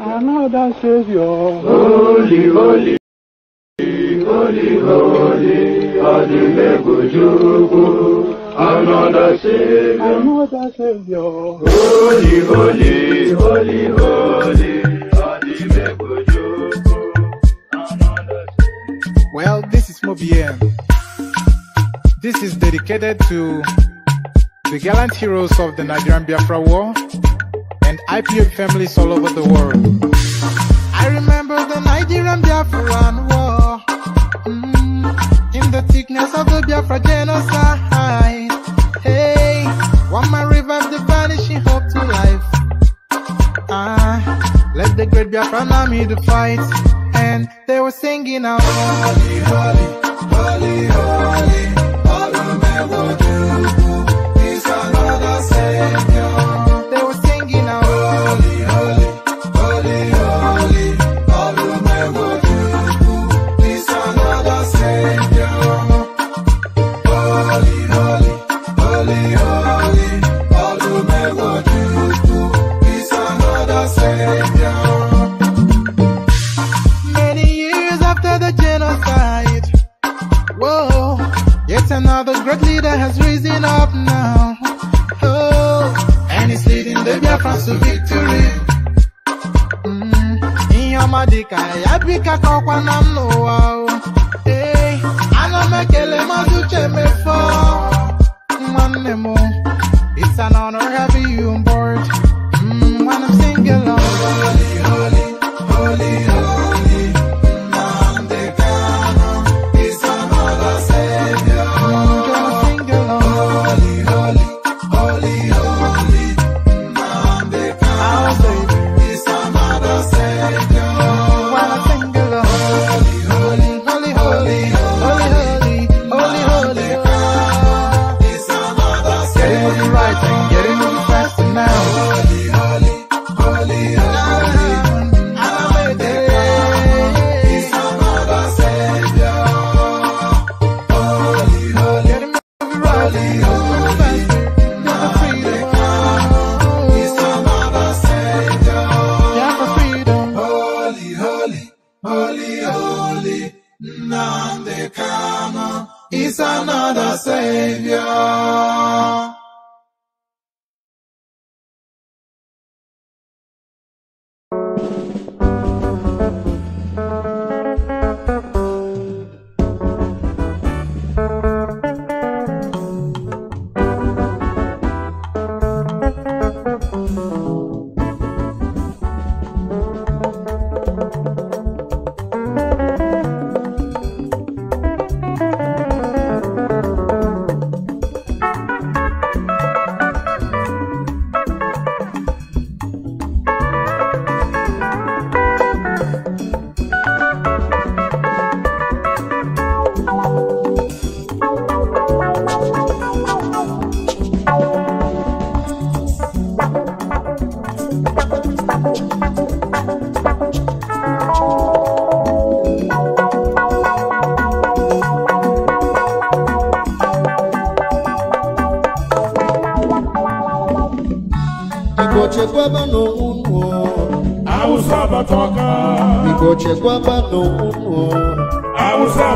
Another Savior. Holy, holy, holy, holy, Adimegojubu. Another Savior. Another Savior. Holy, holy, holy, holy, Adimegojubu. Well, this is Mobiem. This is dedicated to the gallant heroes of the Nigerian Biafra War. and IPM families all over the world. I remember the Nigerian Biafran war, mm, in the thickness of the Biafra genocide. Hey, one man revived the vanishing hope to life. Ah, let the great Biafran army the fight, and they were singing out. Holy, holy. great leader has risen up now. Oh, and he's leading the Biafrans to victory. Mm-hmm. Ihe ya bika kọkwa na m n'ụwa ana m ekele mazị uche mefọ nwanne m ịsa chekwaba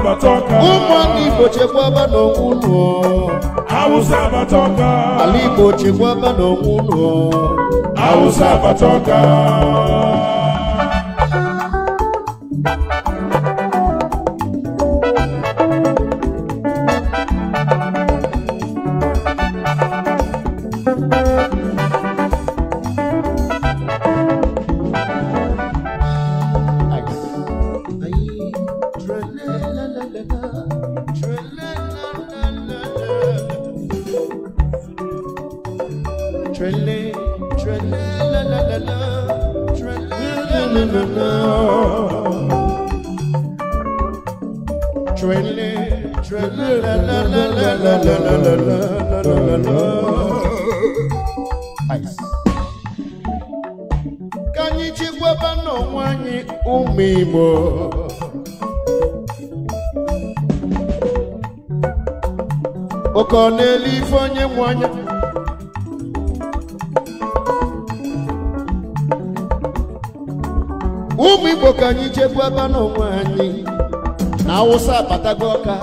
n'onwe Igbo chekwaba n'onwe unu ala Igbo chekwaba awụsa abatago ọka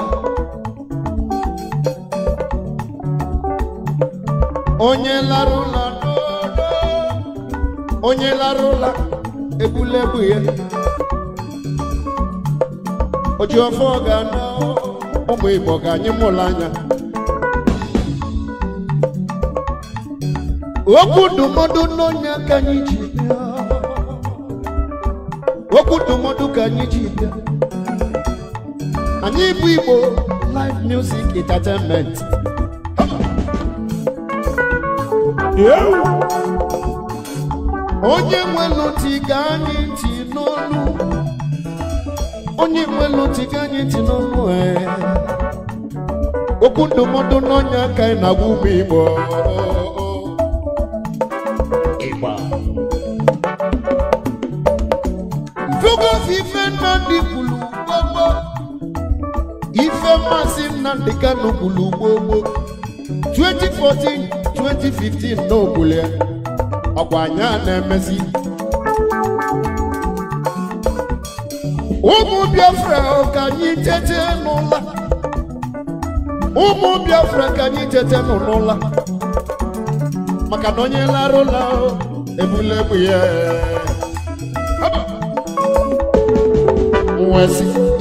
onye lara ụlọ onye lara ụlọ egbulegbu ya ojiọfọ ga-anọ ụmụ ga-anyị mụlụ anya okwu ndụmọdụ n'onye ka anyị ji bịa okwu ndụmọdụ ka anyị ji anyị bụ Igbo live music entertainment onye nwelu tiga anyị ntị n'olu onye nwelu tiga anyị ntị n'olu e. okwu ndụmọdụ n'ọnya aka anyị na-agwa ụmụ Igbo Ife nna dị oge maazị Nnamdi Kanu gburu gbogbo 2014 2015 n'ogbulu ya ọkwa anya na-emezi ụmụ Biafra ka anyị tete n'ụla ụmụ Biafra ka anyị tete n'ụla maka na onye larụla ebula egbe ya nwesị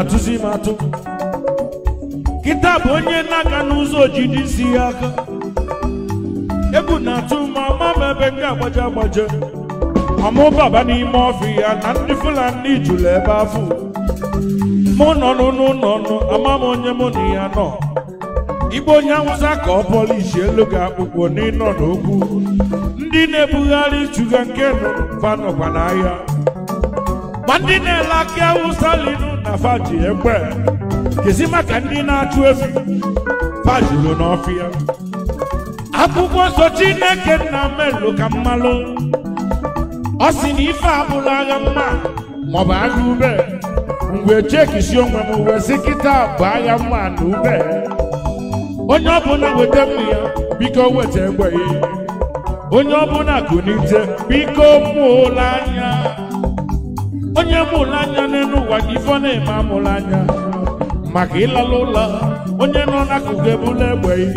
atụzi m atụ kịta bụ onye n'aka n'ụzọ ojiji si ya aka egwu na-atụ ma ama m ebe ndị agbaje agbaje amụbaba n'ime ọfị ya na ndị Fulani jụrụ ebe afọ mụ nọ n'ụlọ ama m onye mụ na ya nọ igbo onye awụsa ka ọ elu ga akpụkpọ n'ịnọ n'okwu ndị na-ebugharị chuga nke nọkwa n'ahịa ma ndị na-ele aka awụsa linu na ji egbe kezi maka ndị na-achụ efi fajulu n'ọfịa akwụkwọ nsọ chineke nna melụ ka mmalụ ọ sị na ife abụla agha mma maọbụ agha ube mgbe chekisi onwe m wezi kịta bụ agha mma na ube onye ọbụla weta mma ya biko weta egbe onye ọbụla gụnite biko mụla anya onye mụrụ anya n'elu ụwa gị ife na-eme amụrụ anya maka ịlala ụlọ onye nọ n'akụkụ ebula egbe gị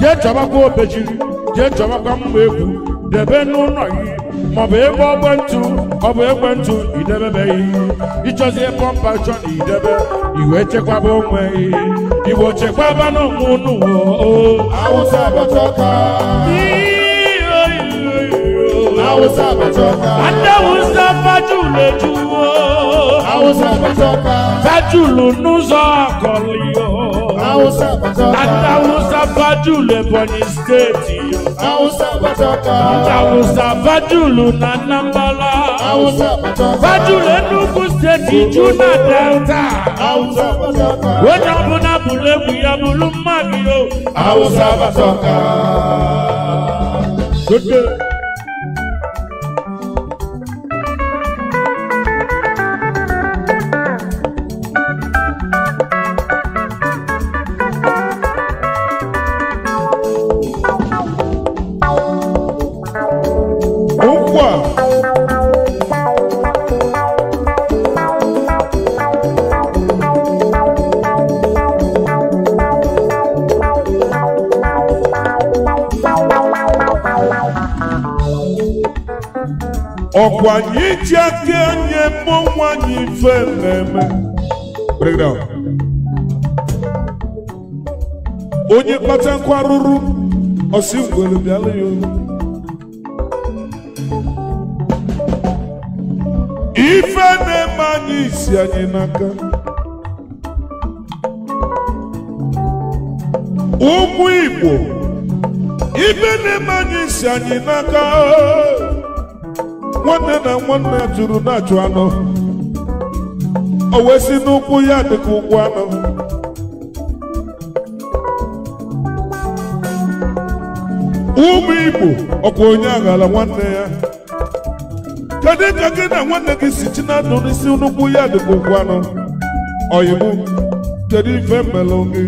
jee chọbakwa obejiri jee chọbakwa mgba egwu debe n'ụlọ gị maọbụ ebe ọgbentụ ọ bụ ekwentụ idebebeghị ịchọzie pọmpa chọ na idebe iwe chekwaba onwe igbo chekwaba n'onwe unu o awụsa abọcha ọka Hausa Batoka. Ada Musa Fajule Juwo. Hausa Batoka. Fajulu Nuzo Kolio. Hausa Batoka. Ada Musa Fajule Boni State yo. Hausa Batoka. Ada Musa Fajulu Nanambala. Hausa Batoka. Fajule Nugu State Juna Delta. Hausa Batoka. Wajabuna Bule Buyabulu Mabio. Hausa Batoka. Good day. ọkwa anyị iji aka anyị eme anyị ife na-eme onye kpata nkwa arụrụ ọsị ngwere bịala ya ife na-eme anyị isi anyị n'aka ụmụ Igbo ife na-eme anyị isi anyị n'aka nwanne na nwanne ya jụrụ na-achụ anụ o wee si n'ụkwụ ya dịka ụkwụ anọ ụmụ Igbo ọkwa onye aghala nwanne ya kedu ka gị na nwanne gị si chi na ndụ n'isi n'ụkwụ ya dịka ụkwụ anụ oyibo kedu ife mmelụ gị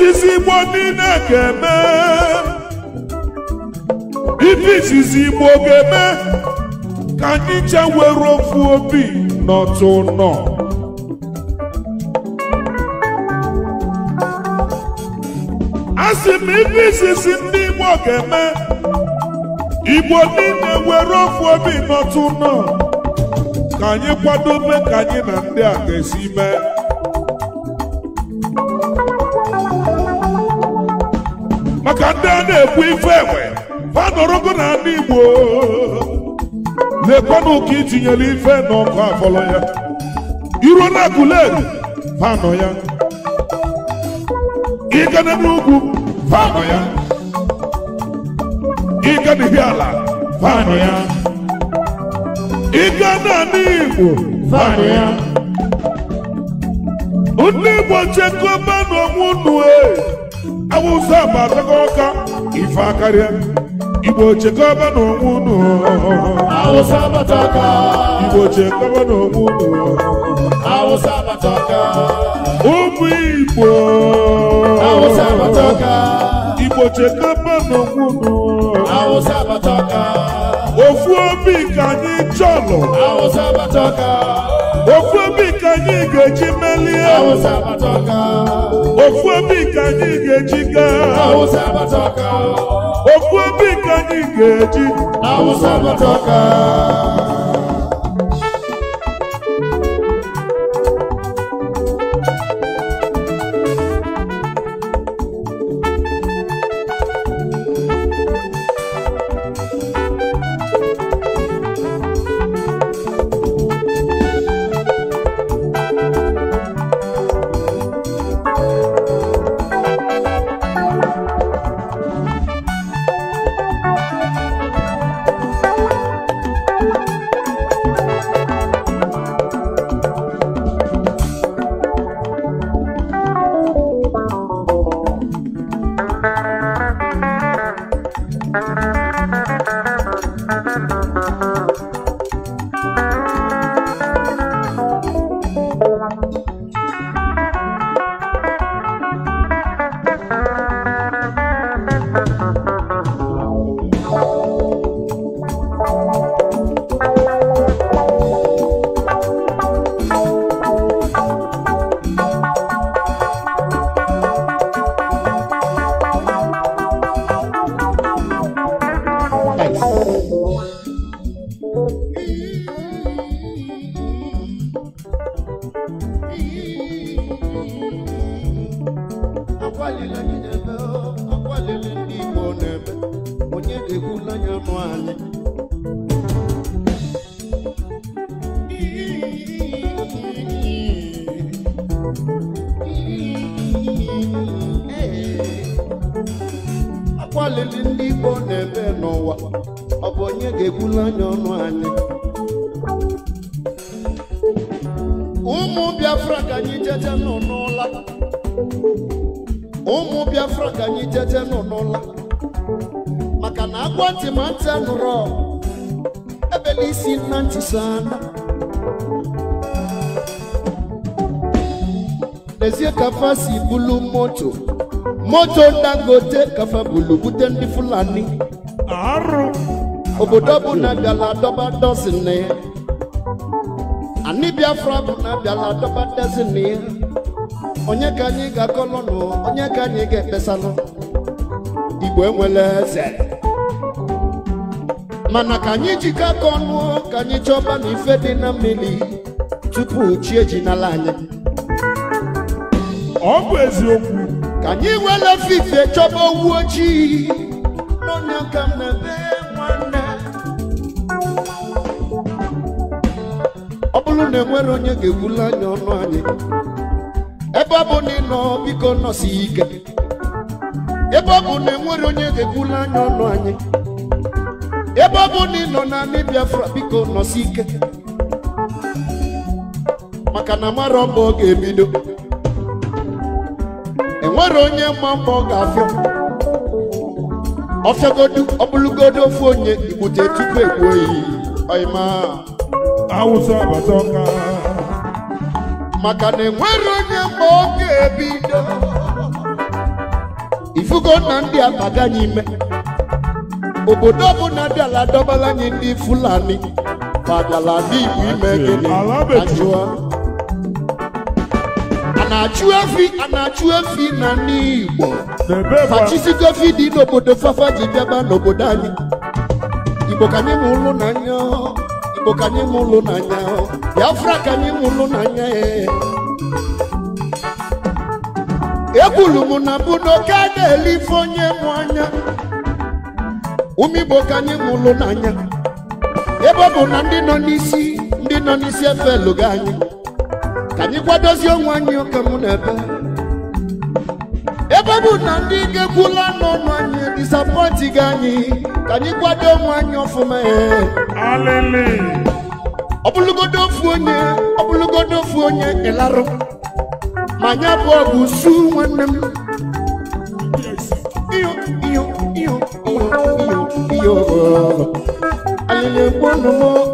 izizi Igbo niile ga-eme ka anyị je were ofu obi n'otu nọ m ndị Igbo ga Igbo ofu obi n'otu nọ ka anyị kwadobe ka anyị na ndị na-ekwu ife enwe ha nọrọgo ndị Igbo lekwanụ ka itinyere ife n'ọkụ na ya ịgana n'ugwu ya ala ya ịga Igbo ya ndị Igbo chekwaba e. awụsa ma ọka ife akarịa igbo chekọba n'onwe unu awụsa abata aka igbo chekọba n'onwe unu awụsa abata aka ụmụ igbo awụsa abata aka igbo chekọba n'onwe unu awụsa abata aka ofu obi ka anyị chọlọ awụsa abata ofu obi ka anyị ga-eji melie awụsa abata ofu obi nke anyị ga-eji gaa okwu obi anyị ga-eji moto moto dangote kafe bulu bute fulani arụ obodo na bịala dọba dọzin ya anyị biafra bụna bịala dọba dọzin onye ka anyị ga-akọlọnụ onye ka anyị ga-ekpesalụ igbo enwele eze mana ka anyị jikọ aka ọnụ ka anyị chọba na ife dị na mmiri tupu chi ejinala anyị bụ eziokwu ka anyị were ite chọba owu ojii ọ bụrụ na enwere onye ga-ewuli anya ọnụ anyị ebe ọ bụ na ịnọ na enwere nọ Biafra biko nọsi ike maka na mara ọ ga-ebido Oro nye mambo gafio Ofe godu obulu godo fo nye Ibute tupe kwe Aima Awusa batoka Makane mwero nye mboke bido Ifugo nandi alaga nyime Obodobu nandi aladobala nyindi fulani Padala nyindi mwime Anjua Anjua na-achụ efi na-achụ efi na n'Igbo machisigo efi dị n'obodo fafa ji bịaba n'obodo anyị Igbo ka anyị mụlụ n'anya Igbo ka anyị mụlụ n'anya Biafra ka anyị mụlụ n'anya ekwulu m na bụ n'oke na-elife onye mụ anya ụmụ Igbo ka anyị mụlụ n'anya ebe ọ bụ na ndị nọ n'isi ndị nọ n'isi efelụgo anyị anyịkwa dozie onwe anyị oke mụ na ebe ebe bụ na ndị ga-ekwula n'ọnụ anyị disapọntị gị anyị ka anyị kwado onwe anyị ọfụma ọbụlụgodo ofu onye ọbụlụgodo ofu onye ịlarụ ma anyị abụọ bụ su nwanne m iyo iyo iyo iyo alịla egbu ọnụ m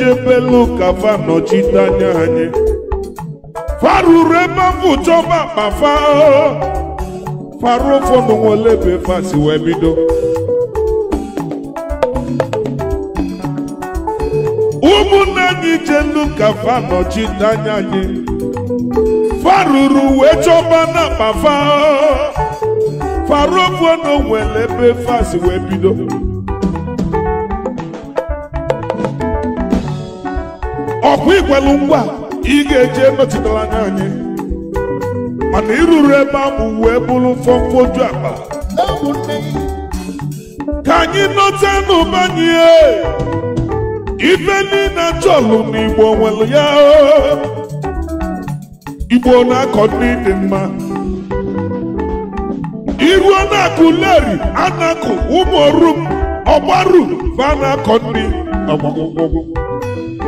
ejebelu ka nọchite anya anyị faruru ebe chọba akpafa faru ụfọdụ nwere ebe fasi wee ụmụnne anyị fa nọchite anya anyị na faru ụfọdụ nwere ebe fasi bido ọkwa ikwelu ngwa ị ga-eji emetụtala anya anyị mana iruru ebe ahụ wee bụrụ fọmfoju akpa ka anyị nọta n'ụba anyị ife niile chọlụ na igbo nwere ya igbo na-akọ dị mma iruo na-akụ leri anakụ ụmụ orum ọgbaru ba na-akọ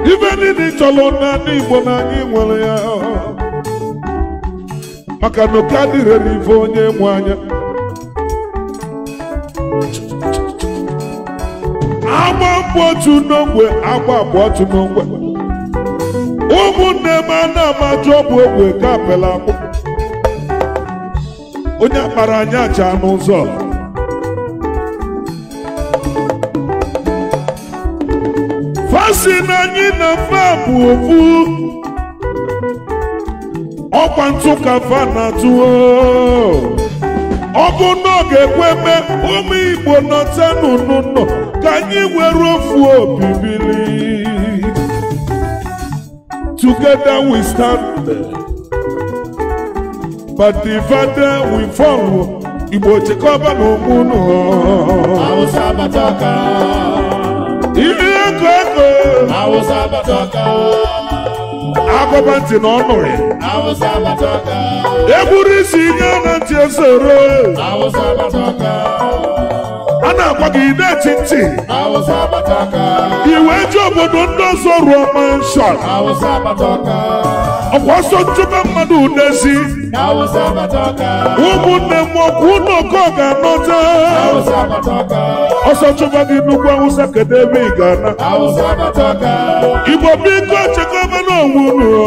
ife niile chọrọ n'ala Igbo na anyị nwere ya maka na oke adịghị n'ife onye nwe anya agba mbụ otu n'ogbe agba abụ otu n'ogbe ụmụnne m ana amajụ bụ ogbe ga apela akpụ onye akpara anya chaa n'ụzọ o si anyị na fa bụ ofu ọkwa ntụ ka fa na-atụ ọ bụ ga ụmụ Igbo nọta n'ụnụ nọ ka anyị were ofu obi bili together we stand but divided we fall Igbo chekọba na onwe unu agụba ntị na ọnụrị egwuru isi ihe na ntị esoro a na-agwa gị na-eti ntị iwe ji obodo ndị ọzọ rụọ manshọn ọkwa ọsọ ntụbe mmadụ udezi ụmụnne m ọkwa ụlọ ọkọ ga-anọta ọsọ chụba gị nnukwu awụsa kedu ebe ị ga-ana igbo biko chekwaba n'onwe unu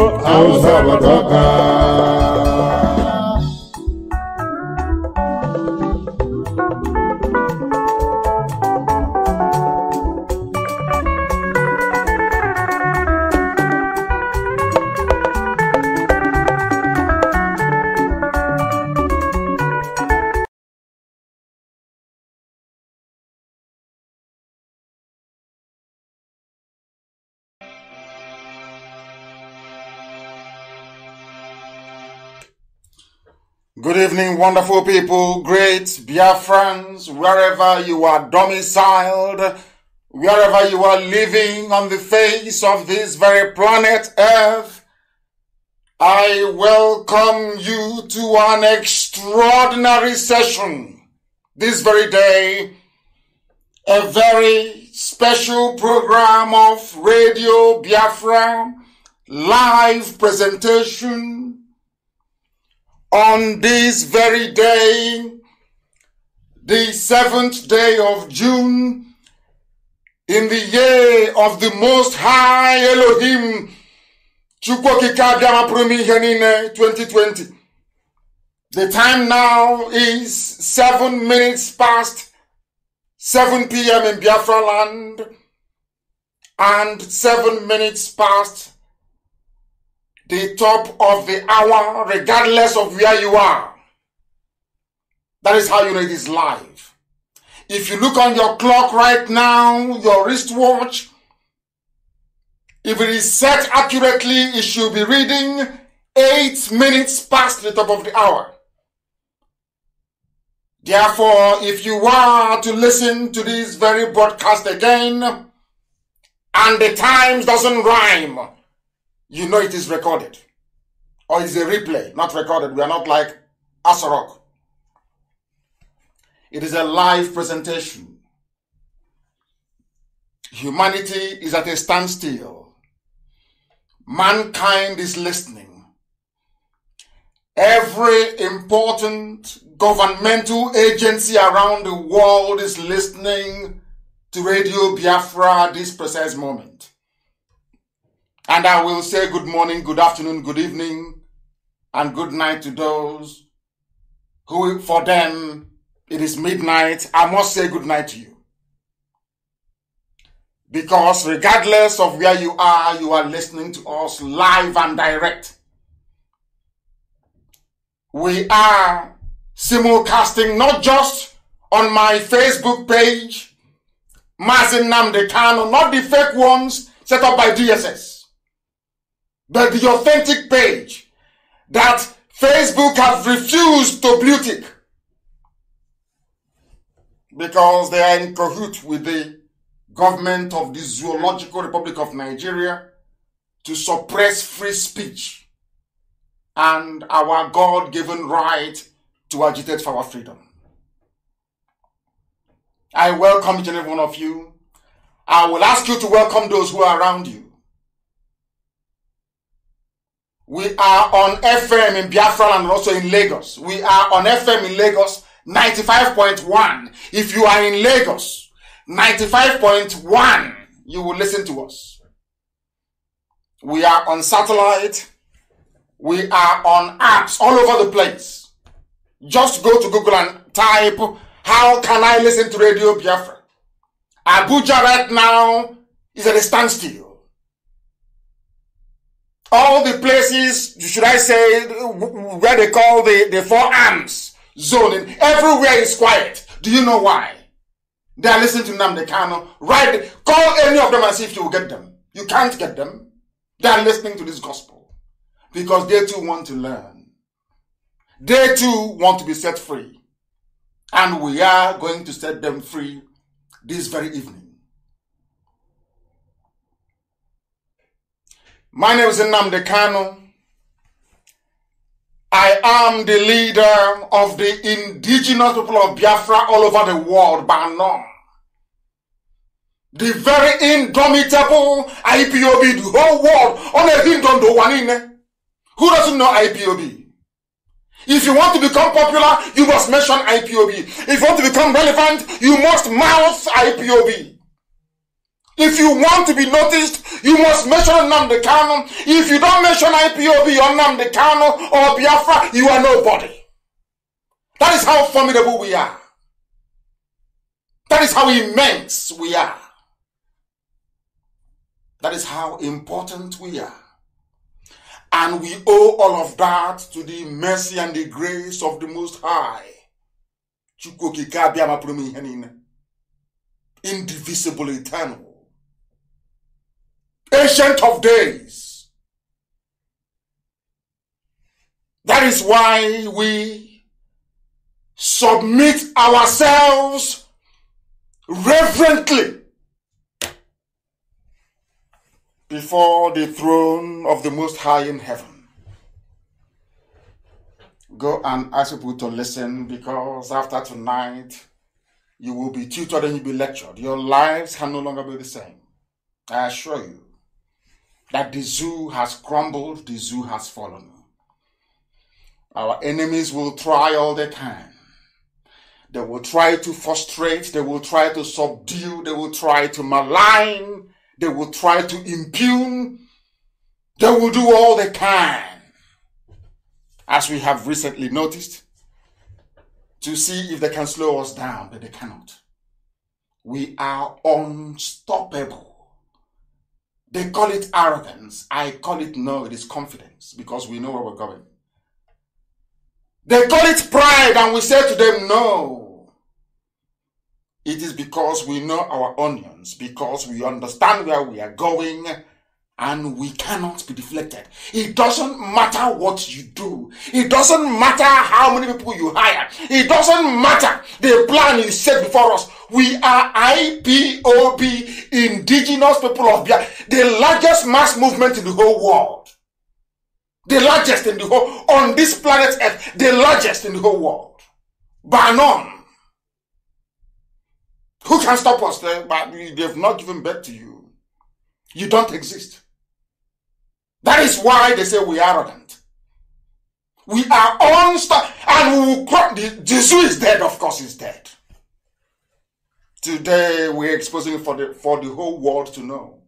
Good evening, wonderful people, great Biafrans, friends, wherever you are domiciled, wherever you are living on the face of this very planet Earth. I welcome you to an extraordinary session this very day, a very special program of Radio Biafra live presentation on this very day, the seventh day of June, in the year of the Most High Elohim, 2020. The time now is seven minutes past 7 p.m. in Biafra land and seven minutes past the top of the hour, regardless of where you are. That is how you know it is live. If you look on your clock right now, your wristwatch, if it is set accurately, it should be reading eight minutes past the top of the hour. Therefore, if you are to listen to this very broadcast again, and the times doesn't rhyme, you know it is recorded. Or it's a replay, not recorded. We are not like Asarok. It is a live presentation. Humanity is at a standstill. Mankind is listening. Every important governmental agency around the world is listening to Radio Biafra at this precise moment. And I will say good morning, good afternoon, good evening, and good night to those who, for them, it is midnight. I must say good night to you. Because regardless of where you are, you are listening to us live and direct. We are simulcasting not just on my Facebook page, Mazin Namdekano, not the fake ones set up by DSS but the authentic page that Facebook have refused to blue because they are in cahoot with the government of the Zoological Republic of Nigeria to suppress free speech and our God given right to agitate for our freedom. I welcome each and every one of you. I will ask you to welcome those who are around you. We are on FM in Biafra and also in Lagos. We are on FM in Lagos 95.1. If you are in Lagos, 95.1, you will listen to us. We are on satellite. We are on apps all over the place. Just go to Google and type, How can I listen to Radio Biafra? Abuja right now is at a standstill all the places, should I say, where they call the, the four arms zoning, everywhere is quiet. Do you know why? They are listening to Namde Kano. Right, call any of them and see if you will get them. You can't get them. They are listening to this gospel because they too want to learn. They too want to be set free. And we are going to set them free this very evening. My name is Nnamdi Kanu. I am the leader of the indigenous people of Biafra all over the world, Banom. The very indomitable IPOB, the whole world, only a kingdom do one in. Eh? Who doesn't know IPOB? If you want to become popular, you must mention IPOB. If you want to become relevant, you must mouth IPOB. If you want to be noticed, you must mention Namde Kano. If you don't mention IPOB or Namde Kano or Biafra, you are nobody. That is how formidable we are. That is how immense we are. That is how important we are. And we owe all of that to the mercy and the grace of the Most High. Indivisible, eternal. Ancient of Days. That is why we submit ourselves reverently before the throne of the Most High in heaven. Go and ask people to listen because after tonight, you will be tutored and you'll be lectured. Your lives can no longer be the same. I assure you that the zoo has crumbled, the zoo has fallen. Our enemies will try all the time. They will try to frustrate, they will try to subdue, they will try to malign, they will try to impugn, they will do all they can. As we have recently noticed, to see if they can slow us down, but they cannot. We are unstoppable. They call it arrogance. I call it no, it is confidence because we know where we're going. They call it pride, and we say to them, no. It is because we know our onions, because we understand where we are going, and we cannot be deflected. It doesn't matter what you do. It doesn't matter how many people you hire. It doesn't matter the plan you set before us. We are IPOB, indigenous people of Bia. the largest mass movement in the whole world. The largest in the whole, on this planet Earth, the largest in the whole world. By none. Who can stop us? but they've not given birth to you. You don't exist. That is why they say we are arrogant. We are unstoppable. And we will the. Jesus is dead, of course, he's dead. Today, we're exposing for the, for the whole world to know.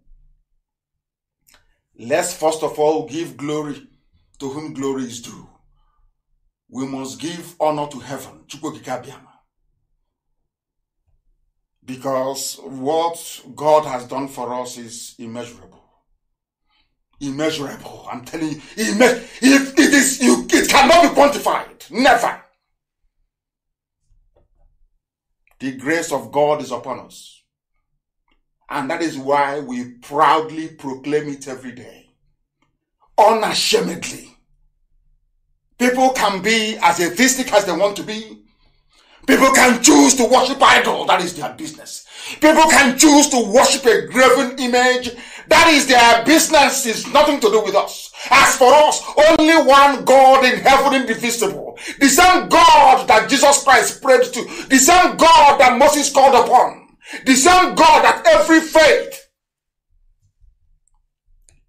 Let's first of all give glory to whom glory is due. We must give honor to heaven. Because what God has done for us is immeasurable immeasurable. I'm telling you, imme- it is you, it cannot be quantified. Never. The grace of God is upon us. And that is why we proudly proclaim it every day. Unashamedly. People can be as atheistic as they want to be. People can choose to worship idol, that is their business. People can choose to worship a graven image that is their business is nothing to do with us. As for us, only one God in heaven indivisible. The same God that Jesus Christ prayed to. The same God that Moses called upon. The same God that every faith,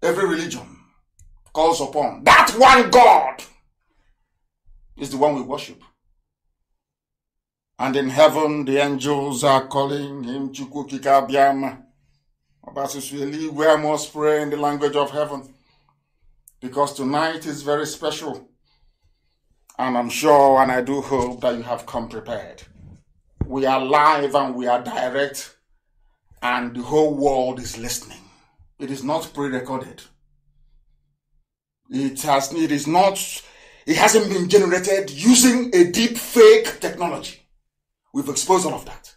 every religion calls upon. That one God is the one we worship. And in heaven, the angels are calling him Chukukikabiam. But it's really we must pray in the language of heaven because tonight is very special. And I'm sure and I do hope that you have come prepared. We are live and we are direct, and the whole world is listening. It is not pre recorded. It has it is not it hasn't been generated using a deep fake technology. We've exposed all of that.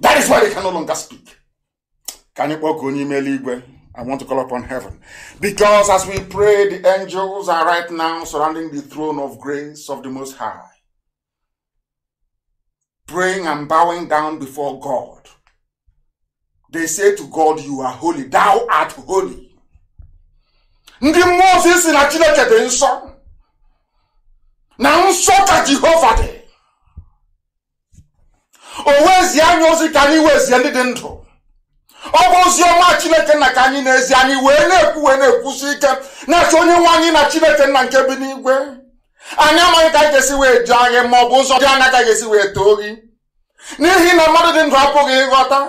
That is why they can no longer speak. Can you walk on email I want to call upon heaven. Because as we pray, the angels are right now surrounding the throne of grace of the Most High. Praying and bowing down before God. They say to God, You are holy. Thou art holy. ndị mmụọ ozi si na chineke dị nsọ na nsọ ka jehova dị o wezie anya ozi ka anyị wezie ndị dị ndụ ọ bụ ozi ọma chineke nna ka anyị na anyị wee na-ekwu wee na-ekwusi ike na-achọ onye nwe anyị na chineke nna nke bi n'igwe anyị amaghị ka anyị ga-esi wee jụ anyị ma ọ bụ ụzọ dị anya ka ga-esi wee too gị n'ihi na mmadụ dị ndụ apụghị ịghọta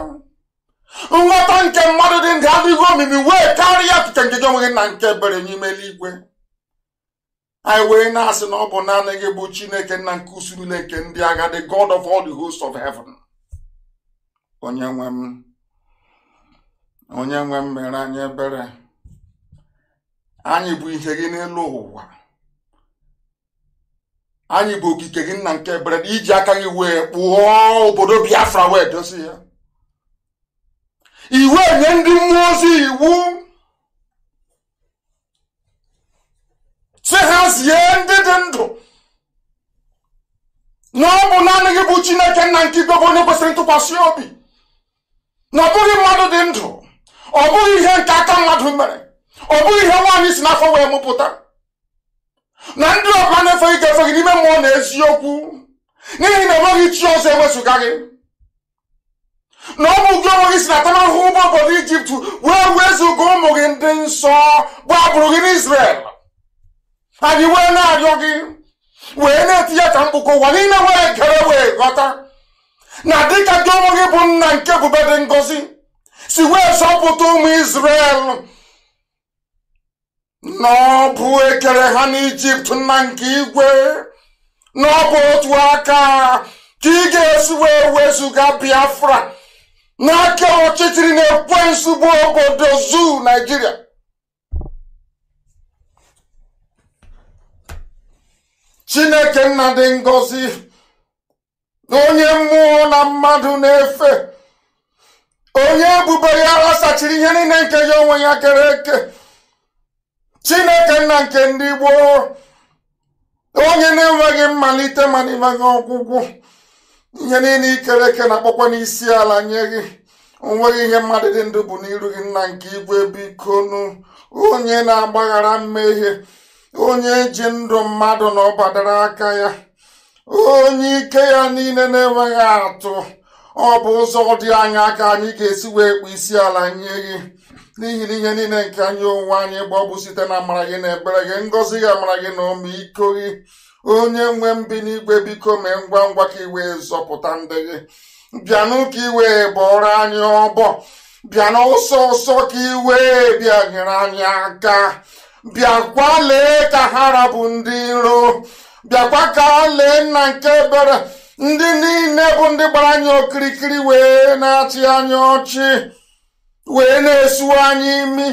nghọta nke mmadụ dị ndụ adịghị omimi wee karịa nke nke gị onwe gị na nke bere n'ime eluigwe anyị wee na-asị na ọ bụ naanị gị bụ chineke nna nke usuru nke ndị agha the god of all the host of heaven onye nwe m onye nwe mmere anyị ebere anyị bụ ihe gị n'elu ụwa anyị bụ okike gị nna nke ebere iji aka gị wee kpụọ obodo Biafra wee dozi ya iwu nye ndị mmụọ ozi iwu si ha zie ndị dị ndụ na ọ bụ naanị gị bụ Chineke nna nke onye kwesịrị ntụkwasị obi na ọ bụghị mmadụ dị ndụ ọ bụghị ihe nke aka mmadụ mere ọ bụghị ihe nwaanyị si n'afọ wee mụpụta na ndị ọbụla na efe gị n'ime mmụọ na eziokwu n'ihi na enweghị chi ọzọ ewezụga gị na ọ bụ gị onwe gị si na atamahụhụ ụba obodo ijipt wee wezụga ụmụ gị ndị nsọ bụ agbụrụ gị n'isrel anyị wee na-arịọ gị wee na-etinye ka mkpụkọ ụwa niile wee gere wee ghọta na dịka gị onwe gị bụ nna nke ebube dị ngọzi si wee ụmụ Izrel na ọ bụ ekere ha n'ijipt na nke igwe na ọ bụ otu aka ka ị ga-esi wee wezụga biafra n'aka ọchịchịrị na ekwe bụ obodo zuu naijiria chineke nna dị ngọzi onye mmụọ na mmadụ na-efe onye ebube ya ghasachiri ihe niile nke ya onwe ya kere eke chineke nna nke ndị gboo onye na-enweghị mmalite ma na ọgwụgwụ ihe niile ikere eke na-akpọkwa n'isi ala nye gị onweghị ihe mmadụ dị ndụ bụ n'iru gị nna nke igwe bikonu onye na-agbaghara mmehie onye ji ndụ mmadụ na ọbadara aka ya onye ike ya niile na-enweghị atụ ọ bụ ụzọ dị anya ka anyị ga-esi wee kpụ isi ala nye gị n'ihi na ihe niile nke anyị onwe anyị gba bụ site na amara gị na ebere gị ngọzi gị amara gị na ọmịiko gị onye nwe mbi n'igwe biko mee ngwa ngwa ka iwe zọpụta ndị gị bịanụ ka ị bọrọ anyị ọbọ bịanụ ọsọ ụsọ ka ị bịa nyere anyị aka bịakwa lee ka ha rabụ ndị nro bịakwa ka lee nna nke ebere ndị niile bụ ndị gbara anyị okirikiri wee na-achị anyị ọchị wee na-esu anyị imi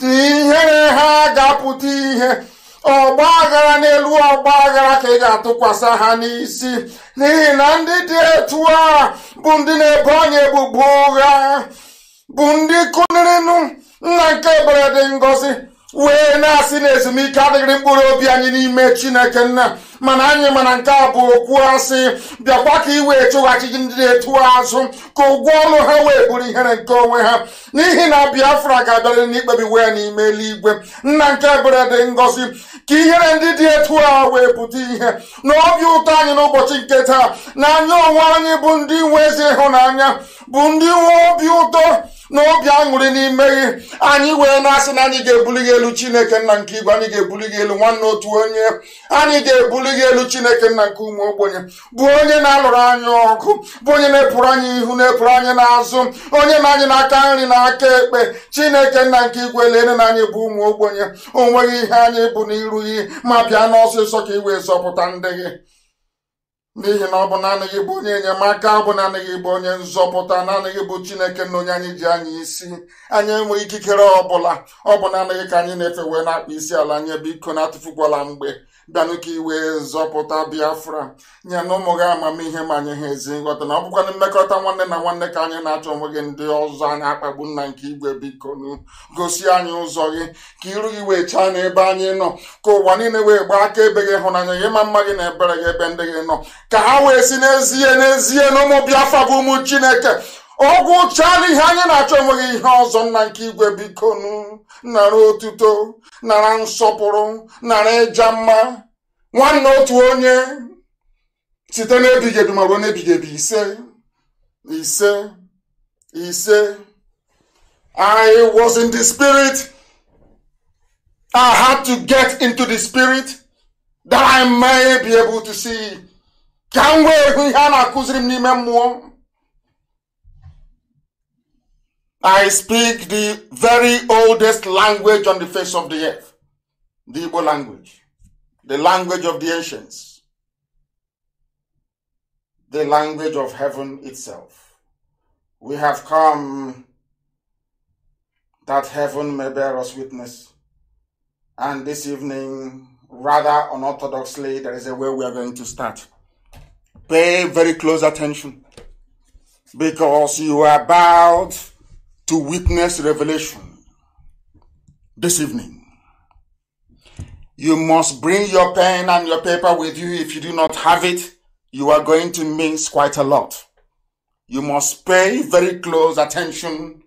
dị ihe ha ga-apụta ihe ọgba aghara n'elu ọgba aghara ka ị ga-atụkwasị ha n'isi n'ihi na ndị dị etu a bụ ndị na-ebo anyị ebubo ụgha bụ ndị kụnirinụ nna nke ebere dị wee na-asị na ezumike adịghịrị mkpụrụ obi anyị n'ime chineke nna mana anyị mana nke a bụ okwu asị bịakwa ka iwe chụghachi ndị na-etu azụ ka ụgwọ ọnụ ha wee bụrụ ihere nke onwe ha n'ihi na biafra ga-abịarịrị n'ikpebi ya n'ime eluigwe nna nke ebere dị ngọzi ka ihere ndị dị etu a wee pụta ihe na obi ụtọ anyị n'ụbọchị nke taa na anya onwe anyị bụ ndị nwe ezi ịhụnanya bụ ndị nwe obi ụtọ na obi aṅụrị n'ime gị anyị wee na-asị na anyị ga-ebuli gị elu chineke nna nke igwe anyị ga-ebuli gị elu nwanne otu onye anyị ga-ebuli gị elu chineke nna nke ụmụ ogbenye bụ onye na-alụrụ anyị ọgụ bụ onye na-epụrụ anyị ihu na-epụrụ anyị n'azụ onye na anyị aka nri na aka ekpe chineke nna nke igwe lere na anyị bụ ụmụ ogbenye onweghị ihe anyị bụ n'iru gị ma bịa n'ọsịsọ ka ị wee zọpụta ndị gị n'ihi na ọ bụ naanị gị bụ onye enyemaka ọ bụ naanị gị bụ onye nzọpụta naanị gị bụ chineke na onye anyị ji anyị isi anyị enweghị ikikere ọbụla bụla ọ bụ naanị gị ka anyị na-efe wee na-akpa isi ala nye biko na-atụfukwala mgbe bịanụ ka iwe zọpụta biafra nye na ụmụ gị amamihe ma anyị ha ezi nghọta na ọ mmekọta nwanne na nwanne ka anyị na-achọ onwe gị ndị ọzọ anyị na-akpagbu nna nke igwe bikonu gosi anyị ụzọ gị ka iru gị wee chaa n'ebe anyị nọ ka ụwa niile wee gbaa aka ebe gị hụnanya gị ma mma gị na ebere gị ebe ndị gị nọ ka ha wee si n'ezie n'ezie na ụmụ biafra bụ ụmụ chineke ọgwụ chaa ihe anyị na-achọ enweghị ihe ọzọ nna nke igwe bikonu nara otuto nara nsọpụrụ nara ịja mma nwanne otu onye site n'ebighị ma ruo n'ebighị ise ise ise I was in the spirit I had to get into the spirit that I may be able to see ka m wee hụ ihe a na-akụziri m n'ime mmụọ I speak the very oldest language on the face of the earth, the Igbo language, the language of the ancients, the language of heaven itself. We have come that heaven may bear us witness. And this evening, rather unorthodoxly, there is a way we are going to start. Pay very close attention because you are about to witness revelation this evening. You must bring your pen and your paper with you. If you do not have it, you are going to miss quite a lot. You must pay very close attention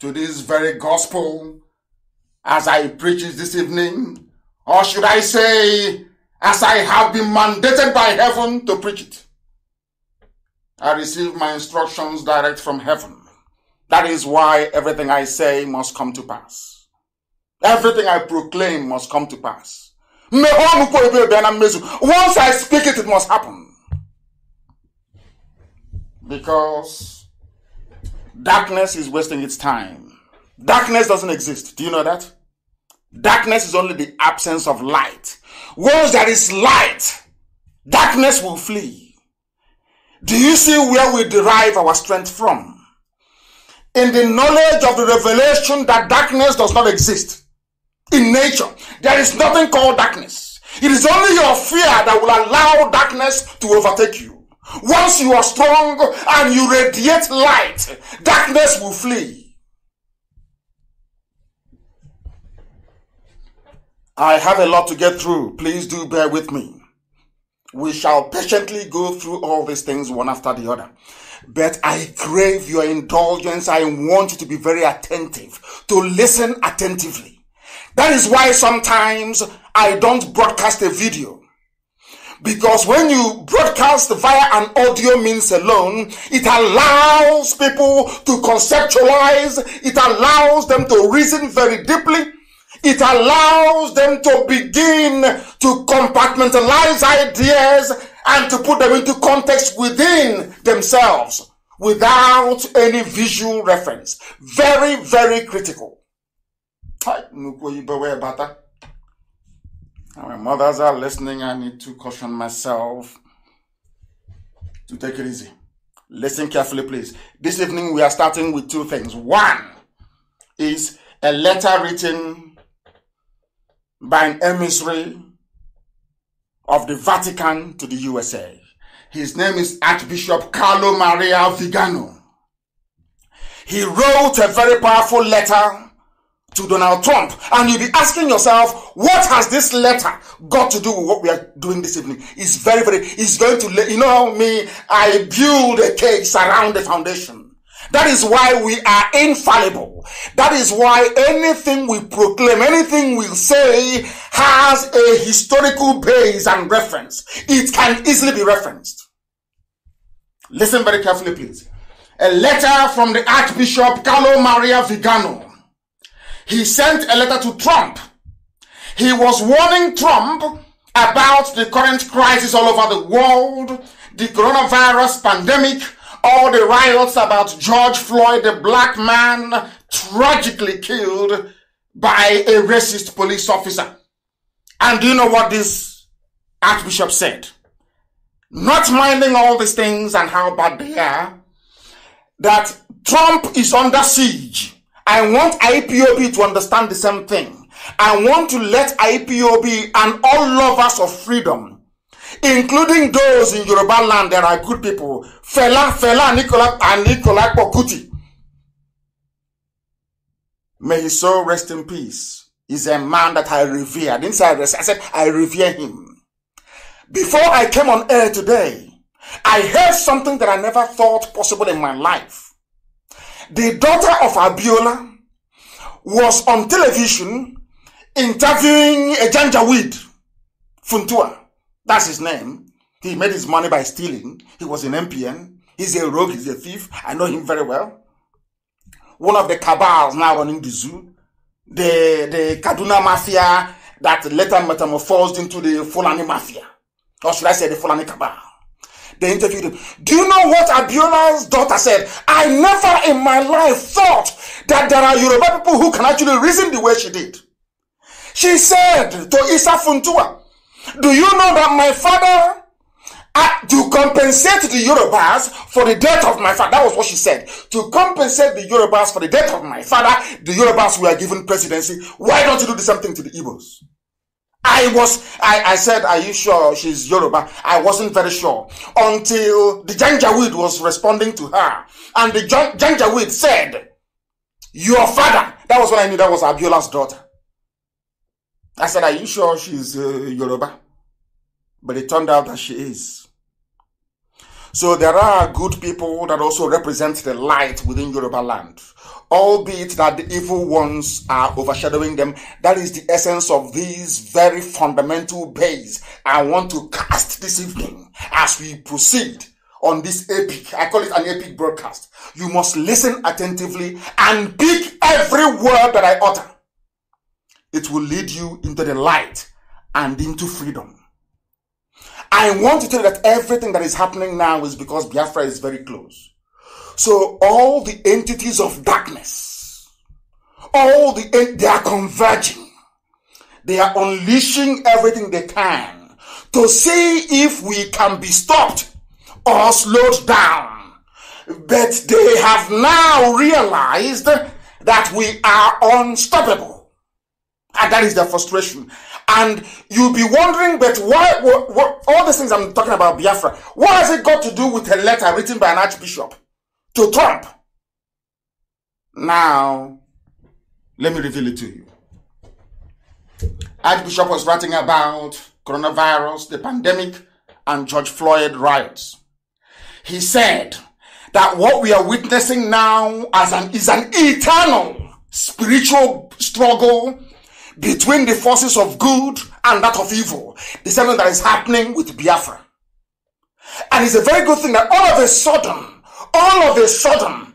to this very gospel as I preach it this evening, or should I say, as I have been mandated by heaven to preach it. I receive my instructions direct from heaven. That is why everything I say must come to pass. Everything I proclaim must come to pass. Once I speak it, it must happen. Because darkness is wasting its time. Darkness doesn't exist. Do you know that? Darkness is only the absence of light. Once there is light, darkness will flee. Do you see where we derive our strength from? in the knowledge of the revelation that darkness does not exist. In nature, there is nothing called darkness. It is only your fear that will allow darkness to overtake you. Once you are strong and you radiate light, darkness will flee. I have a lot to get through. Please do bear with me. We shall patiently go through all these things one after the other. But I crave your indulgence. I want you to be very attentive, to listen attentively. That is why sometimes I don't broadcast a video. Because when you broadcast via an audio means alone, it allows people to conceptualize. It allows them to reason very deeply. It allows them to begin to compartmentalize ideas and to put them into context within themselves without any visual reference. Very, very critical. My mothers are listening. I need to caution myself to take it easy. Listen carefully, please. This evening we are starting with two things. One is a letter written by an emissary of the Vatican to the USA. His name is Archbishop Carlo Maria Vigano. He wrote a very powerful letter to Donald Trump. And you'll be asking yourself, what has this letter got to do with what we are doing this evening? It's very, very, it's going to, you know me, I build a case around the foundation. That is why we are infallible. That is why anything we proclaim, anything we say has a historical base and reference. It can easily be referenced. Listen very carefully, please. A letter from the Archbishop Carlo Maria Vigano. He sent a letter to Trump. He was warning Trump about the current crisis all over the world, the coronavirus pandemic, all the riots about George Floyd, the black man tragically killed by a racist police officer. And do you know what this Archbishop said? Not minding all these things and how bad they are, that Trump is under siege. I want IPOB to understand the same thing. I want to let IPOB and all lovers of freedom including those in Yoruba land that are good people. Fela, Fela, Nicola, and Nicola Pokuti. May his soul rest in peace. He's a man that I revere. Inside didn't say I, rest, I said I revere him. Before I came on air today, I heard something that I never thought possible in my life. The daughter of Abiola was on television interviewing a Janjaweed, Funtua. That's his name. He made his money by stealing. He was an MPN. He's a rogue. He's a thief. I know him very well. One of the cabals now running the zoo. The, the Kaduna Mafia that later metamorphosed into the Fulani Mafia. Or should I say the Fulani Cabal. They interviewed him. Do you know what Abiola's daughter said? I never in my life thought that there are Yoruba people who can actually reason the way she did. She said to Isa Funtua, do you know that my father uh, to compensate the Yorubas for the death of my father. That was what she said. To compensate the Yorubas for the death of my father, the Yorubas were given presidency. Why don't you do the same thing to the Igbos? I was, I, I said, are you sure she's Yoruba? I wasn't very sure until the Janjaweed was responding to her. And the Janjaweed said, your father, that was when I knew that was Abiola's daughter. I said, Are you sure she's uh, Yoruba? But it turned out that she is. So there are good people that also represent the light within Yoruba land, albeit that the evil ones are overshadowing them. That is the essence of these very fundamental base I want to cast this evening as we proceed on this epic. I call it an epic broadcast. You must listen attentively and pick every word that I utter it will lead you into the light and into freedom. I want to tell you that everything that is happening now is because Biafra is very close. So all the entities of darkness, all the, they are converging. They are unleashing everything they can to see if we can be stopped or slowed down. But they have now realized that we are unstoppable. And ah, that is their frustration. And you'll be wondering, but why, what, what, all these things I'm talking about Biafra, what has it got to do with a letter written by an archbishop to Trump? Now, let me reveal it to you. Archbishop was writing about coronavirus, the pandemic, and George Floyd riots. He said that what we are witnessing now as an, is an eternal spiritual struggle between the forces of good and that of evil. The same thing that is happening with Biafra. And it's a very good thing that all of a sudden, all of a sudden,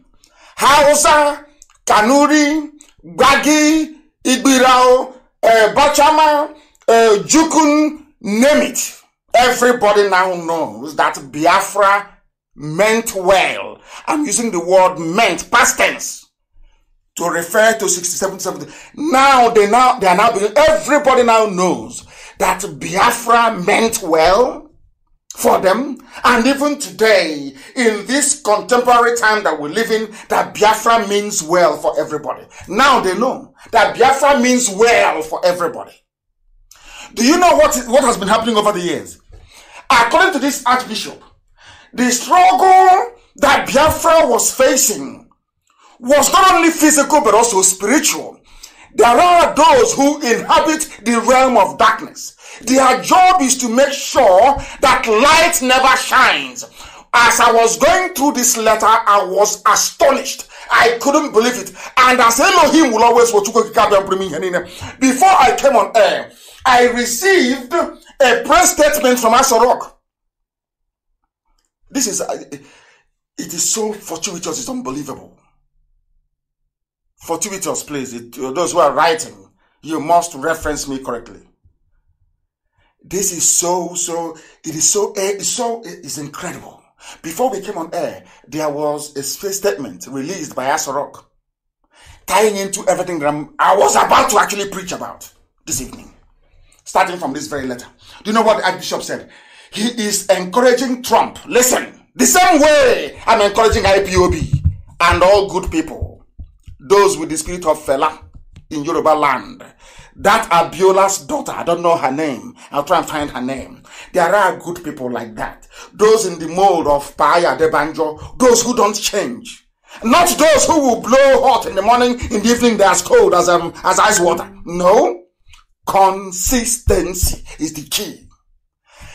Hausa, Kanuri, Gwagi, Igbirao, uh, Bachama, uh, Jukun, name it. Everybody now knows that Biafra meant well. I'm using the word meant, past tense to refer to 67 70. Now they now they are now everybody now knows that Biafra meant well for them and even today in this contemporary time that we live in that Biafra means well for everybody. Now they know that Biafra means well for everybody. Do you know what what has been happening over the years? According to this archbishop, the struggle that Biafra was facing was not only physical but also spiritual. There are those who inhabit the realm of darkness. Their job is to make sure that light never shines. As I was going through this letter, I was astonished. I couldn't believe it. And as Elohim will always before I came on air, I received a press statement from Asorok. This is, uh, it is so fortuitous, it's unbelievable fortuitous, please. It, uh, those who are writing, you must reference me correctly. This is so, so, it is so, eh, it's so, eh, it's incredible. Before we came on air, there was a statement released by Asorok tying into everything that I'm, i was about to actually preach about this evening, starting from this very letter. Do you know what the Archbishop said? He is encouraging Trump. Listen, the same way I'm encouraging IPOB and all good people those with the spirit of fella in Yoruba land. That Abiola's daughter, I don't know her name. I'll try and find her name. There are good people like that. Those in the mold of Paya Debanjo, those who don't change. Not those who will blow hot in the morning, in the evening they're as cold as, um, as ice water. No. Consistency is the key.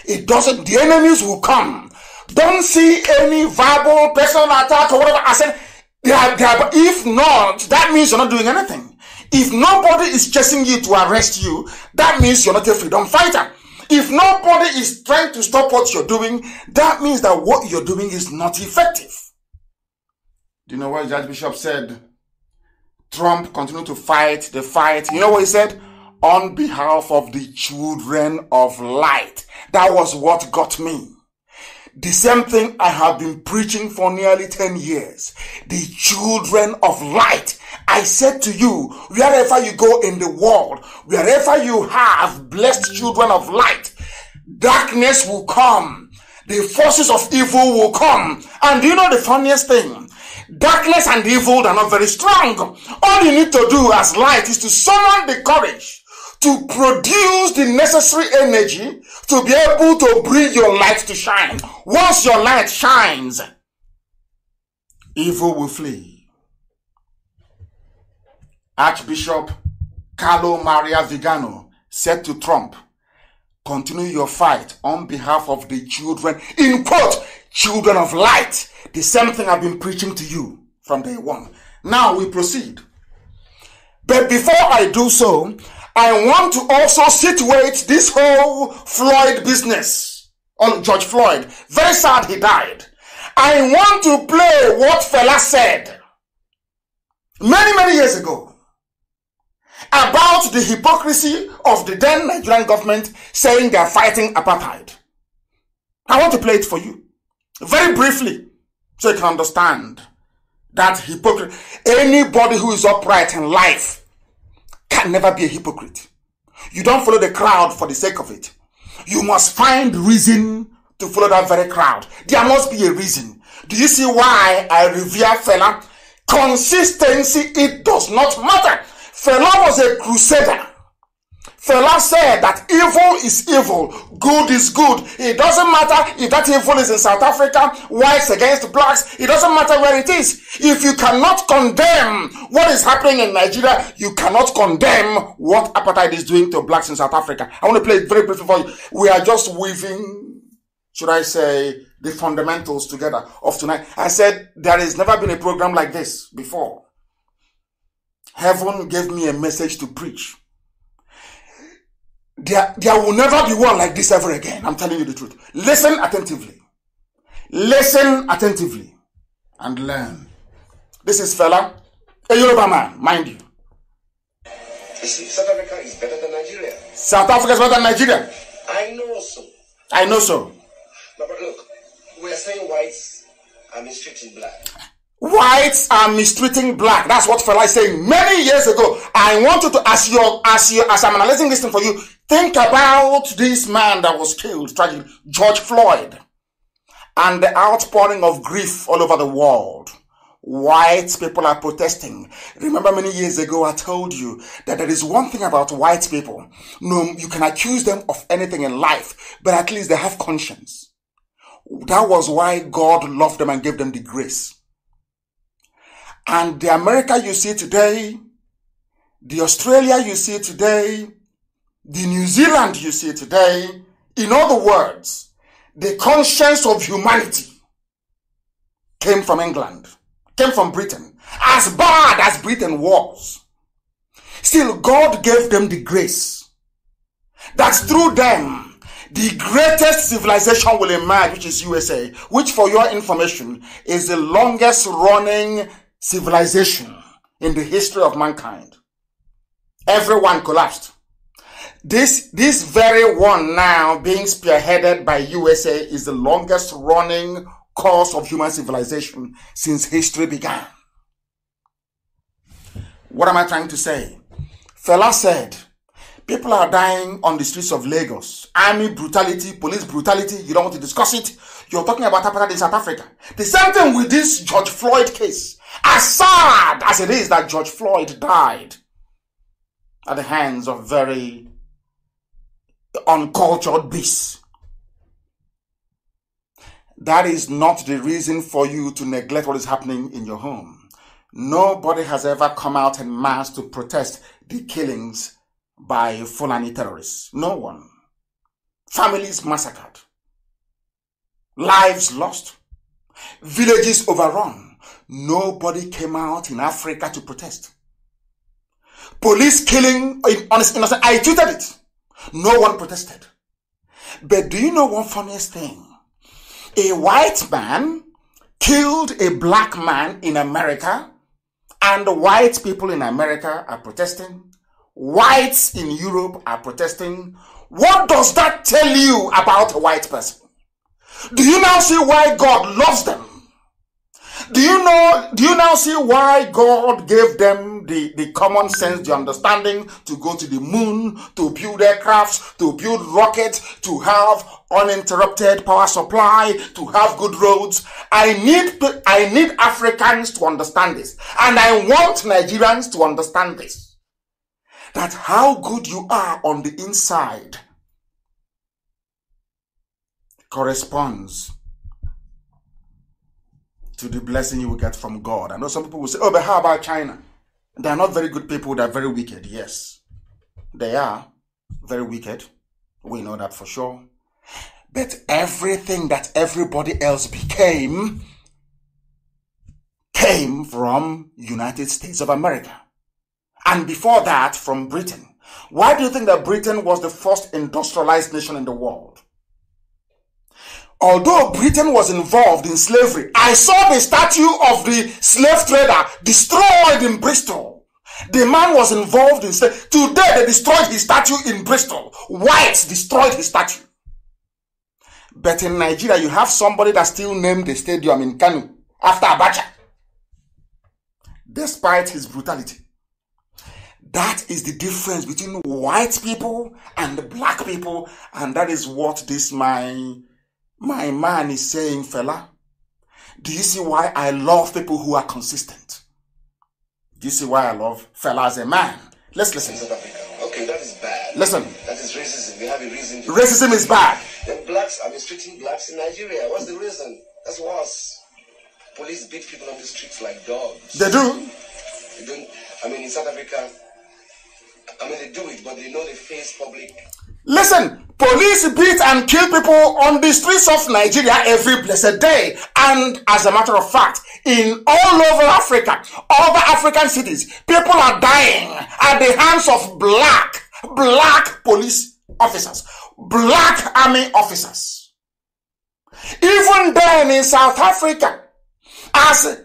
It doesn't, the enemies will come. Don't see any verbal personal attack or whatever. I said, they are, they are, if not, that means you're not doing anything. If nobody is chasing you to arrest you, that means you're not a freedom fighter. If nobody is trying to stop what you're doing, that means that what you're doing is not effective. Do you know what Judge Bishop said? Trump continued to fight the fight. You know what he said? On behalf of the children of light. That was what got me. The same thing I have been preaching for nearly 10 years. The children of light. I said to you, wherever you go in the world, wherever you have blessed children of light, darkness will come. The forces of evil will come. And you know the funniest thing? Darkness and evil are not very strong. All you need to do as light is to summon the courage to produce the necessary energy to be able to bring your light to shine. Once your light shines, evil will flee. Archbishop Carlo Maria Vigano said to Trump, continue your fight on behalf of the children, in quote, children of light. The same thing I've been preaching to you from day one. Now we proceed. But before I do so, I want to also situate this whole Floyd business on George Floyd. Very sad he died. I want to play what fella said many, many years ago about the hypocrisy of the then Nigerian government saying they are fighting apartheid. I want to play it for you very briefly so you can understand that hypocrisy. Anybody who is upright in life can never be a hypocrite. You don't follow the crowd for the sake of it. You must find reason to follow that very crowd. There must be a reason. Do you see why I revere fella? Consistency, it does not matter. Fella was a crusader. Fela said that evil is evil, good is good. It doesn't matter if that evil is in South Africa, whites against blacks, it doesn't matter where it is. If you cannot condemn what is happening in Nigeria, you cannot condemn what apartheid is doing to blacks in South Africa. I want to play it very briefly for you. We are just weaving, should I say, the fundamentals together of tonight. I said there has never been a program like this before. Heaven gave me a message to preach. There, there will never be war like this ever again. I'm telling you the truth. Listen attentively. Listen attentively and learn. This is fella, a Yoruba man, mind you. You see, South Africa is better than Nigeria. South Africa is better than Nigeria. I know so. I know so. But, but look, we are saying whites are mistreating black. Whites are mistreating black. That's what fella is saying many years ago. I want you to, as your, as your, as I'm analyzing this thing for you, Think about this man that was killed tragically, George Floyd, and the outpouring of grief all over the world. White people are protesting. Remember many years ago I told you that there is one thing about white people. No, you can accuse them of anything in life, but at least they have conscience. That was why God loved them and gave them the grace. And the America you see today, the Australia you see today, the New Zealand you see today, in other words, the conscience of humanity came from England, came from Britain. As bad as Britain was, still God gave them the grace that through them the greatest civilization will emerge, which is USA, which for your information is the longest running civilization in the history of mankind. Everyone collapsed this this very one now being spearheaded by USA is the longest running cause of human civilization since history began. What am I trying to say? Fella said, people are dying on the streets of Lagos. Army brutality, police brutality, you don't want to discuss it. You're talking about apartheid in South Africa. The same thing with this George Floyd case. As sad as it is that George Floyd died at the hands of very uncultured beasts. That is not the reason for you to neglect what is happening in your home. Nobody has ever come out in mass to protest the killings by Fulani terrorists. No one. Families massacred. Lives lost. Villages overrun. Nobody came out in Africa to protest. Police killing innocent. I tweeted it. No one protested. But do you know one funniest thing? A white man killed a black man in America, and white people in America are protesting. Whites in Europe are protesting. What does that tell you about a white person? Do you now see why God loves them? Do you know, do you now see why God gave them the, the common sense, the understanding to go to the moon, to build aircrafts, to build rockets, to have uninterrupted power supply, to have good roads? I need, I need Africans to understand this. And I want Nigerians to understand this. That how good you are on the inside corresponds to the blessing you will get from God. I know some people will say, oh, but how about China? They are not very good people, they are very wicked. Yes, they are very wicked. We know that for sure. But everything that everybody else became came from United States of America. And before that, from Britain. Why do you think that Britain was the first industrialized nation in the world? although Britain was involved in slavery, I saw the statue of the slave trader destroyed in Bristol. The man was involved in slavery. Today they destroyed his statue in Bristol. Whites destroyed his statue. But in Nigeria, you have somebody that still named the stadium in Kanu after Abacha. Despite his brutality. That is the difference between white people and black people, and that is what this my my man is saying, fella, do you see why I love people who are consistent? Do you see why I love fella as a man? Let's listen. Okay, that is bad. Listen. That is racism. We have a reason. racism is bad. Then blacks are mistreating blacks in Nigeria. What's the reason? That's worse. Police beat people on the streets like dogs. They do. They don't. I mean, in South Africa, I mean, they do it, but they know they face public Listen, police beat and kill people on the streets of Nigeria every blessed day. And as a matter of fact, in all over Africa, other African cities, people are dying at the hands of black, black police officers, black army officers. Even then in South Africa, as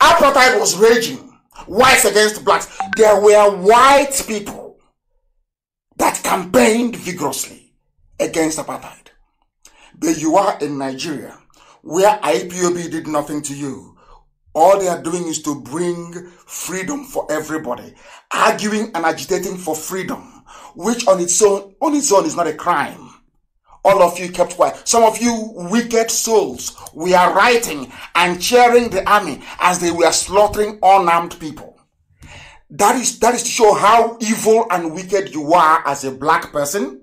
apartheid was raging, whites against blacks, there were white people that campaigned vigorously against apartheid. But you are in Nigeria, where IPOB did nothing to you. All they are doing is to bring freedom for everybody, arguing and agitating for freedom, which on its own, on its own is not a crime. All of you kept quiet. Some of you wicked souls, we are writing and cheering the army as they were slaughtering unarmed people. That is, that is to show how evil and wicked you are as a black person.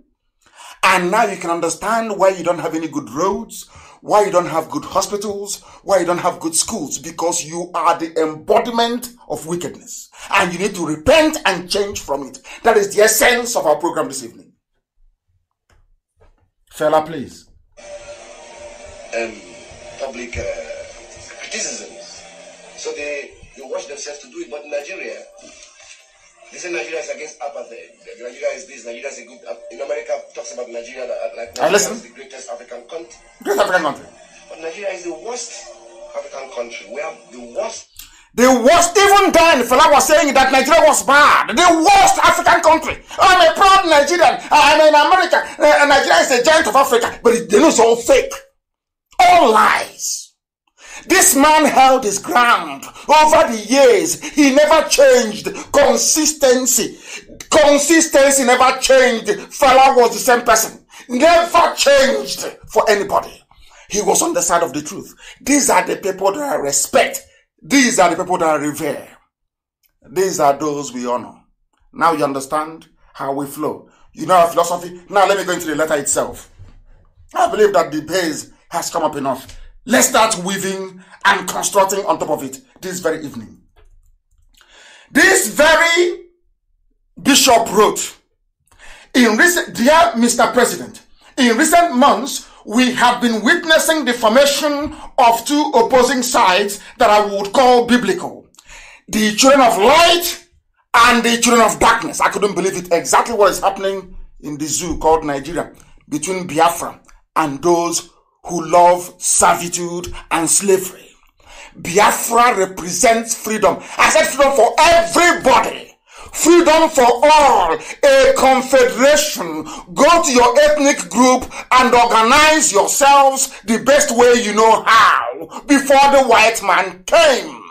And now you can understand why you don't have any good roads, why you don't have good hospitals, why you don't have good schools, because you are the embodiment of wickedness. And you need to repent and change from it. That is the essence of our program this evening. Fella, please. Um, public uh, criticisms. So they, they wash themselves to do it, but in Nigeria, they say Nigeria is against apartheid. Nigeria is this. Nigeria is a good. In America, talks about Nigeria like Nigeria is the greatest African country. Greatest African country. But Nigeria is the worst African country. We have the worst. The worst, even then, fella was saying that Nigeria was bad. The worst African country. I'm a proud Nigerian. I'm in America. Uh, Nigeria is a giant of Africa. But they know it's all fake. All lies. This man held his ground over the years. He never changed. Consistency. Consistency never changed. Fella was the same person. Never changed for anybody. He was on the side of the truth. These are the people that I respect. These are the people that I revere. These are those we honor. Now you understand how we flow. You know our philosophy. Now let me go into the letter itself. I believe that the base has come up enough. Let's start weaving and constructing on top of it this very evening. This very bishop wrote, in recent, dear Mr. President, in recent months, we have been witnessing the formation of two opposing sides that I would call biblical. The children of light and the children of darkness. I couldn't believe it. Exactly what is happening in the zoo called Nigeria between Biafra and those who love servitude and slavery. Biafra represents freedom. I said freedom for everybody. Freedom for all. A confederation. Go to your ethnic group and organize yourselves the best way you know how before the white man came.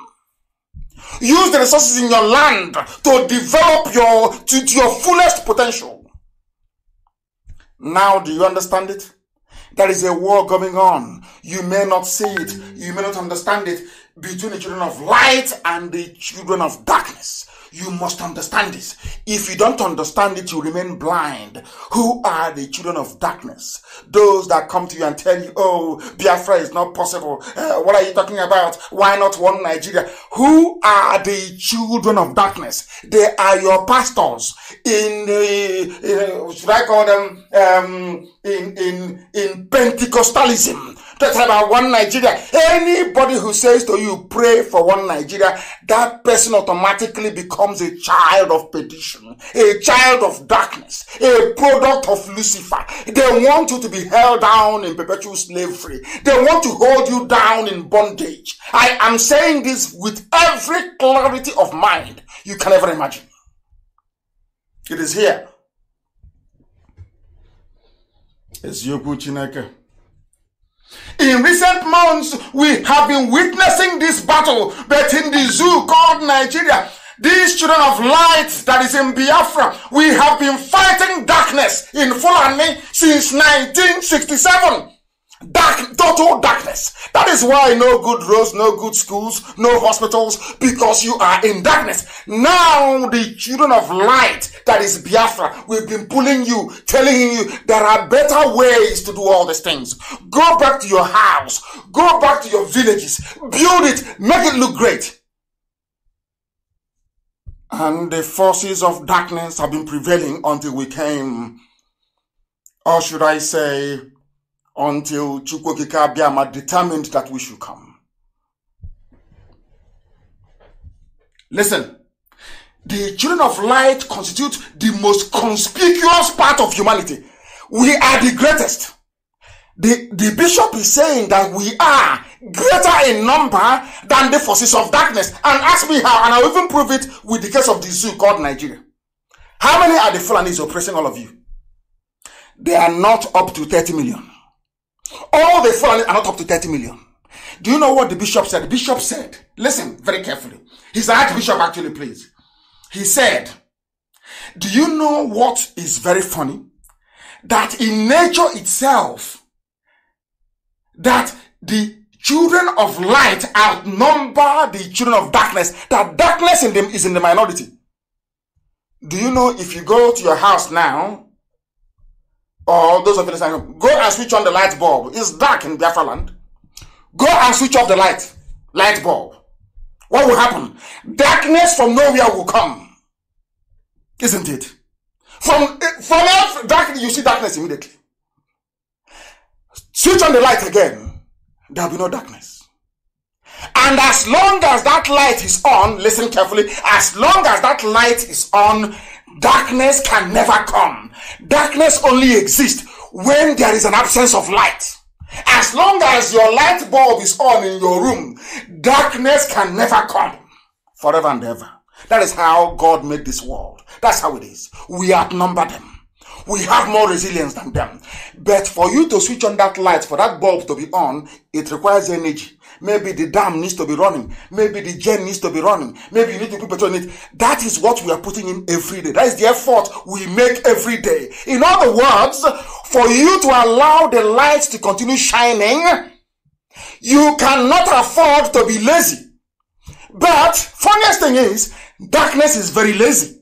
Use the resources in your land to develop your, to, to your fullest potential. Now, do you understand it? There is a war going on. You may not see it. You may not understand it between the children of light and the children of darkness. You must understand this. If you don't understand it, you remain blind. Who are the children of darkness? Those that come to you and tell you, oh, Biafra is not possible. Uh, what are you talking about? Why not one Nigeria? Who are the children of darkness? They are your pastors in the, uh, should I call them, um, in, in, in Pentecostalism that's about one Nigeria. Anybody who says to you, pray for one Nigeria, that person automatically becomes a child of perdition, a child of darkness, a product of Lucifer. They want you to be held down in perpetual slavery. They want to hold you down in bondage. I am saying this with every clarity of mind you can ever imagine. It is here. eziokwu chineke In recent months, we have been witnessing this battle, but in the zoo called Nigeria, these children of light that is in Biafra, we have been fighting darkness in Fulani since 1967. Dark, total darkness. That is why no good roads, no good schools, no hospitals, because you are in darkness. Now the children of light, that is Biafra, we've been pulling you, telling you there are better ways to do all these things. Go back to your house, go back to your villages, build it, make it look great. And the forces of darkness have been prevailing until we came, or should I say, until Chukwokika Abiyama determined that we should come. Listen, the children of light constitute the most conspicuous part of humanity. We are the greatest. The, the bishop is saying that we are greater in number than the forces of darkness. And ask me how, and I'll even prove it with the case of the zoo called Nigeria. How many are the Fulanis oppressing all of you? They are not up to 30 million. All the foreigners are not up to 30 million. Do you know what the bishop said? The bishop said, listen very carefully. He's archbishop actually, please. He said, do you know what is very funny? That in nature itself, that the children of light outnumber the children of darkness, that darkness in them is in the minority. Do you know if you go to your house now or those of you listening, go and switch on the light bulb. It's dark in Biafra land. Go and switch off the light, light bulb. What will happen? Darkness from nowhere will come. Isn't it? From, eh, from earth, darkness, you see darkness immediately. Switch on the light again. There'll be no darkness. And as long as that light is on, listen carefully, as long as that light is on, Darkness can never come. Darkness only exists when there is an absence of light. As long as your light bulb is on in your room, darkness can never come forever and ever. That is how God made this world. That's how it is. We outnumber them. We have more resilience than them. But for you to switch on that light, for that bulb to be on, it requires energy. Maybe the dam needs to be running. Maybe the gen needs to be running. Maybe you need to put petrol in it. That is what we are putting in every day. That is the effort we make every day. In other words, for you to allow the light to continue shining, you cannot afford to be lazy. But funniest thing is, darkness is very lazy.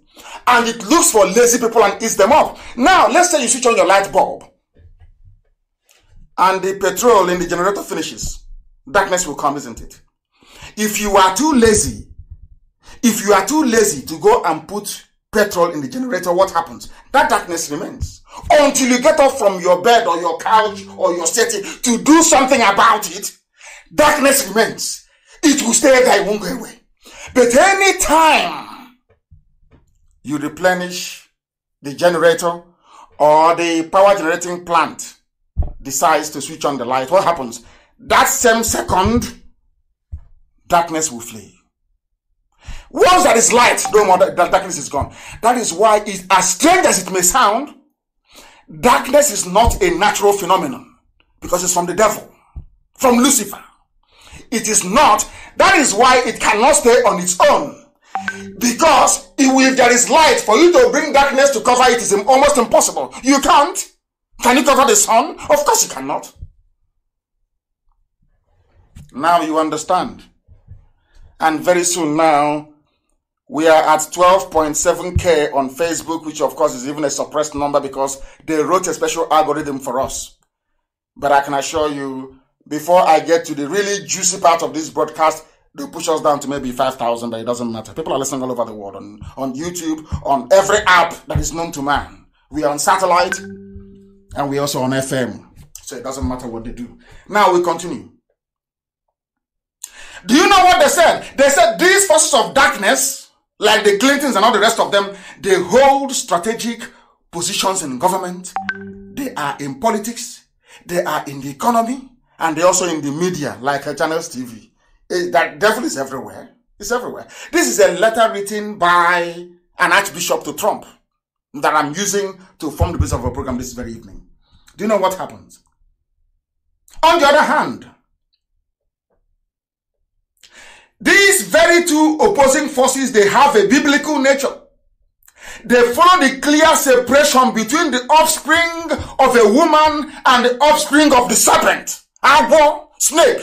And it looks for lazy people and eats them up. Now, let's say you switch on your light bulb and the petrol in the generator finishes darkness will come, isn't it? If you are too lazy, if you are too lazy to go and put petrol in the generator, what happens? That darkness remains until you get up from your bed or your couch or your setting to do something about it. Darkness remains. It will stay there, it won't go away. But any time you replenish the generator or the power generating plant decides to switch on the light, what happens? that same second, darkness will flee. Once there is light, no more that darkness is gone. That is why, it, as strange as it may sound, darkness is not a natural phenomenon because it's from the devil, from Lucifer. It is not. That is why it cannot stay on its own. Because if there is light, for you to bring darkness to cover it is almost impossible. You can't. Can you cover the sun? Of course you cannot. Now you understand. And very soon now, we are at 12.7k on Facebook, which of course is even a suppressed number because they wrote a special algorithm for us. But I can assure you, before I get to the really juicy part of this broadcast, they push us down to maybe 5,000, but it doesn't matter. People are listening all over the world on, on YouTube, on every app that is known to man. We are on satellite and we also on FM. So it doesn't matter what they do. Now we continue. Do you know what they said? They said these forces of darkness, like the Clintons and all the rest of them, they hold strategic positions in government. They are in politics. They are in the economy. And they're also in the media, like uh, Channels TV. Eh, that devil is everywhere. It's everywhere. This is a letter written by an archbishop to Trump that I'm using to form the basis of a program this very evening. Do you know what happens? On the other hand, these very two opposing forces, they have a biblical nature. They follow the clear separation between the offspring of a woman and the offspring of the serpent, apple, snake.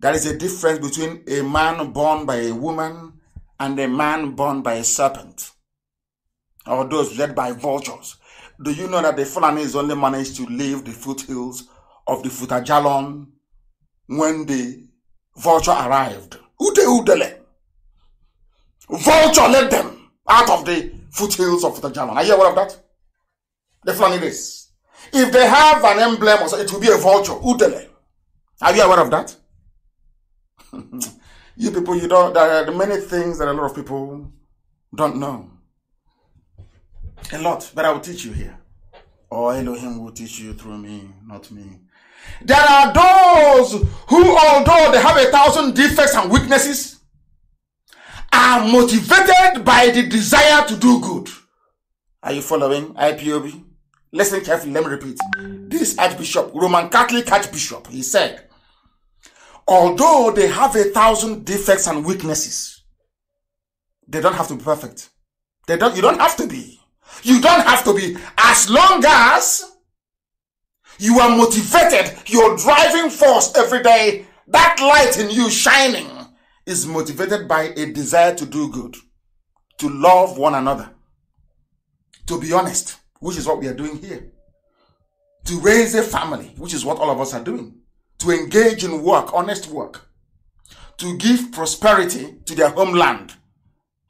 There is a difference between a man born by a woman and a man born by a serpent or those led by vultures. Do you know that the phalanx only managed to leave the foothills of the Futajalon when they Vulture arrived. Ute Udele. Vulture led them out of the foothills of the German. Are you aware of that? The is, If they have an emblem, it will be a vulture. Udele. Are you aware of that? you people, you don't. There are many things that a lot of people don't know. A lot, but I will teach you here. Or oh, Elohim will teach you through me, not me. There are those who, although they have a thousand defects and weaknesses, are motivated by the desire to do good. Are you following IPOB? Listen carefully, let me repeat. This Archbishop, Roman Catholic Archbishop, he said, although they have a thousand defects and weaknesses, they don't have to be perfect. They don't, you don't have to be. You don't have to be as long as you are motivated. Your driving force every day, that light in you shining, is motivated by a desire to do good, to love one another, to be honest, which is what we are doing here, to raise a family, which is what all of us are doing, to engage in work, honest work, to give prosperity to their homeland.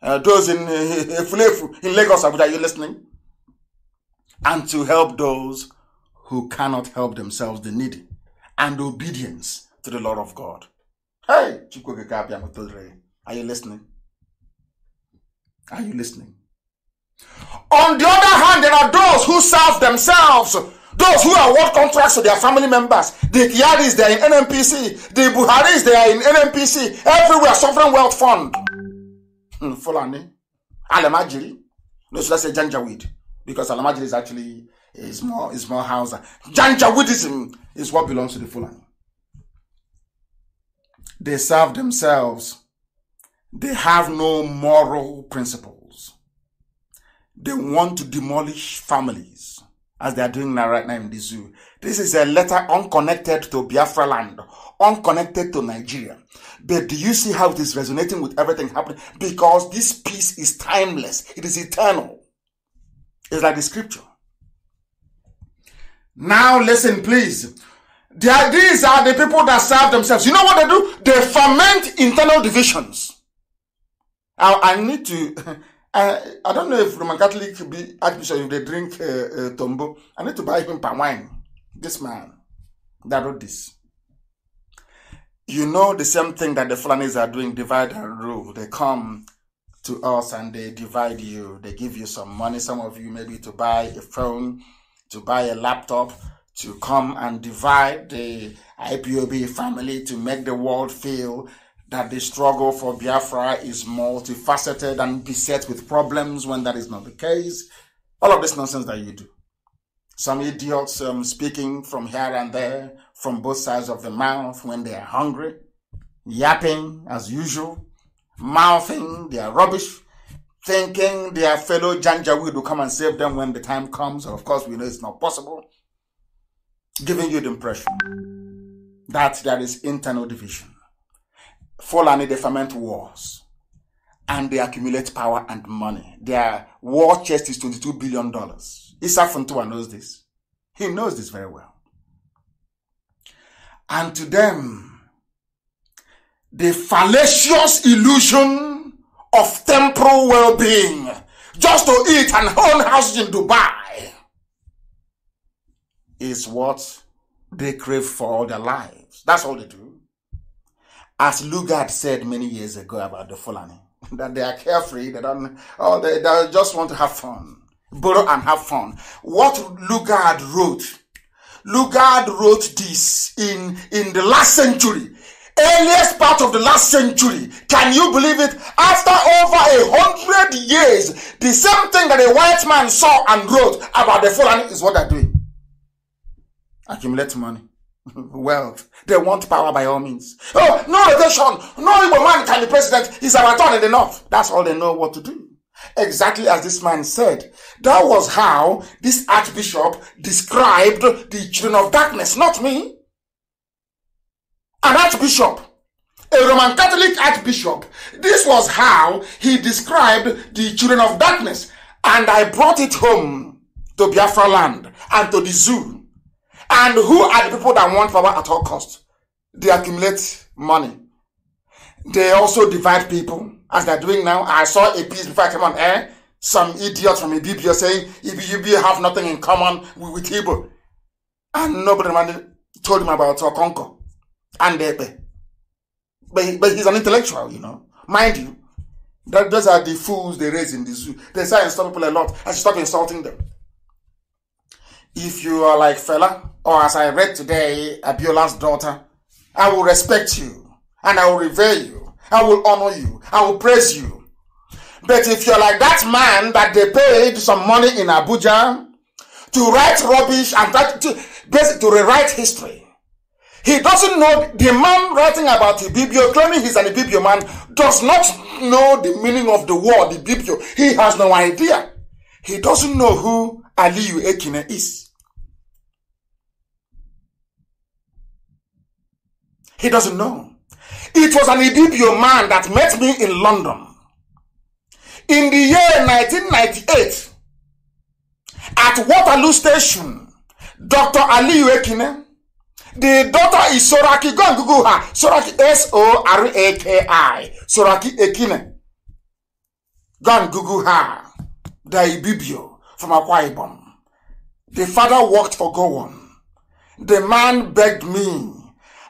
Uh, those in uh, in Lagos, are you listening? And to help those who cannot help themselves, the needy, and obedience to the Lord of God. Hey, are you listening? Are you listening? On the other hand, there are those who serve themselves, those who are work contracts to their family members. The Kiaris, they are in NMPC. The Buharis, they are in NMPC. Everywhere, sovereign wealth fund. Hmm, Fulani, Alamajiri. No, so that's say Janjaweed? Because Alamajiri is actually it's more, it's more Hausa. Buddhism is what belongs to the Fulani. They serve themselves. They have no moral principles. They want to demolish families as they are doing now right now in the zoo. This is a letter unconnected to Biafra land, unconnected to Nigeria. But do you see how it is resonating with everything happening? Because this peace is timeless. It is eternal. It's like the scripture. Now listen, please. Are, these are the people that serve themselves. You know what they do? They ferment internal divisions. I, I need to. I I don't know if Roman Catholic be Archbishop if they drink uh, uh, tombo. I need to buy him palm wine. This man that wrote this. You know the same thing that the Fulanis are doing, divide and rule. They come to us and they divide you. They give you some money, some of you maybe to buy a phone, to buy a laptop, to come and divide the IPOB family, to make the world feel that the struggle for Biafra is multifaceted and beset with problems when that is not the case. All of this nonsense that you do. Some idiots um, speaking from here and there, from both sides of the mouth when they are hungry, yapping as usual, mouthing their rubbish thinking their fellow Janjaweed will come and save them when the time comes. And of course, we know it's not possible. Giving you the impression that there is internal division. Fulani, they ferment wars and they accumulate power and money. Their war chest is $22 billion. Issa Funtua knows this. He knows this very well. And to them, the fallacious illusion of temporal well-being just to eat and own house in Dubai is what they crave for all their lives. That's all they do. As Lugard said many years ago about the Fulani, that they are carefree, they don't, oh, they, they just want to have fun, borrow and have fun. What Lugard wrote, Lugard wrote this in, in the last century earliest part of the last century. Can you believe it? After over a hundred years, the same thing that a white man saw and wrote about the Fulani is what they're doing. Accumulate money, wealth. They want power by all means. Oh, no election. No evil man can be president. He's a turn in the north. That's all they know what to do. Exactly as this man said. That was how this archbishop described the children of darkness, not me an archbishop, a Roman Catholic archbishop. This was how he described the children of darkness. And I brought it home to Biafra land and to the zoo. And who are the people that want power at all costs? They accumulate money. They also divide people, as they're doing now. I saw a piece before I came on air. Some idiot from Ibibio saying, Ibibio have nothing in common with, with Igbo. And nobody told him about Okonko and Ekpe. But, he, but he's an intellectual, you know. Mind you, that, those are the fools they raise in the zoo. They say I insult people a lot. stop insulting them. If you are like fella, or as I read today, Abiola's daughter, I will respect you, and I will revere you, I will honor you, I will praise you. But if you're like that man that they paid some money in Abuja to write rubbish and that, to, to rewrite history, He doesn't know the man writing about Ibibio, claiming he's an Ibibio man, does not know the meaning of the word Ibibio. He has no idea. He doesn't know who Aliyu Ekine is. He doesn't know. It was an Ibibio man that met me in London. In the year 1998, at Waterloo Station, Dr. Aliyu Ekine The daughter is Soraki. Go and Google her. Soraki S O R A K I. Soraki Ekine. Go and Google her. The Ibibio from Akwa Ibom. The father worked for Gowon. The man begged me.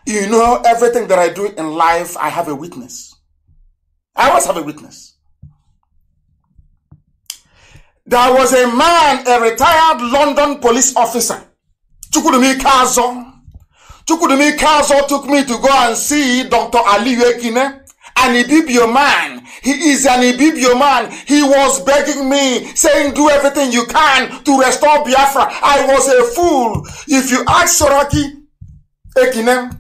You know, everything that I do in life, I have a witness. I always have a witness. There was a man, a retired London police officer, Chukudumi Kazo, Chukudumi Council took me to go and see Dr. Ali Yekine, an Ibibio man. He is an Ibibio man. He was begging me, saying, do everything you can to restore Biafra. I was a fool. If you ask Soraki Ekine,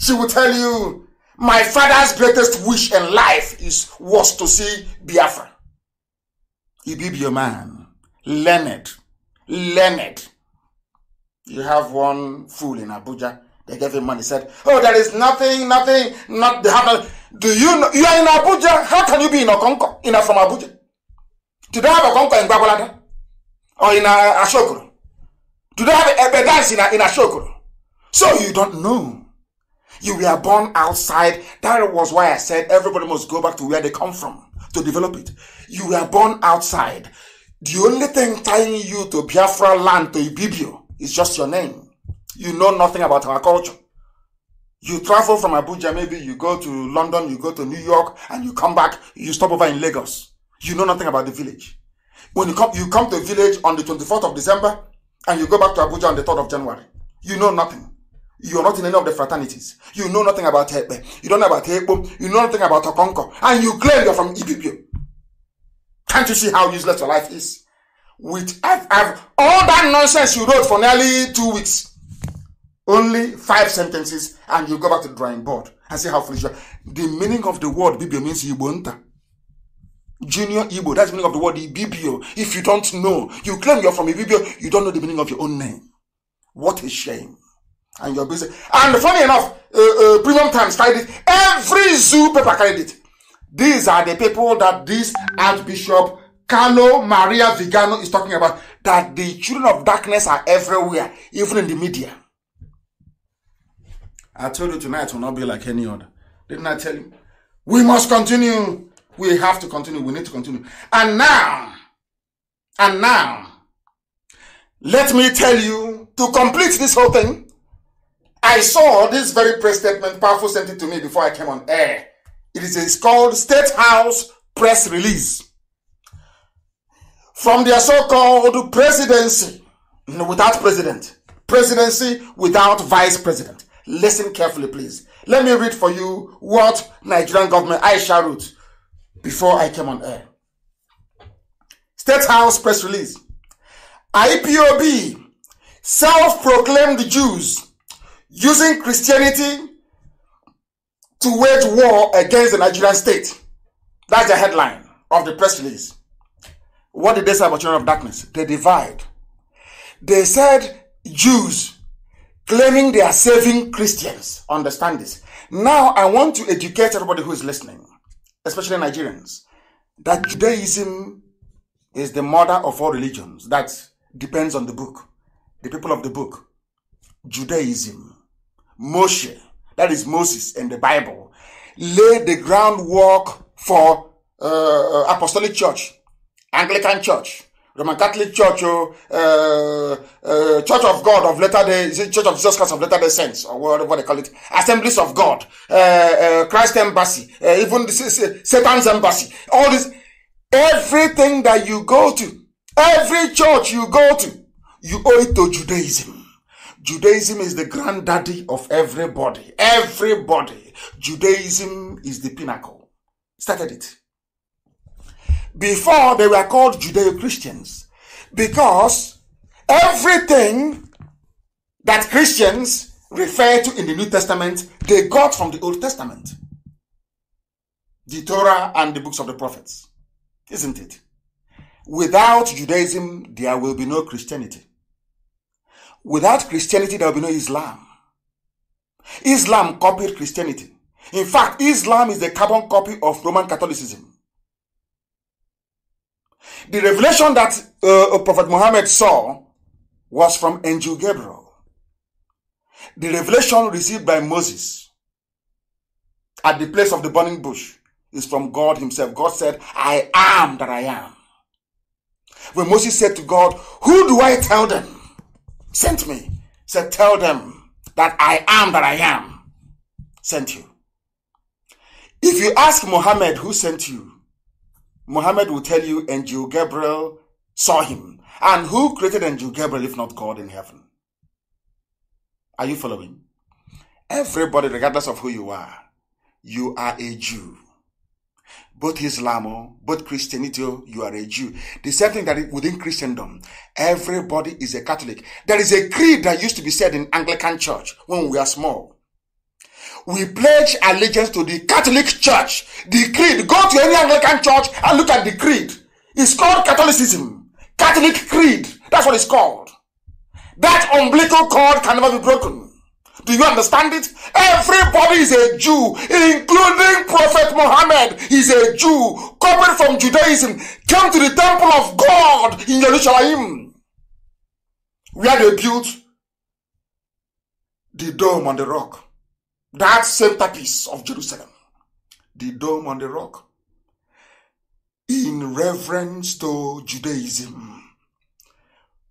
she will tell you, my father's greatest wish in life is was to see Biafra. Ibibio man. Learned. Learned. You have one fool in Abuja. They gave him money. Said, "Oh, there is nothing, nothing, not happen." Do you know you are in Abuja? How can you be in Okonko? In from Abuja? Do they have Okonko in Babalada or in uh, Ashokoro? Do they have Ebedans in, in Ashokoro? So you don't know. You were born outside. That was why I said everybody must go back to where they come from to develop it. You were born outside. The only thing tying you to Biafra land, to Ibibio, it's just your name. You know nothing about our culture. You travel from Abuja, maybe you go to London, you go to New York, and you come back, you stop over in Lagos. You know nothing about the village. When you come, you come to a village on the 24th of December, and you go back to Abuja on the 3rd of January. You know nothing. You're not in any of the fraternities. You know nothing about Hepe. You don't know about Hepo. You know nothing about Okonko. And you claim you're from Ibibio. Can't you see how useless your life is? with FF, all that nonsense you wrote for nearly two weeks. Only five sentences, and you go back to the drawing board and see how foolish you are. The meaning of the word Bibio means Ibonta. Junior Igbo, that's the meaning of the word Ibibio. If you don't know, you claim you're from Ibibio, you don't know the meaning of your own name. What a shame. And you're busy. And funny enough, uh, uh, Premium Times carried it. Every zoo paper carried it. These are the people that this Archbishop Carlo Maria Vigano is talking about that the children of darkness are everywhere, even in the media. I told you tonight will not be like any other. Didn't I tell you? We must continue. We have to continue. We need to continue. And now, and now, let me tell you to complete this whole thing. I saw this very press statement, powerful sent it to me before I came on air. It is called State House Press Release. from their so-called presidency without president, presidency without vice president. Listen carefully, please. Let me read for you what Nigerian government Aisha wrote before I came on air. State House press release. IPOB self-proclaimed Jews using Christianity to wage war against the Nigerian state. That's the headline of the press release. What did they say about children of darkness? They divide. They said Jews claiming they are saving Christians. Understand this. Now I want to educate everybody who is listening, especially Nigerians, that Judaism is the mother of all religions. That depends on the book, the people of the book. Judaism, Moshe, that is Moses and the Bible, laid the groundwork for uh, uh apostolic church Anglican Church, Roman Catholic Church, oh, uh, uh, Church of God of Latter Day, Church of Jesus Christ of Latter Day Saints, or whatever they call it, Assemblies of God, uh, uh Christ Embassy, uh, even the, uh, Satan's Embassy, all this, everything that you go to, every church you go to, you owe it to Judaism. Judaism is the granddaddy of everybody. Everybody. Judaism is the pinnacle. Started it. Before they were called Judeo Christians because everything that Christians refer to in the New Testament they got from the Old Testament, the Torah and the books of the prophets, isn't it? Without Judaism, there will be no Christianity. Without Christianity, there will be no Islam. Islam copied Christianity. In fact, Islam is the carbon copy of Roman Catholicism. The revelation that uh, uh, Prophet Muhammad saw was from angel Gabriel. The revelation received by Moses at the place of the burning bush is from God himself. God said, I am that I am. When Moses said to God, Who do I tell them? Sent me. Said, Tell them that I am that I am. Sent you. If you ask Muhammad who sent you, Muhammad will tell you Angel Gabriel saw him. And who created Angel Gabriel if not God in heaven? Are you following? Everybody, regardless of who you are, you are a Jew. Both Islam, both Christianity, you are a Jew. The same thing that within Christendom, everybody is a Catholic. There is a creed that used to be said in Anglican church when we are small. we pledge allegiance to the Catholic Church. The creed. Go to any Anglican church and look at the creed. It's called Catholicism. Catholic creed. That's what it's called. That umbilical cord can never be broken. Do you understand it? Everybody is a Jew, including Prophet Muhammad is a Jew, copied from Judaism, came to the temple of God in Jerusalem, where they built the dome on the rock that centerpiece of Jerusalem, the dome on the rock, in reverence to Judaism.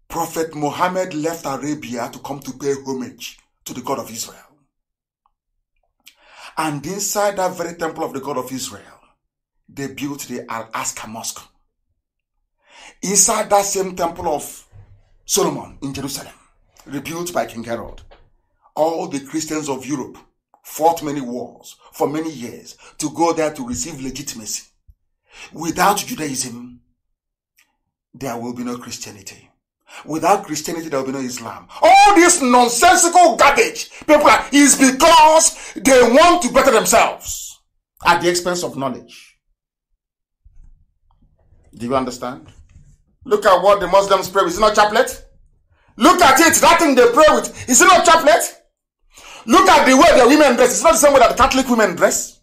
Prophet Muhammad left Arabia to come to pay homage to the God of Israel. And inside that very temple of the God of Israel, they built the Al Aqsa Mosque. Inside that same temple of Solomon in Jerusalem, rebuilt by King Herod, all the Christians of Europe fought many wars for many years to go there to receive legitimacy. Without Judaism, there will be no Christianity. Without Christianity, there will be no Islam. All this nonsensical garbage, people, is because they want to better themselves at the expense of knowledge. Do you understand? Look at what the Muslims pray with. Is it not chaplet? Look at it. That thing they pray with. Is it not chaplet? Look at the way the women dress. It's not the same way that the Catholic women dress.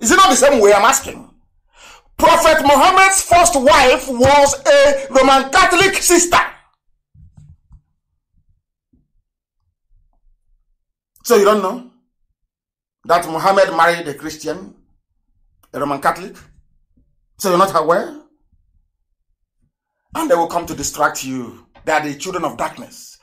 Is it not the same way I'm asking? Prophet Muhammad's first wife was a Roman Catholic sister. So you don't know that Muhammad married a Christian, a Roman Catholic? So you're not aware? And they will come to distract you. They are the children of darkness.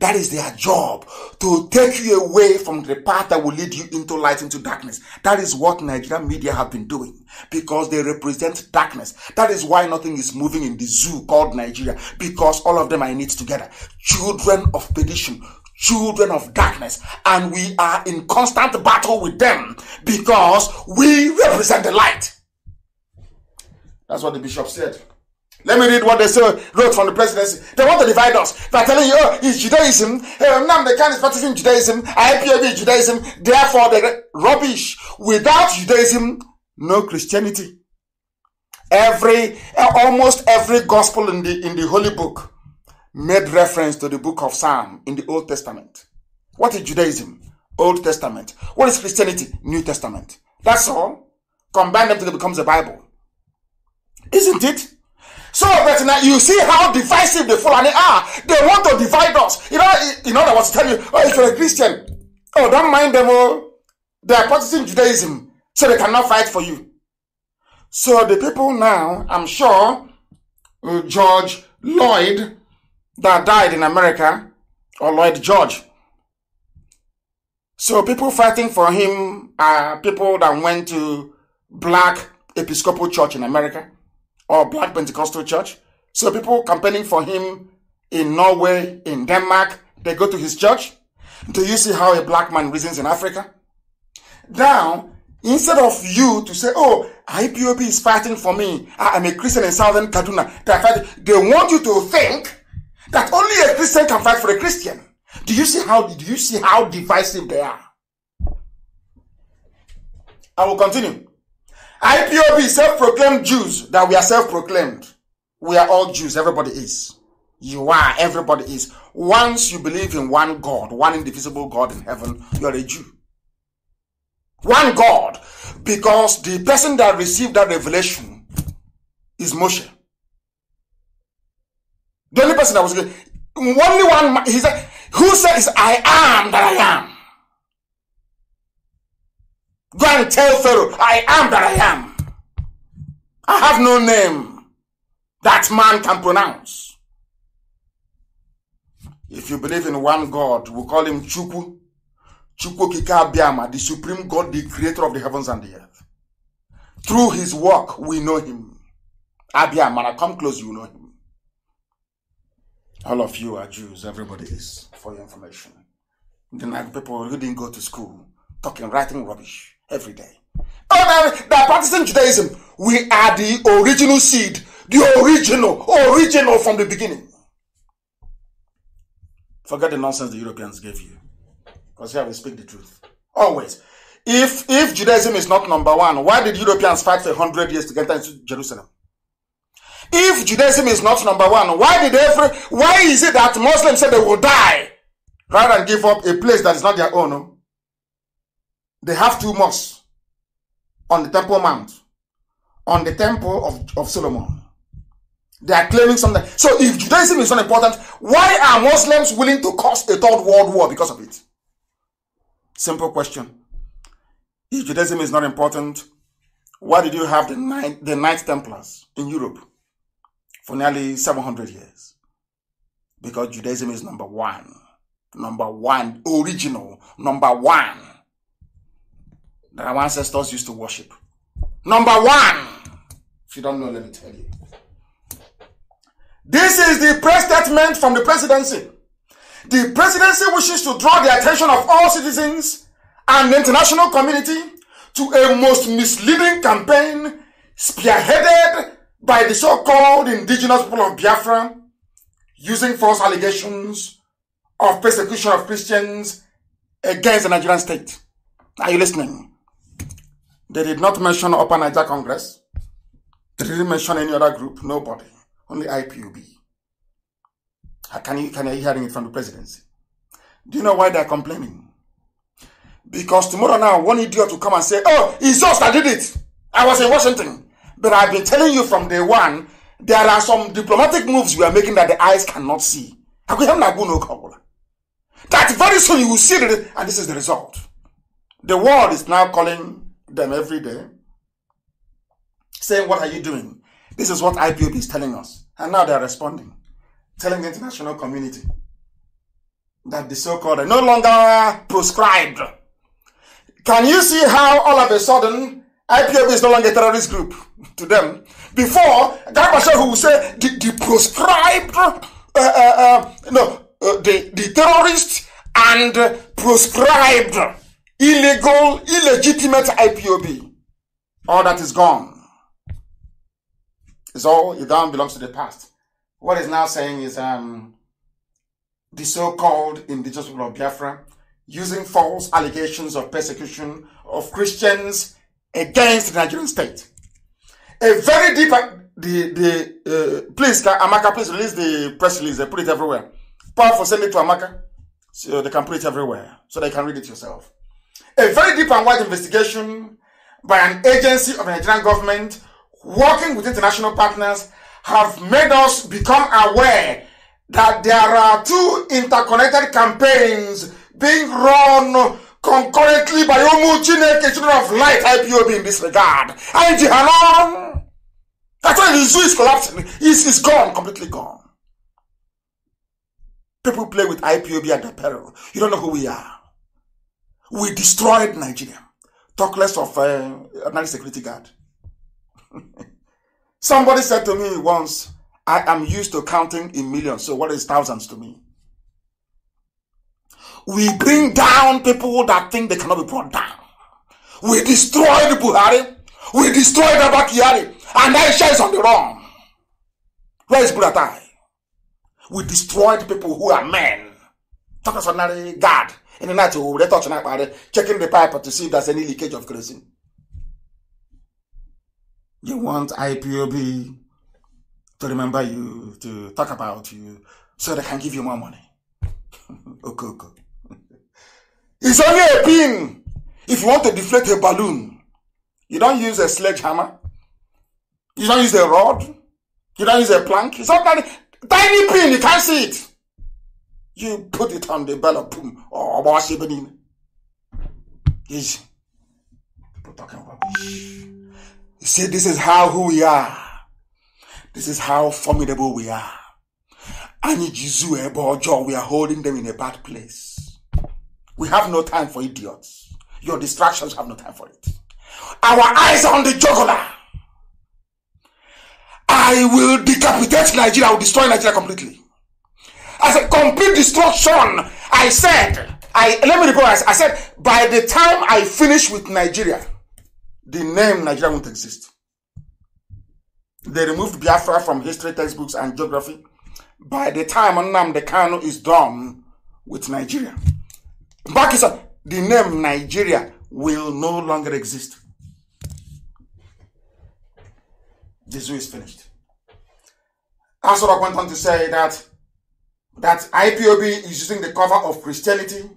That is their job to take you away from the path that will lead you into light, into darkness. That is what Nigerian media have been doing because they represent darkness. That is why nothing is moving in the zoo called Nigeria because all of them are in it together. Children of perdition, children of darkness and we are in constant battle with them because we represent the light. That's what the bishop said. Let me read what they say, wrote from the presidency. They want to divide us by telling you, oh, it's Judaism. Hey, eh, now the can is practicing Judaism. IPAB is Judaism. Therefore, the rubbish. Without Judaism, no Christianity. Every, eh, almost every gospel in the, in the Holy Book made reference to the book of Psalm in the Old Testament. What is Judaism? Old Testament. What is Christianity? New Testament. That's all. Combine them till it becomes a Bible. Isn't it? Some of us now, you see how divisive the Fulani are. They want to divide us. You know, you know. I was telling you, oh, if you're a Christian, oh, don't mind them all. Oh. They are practicing Judaism, so they cannot fight for you. So the people now, I'm sure, uh, George Lloyd, that died in America, or Lloyd George. So people fighting for him are people that went to black Episcopal church in America or Black Pentecostal Church. So people campaigning for him in Norway, in Denmark, they go to his church. Do you see how a black man reasons in Africa? Now, instead of you to say, oh, IPOP is fighting for me. I'm a Christian in Southern Kaduna. They, they want you to think that only a Christian can fight for a Christian. Do you see how, do you see how divisive they are? I will continue. IPOB self-proclaimed Jews that we are self-proclaimed. We are all Jews. Everybody is. You are. Everybody is. Once you believe in one God, one indivisible God in heaven, you're a Jew. One God. Because the person that received that revelation is Moshe. The only person that was only one He said, "Who says I am that I am?" Go and tell Pharaoh, I am that I am. I have no name that man can pronounce. If you believe in one God, we call him Chuku, Chuku Kikabiyama, the supreme God, the creator of the heavens and the earth. Through his work, we know him. Abiyama, come close, you know him. All of you are Jews, everybody is, for your information. The Nag people who didn't go to school, talking, writing rubbish every day. Ordinary, by practicing Judaism, we are the original seed, the original, original from the beginning. Forget the nonsense the Europeans gave you. Because here we speak the truth. Always. If if Judaism is not number one, why did Europeans fight for 100 years to get into Jerusalem? If Judaism is not number one, why did every why is it that Muslims said they will die rather than give up a place that is not their own? They have two mosques on the Temple Mount, on the Temple of, of Solomon. They are claiming something. So if Judaism is not important, why are Muslims willing to cause a third world war because of it? Simple question. If Judaism is not important, why did you have the Knight, the Knights Templars in Europe for nearly 700 years? Because Judaism is number one. Number one, original, number one that our ancestors used to worship. Number one, if you don't know, let me tell you. This is the press statement from the presidency. The presidency wishes to draw the attention of all citizens and the international community to a most misleading campaign spearheaded by the so-called indigenous people of Biafra using false allegations of persecution of Christians against the Nigerian state. Are you listening? They did not mention Upper Niger Congress. They didn't mention any other group, nobody. Only IPUB. Uh, can you, can you hear it from the presidency? Do you know why they're complaining? Because tomorrow now, one idiot will come and say, oh, it's us that did it. I was in Washington. But I've been telling you from day one, there are some diplomatic moves we are making that the eyes cannot see. That very soon you will see it, and this is the result. The world is now calling them every day, saying, What are you doing? This is what IPOP is telling us. And now they're responding, telling the international community that the so called are no longer proscribed. Can you see how all of a sudden IPOP is no longer a terrorist group to them? Before, Garbachev who will say the, the proscribed, uh, uh, uh, no, uh, the, the terrorist and proscribed illegal, illegitimate IPOB. All that is gone. It's all, it belongs to the past. What is now saying is um, the so called indigenous people of Biafra using false allegations of persecution of Christians against the Nigerian state. A very deep, uh, the, the, uh, please, Amaka, please release the press release. They put it everywhere. Powerful, send it to Amaka so they can put it everywhere so they can read it yourself a very deep and wide investigation by an agency of the Nigerian government working with international partners have made us become aware that there are two interconnected campaigns being run concurrently by Omu Chineke Children of Light IPOB in this regard. And Jihanan, that's why the zoo is collapsing. It's, it's gone, completely gone. People play with IPOB at their peril. You don't know who we are. We destroyed Nigeria. Talk less of uh, a security guard. Somebody said to me once, I am used to counting in millions, so what is thousands to me? We bring down people that think they cannot be brought down. We destroyed Buhari. We destroyed Abakari. And Aisha is on the run. Where is Buratai? We destroyed people who are men. Talk of a God Oh, in the night we will touch na akpari checking the pipe to see if there's any leakage of kerosene you want ipob to remember you to talk about you so they can give you more money okay okay it's only a pin if you want to deflate a balloon you don't use a sledgehammer you don't use a rod you don't use a plank it's not tiny, tiny pin you can't see it you put it on the ballot. Oh, what's happening? Yes. People talking rubbish. He See, This is how who we are. This is how formidable we are. And eh, we are holding them in a bad place. We have no time for idiots. Your distractions have no time for it. Our eyes are on the juggler. I will decapitate Nigeria. I will destroy Nigeria completely. I said, complete destruction. I said, I let me reprise. I said, by the time I finish with Nigeria, the name Nigeria won't exist. They removed Biafra from history textbooks and geography. By the time the Kanu is done with Nigeria, back is The name Nigeria will no longer exist. The zoo is finished. Asura went on to say that that IPOB is using the cover of Christianity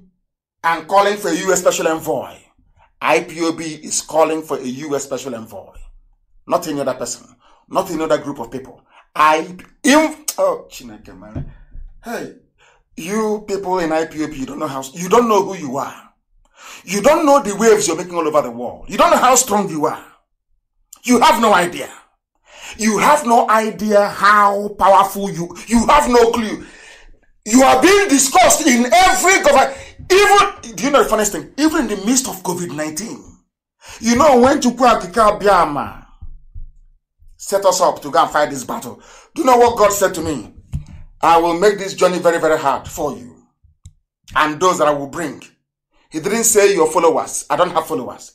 and calling for a U.S. special envoy. IPOB is calling for a U.S. special envoy. Not any other person. Not any other group of people. I, in, oh, Chineke, man. Hey, you people in IPOB, you don't know how, you don't know who you are. You don't know the waves you're making all over the world. You don't know how strong you are. You have no idea. You have no idea how powerful you, you have no clue. You are being discussed in every government. Even, do you know the funniest thing? Even in the midst of COVID 19, you know, when Chukwu Akika Biama set us up to go and fight this battle, do you know what God said to me? I will make this journey very, very hard for you and those that I will bring. He didn't say your followers. I don't have followers.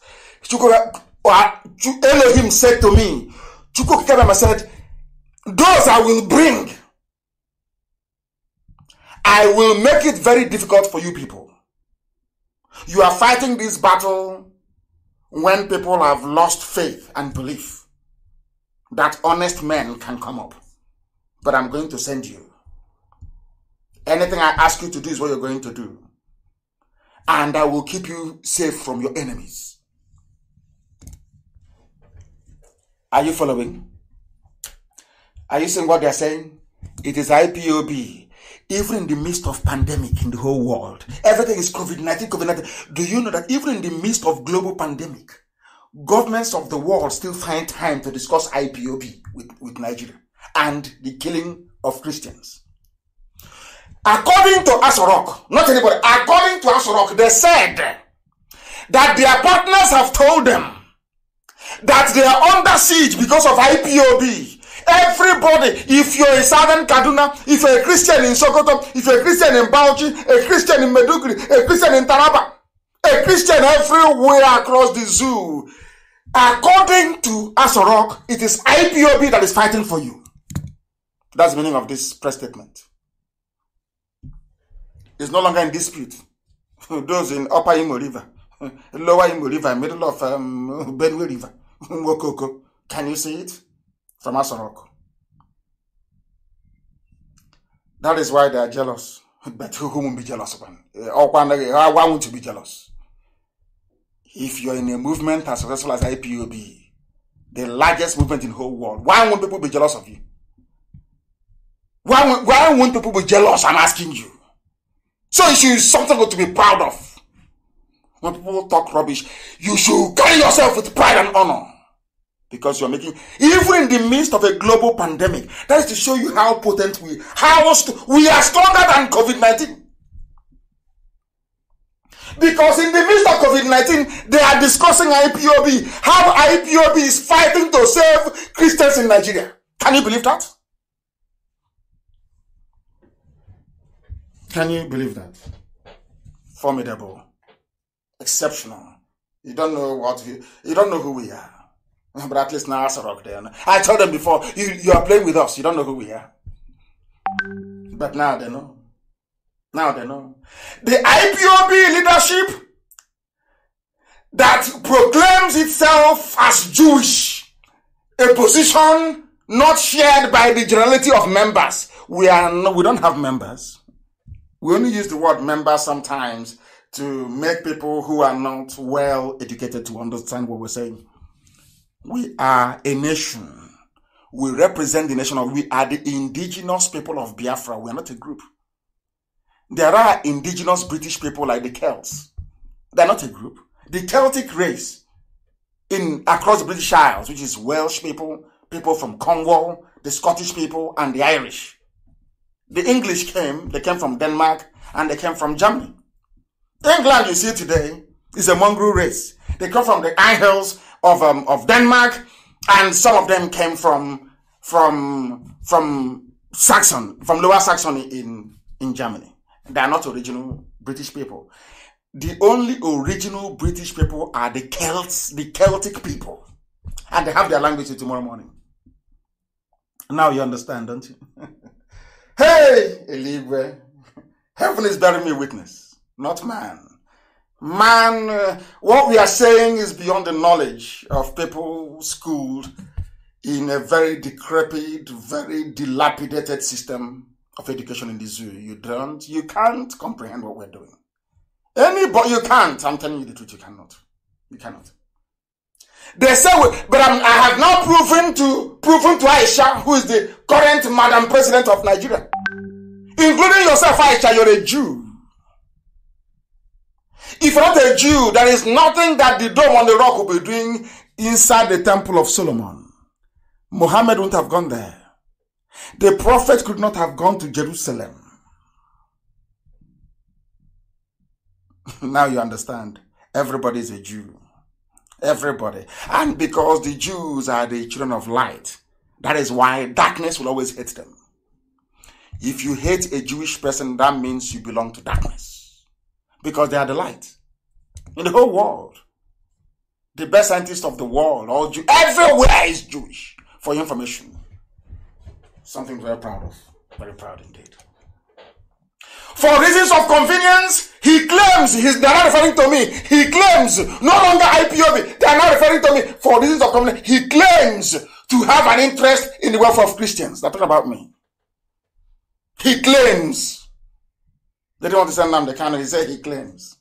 Uh, uh, Elohim said to me, Chukwu said, Those I will bring. I will make it very difficult for you people. You are fighting this battle when people have lost faith and belief that honest men can come up. But I'm going to send you. Anything I ask you to do is what you're going to do. And I will keep you safe from your enemies. Are you following? Are you seeing what they're saying? It is IPOB even in the midst of pandemic in the whole world, everything is COVID-19, COVID-19. Do you know that even in the midst of global pandemic, governments of the world still find time to discuss IPOB with, with Nigeria and the killing of Christians? According to Asorok, not anybody, according to Asorok, they said that their partners have told them that they are under siege because of IPOB Everybody, if you're a Southern Kaduna, if you're a Christian in Sokoto, if you're a Christian in Bauchi, a Christian in Medugri, a Christian in Taraba, a Christian everywhere across the zoo, according to Asorok, it is IPOB that is fighting for you. That's the meaning of this press statement. It's no longer in dispute. Those in Upper Imo River, Lower Imo River, middle of um, Benue River, Mokoko, can you see it? from Asorok. That is why they are jealous. But who will be jealous upon? Eh, eh, why want you be jealous. If you're in a movement as successful as IPOB, the largest movement in the whole world, why won't people be jealous of you? Why, why won't people be jealous? I'm asking you. So it should be something to be proud of. When people talk rubbish, you should carry yourself with pride and honor. because you're making even in the midst of a global pandemic that is to show you how potent we how st- we are stronger than covid-19 because in the midst of covid-19 they are discussing ipob how ipob is fighting to save christians in nigeria can you believe that can you believe that formidable exceptional you don't know what you. you don't know who we are But at least now a rock there. I told them before, you, you are playing with us. You don't know who we are. But now they know. Now they know. The IPOB leadership that proclaims itself as Jewish, a position not shared by the generality of members. We are no, we don't have members. We only use the word member sometimes to make people who are not well educated to understand what we're saying. We are a nation. We represent the nation of, we are the indigenous people of Biafra. We are not a group. There are indigenous British people like the Celts. They're not a group. The Celtic race in across the British Isles, which is Welsh people, people from Cornwall, the Scottish people, and the Irish. The English came, they came from Denmark, and they came from Germany. England, you see today, is a mongrel race. They come from the Isles of um, of Denmark, and some of them came from from from Saxon, from Lower Saxony in in Germany. They are not original British people. The only original British people are the Celts, the Celtic people, and they have their language tomorrow morning. Now you understand, don't you? hey, Eligwe, heaven is bearing me witness, not man man, uh, what we are saying is beyond the knowledge of people schooled in a very decrepit, very dilapidated system of education in the zoo. You don't, you can't comprehend what we're doing. Anybody, you can't. I'm telling you the truth. You cannot. You cannot. They say, but I'm, i have now proven to proven to Aisha, who is the current Madam President of Nigeria, including yourself, Aisha, you're a Jew. If not a Jew, there is nothing that the dome on the rock will be doing inside the temple of Solomon. Muhammad wouldn't have gone there. The prophet could not have gone to Jerusalem. now you understand. Everybody is a Jew. Everybody. And because the Jews are the children of light, that is why darkness will always hate them. If you hate a Jewish person, that means you belong to darkness because they are the light in the whole world. The best scientists of the world, all Jew- everywhere is Jewish. For information, something very proud of, very proud indeed. For reasons of convenience, he claims he's, they're not referring to me. He claims no longer IPOB. They are not referring to me. For reasons of convenience, he claims to have an interest in the welfare of Christians. They're talking about me. He claims they don't understand the Kanu. He said he claims.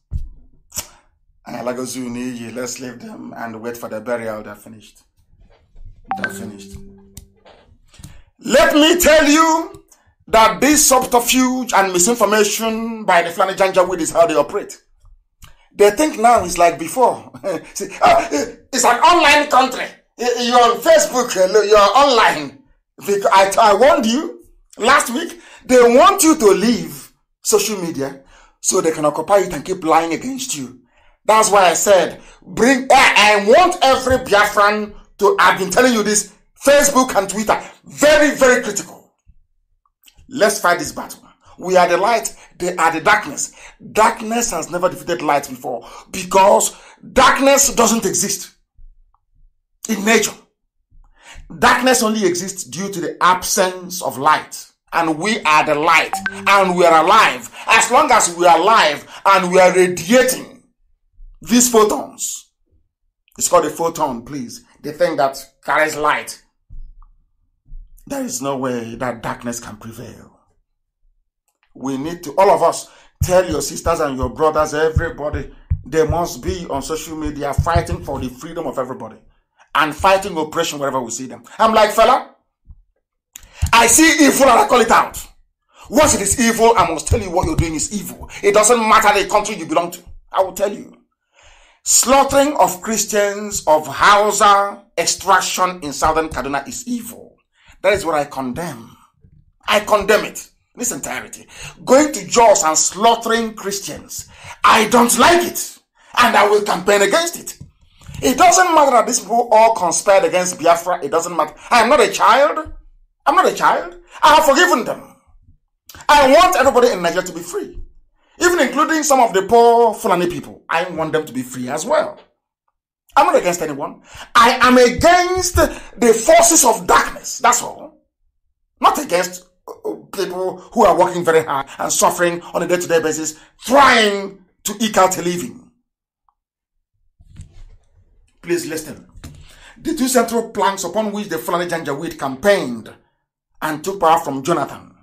Alagozu zuni, let's leave them and wait for the burial. They're finished. They're finished. Let me tell you that this subterfuge and misinformation by the Flanagan Janjaweed is how they operate. They think now it's like before. See, uh, it's an online country. Eh, eh, you're on Facebook. You're online. I, I warned you last week. They want you to leave social media so they can occupy it and keep lying against you. That's why I said, bring, I, want every Biafran to, I've been telling you this, Facebook and Twitter, very, very critical. Let's fight this battle. We are the light, they are the darkness. Darkness has never defeated light before because darkness doesn't exist in nature. Darkness only exists due to the absence of light. and we are the light and we are alive. As long as we are alive and we are radiating these photons, it's called a photon, please. The thing that carries light. There is no way that darkness can prevail. We need to, all of us, tell your sisters and your brothers, everybody, they must be on social media fighting for the freedom of everybody and fighting oppression wherever we see them. I'm like, fella, I see evil and I call it out. Once it is evil, I must tell you what you're doing is evil. It doesn't matter the country you belong to. I will tell you. Slaughtering of Christians, of Hausa, extraction in southern Kaduna is evil. That is what I condemn. I condemn it in its entirety. Going to Jaws and slaughtering Christians. I don't like it. And I will campaign against it. It doesn't matter that these people all conspired against Biafra. It doesn't matter. I am not a child. I'm not a child. I have forgiven them. I want everybody in Nigeria to be free, even including some of the poor Fulani people. I want them to be free as well. I'm not against anyone. I am against the forces of darkness. That's all. Not against uh, uh, people who are working very hard and suffering on a day-to-day basis, trying to eke out a living. Please listen. The two central planks upon which the Fulani Janjaweed campaigned and took power from Jonathan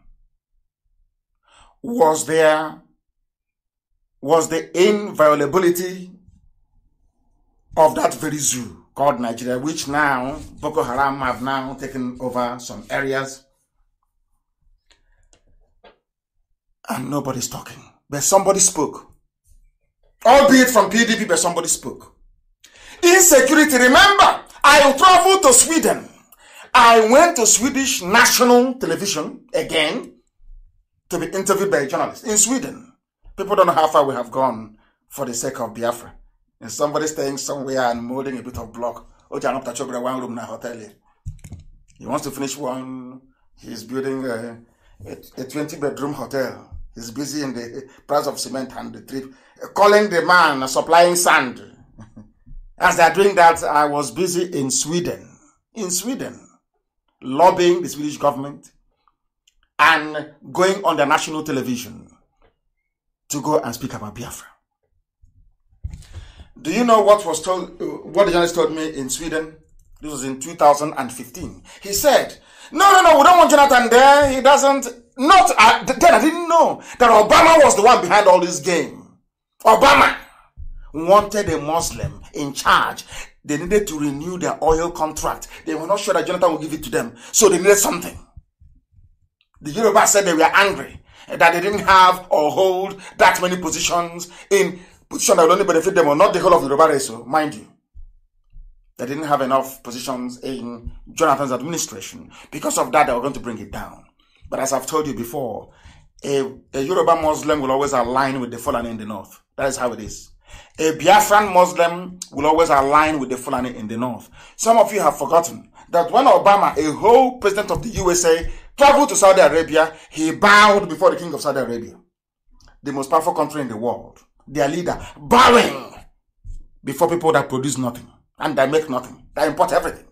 was there was the inviolability of that very zoo called Nigeria, which now Boko Haram have now taken over some areas. And nobody's talking. But somebody spoke. Albeit from PDP, but somebody spoke. Insecurity. Remember, I traveled to Sweden I went to Swedish national television again to be interviewed by a journalist in Sweden. People don't know how far we have gone for the sake of Biafra. And somebody staying somewhere and molding a bit of block. room hotel. He wants to finish one. He's building a, a, a 20 bedroom hotel. He's busy in the price of cement and the trip, calling the man supplying sand. As they're doing that, I was busy in Sweden. In Sweden lobbying the Swedish government, and going on the national television to go and speak about Biafra. Do you know what was told? Uh, what the journalist told me in Sweden? This was in 2015. He said, "No, no, no, we don't want Jonathan there. He doesn't. Not uh, then. I didn't know that Obama was the one behind all this game. Obama wanted a Muslim in charge they needed to renew their oil contract. They were not sure that Jonathan would give it to them. So they needed something. The Yoruba said they were angry that they didn't have or hold that many positions in position that would only benefit them or not the whole of Yoruba race, so mind you. They didn't have enough positions in Jonathan's administration. Because of that, they were going to bring it down. But as I've told you before, a, a Yoruba Muslim will always align with the fallen in the north. That is how it is. A Biafran Muslim will always align with the Fulani in the north. Some of you have forgotten that when Obama, a whole president of the USA, traveled to Saudi Arabia, he bowed before the king of Saudi Arabia, the most powerful country in the world, their leader, bowing before people that produce nothing and that make nothing, that import everything.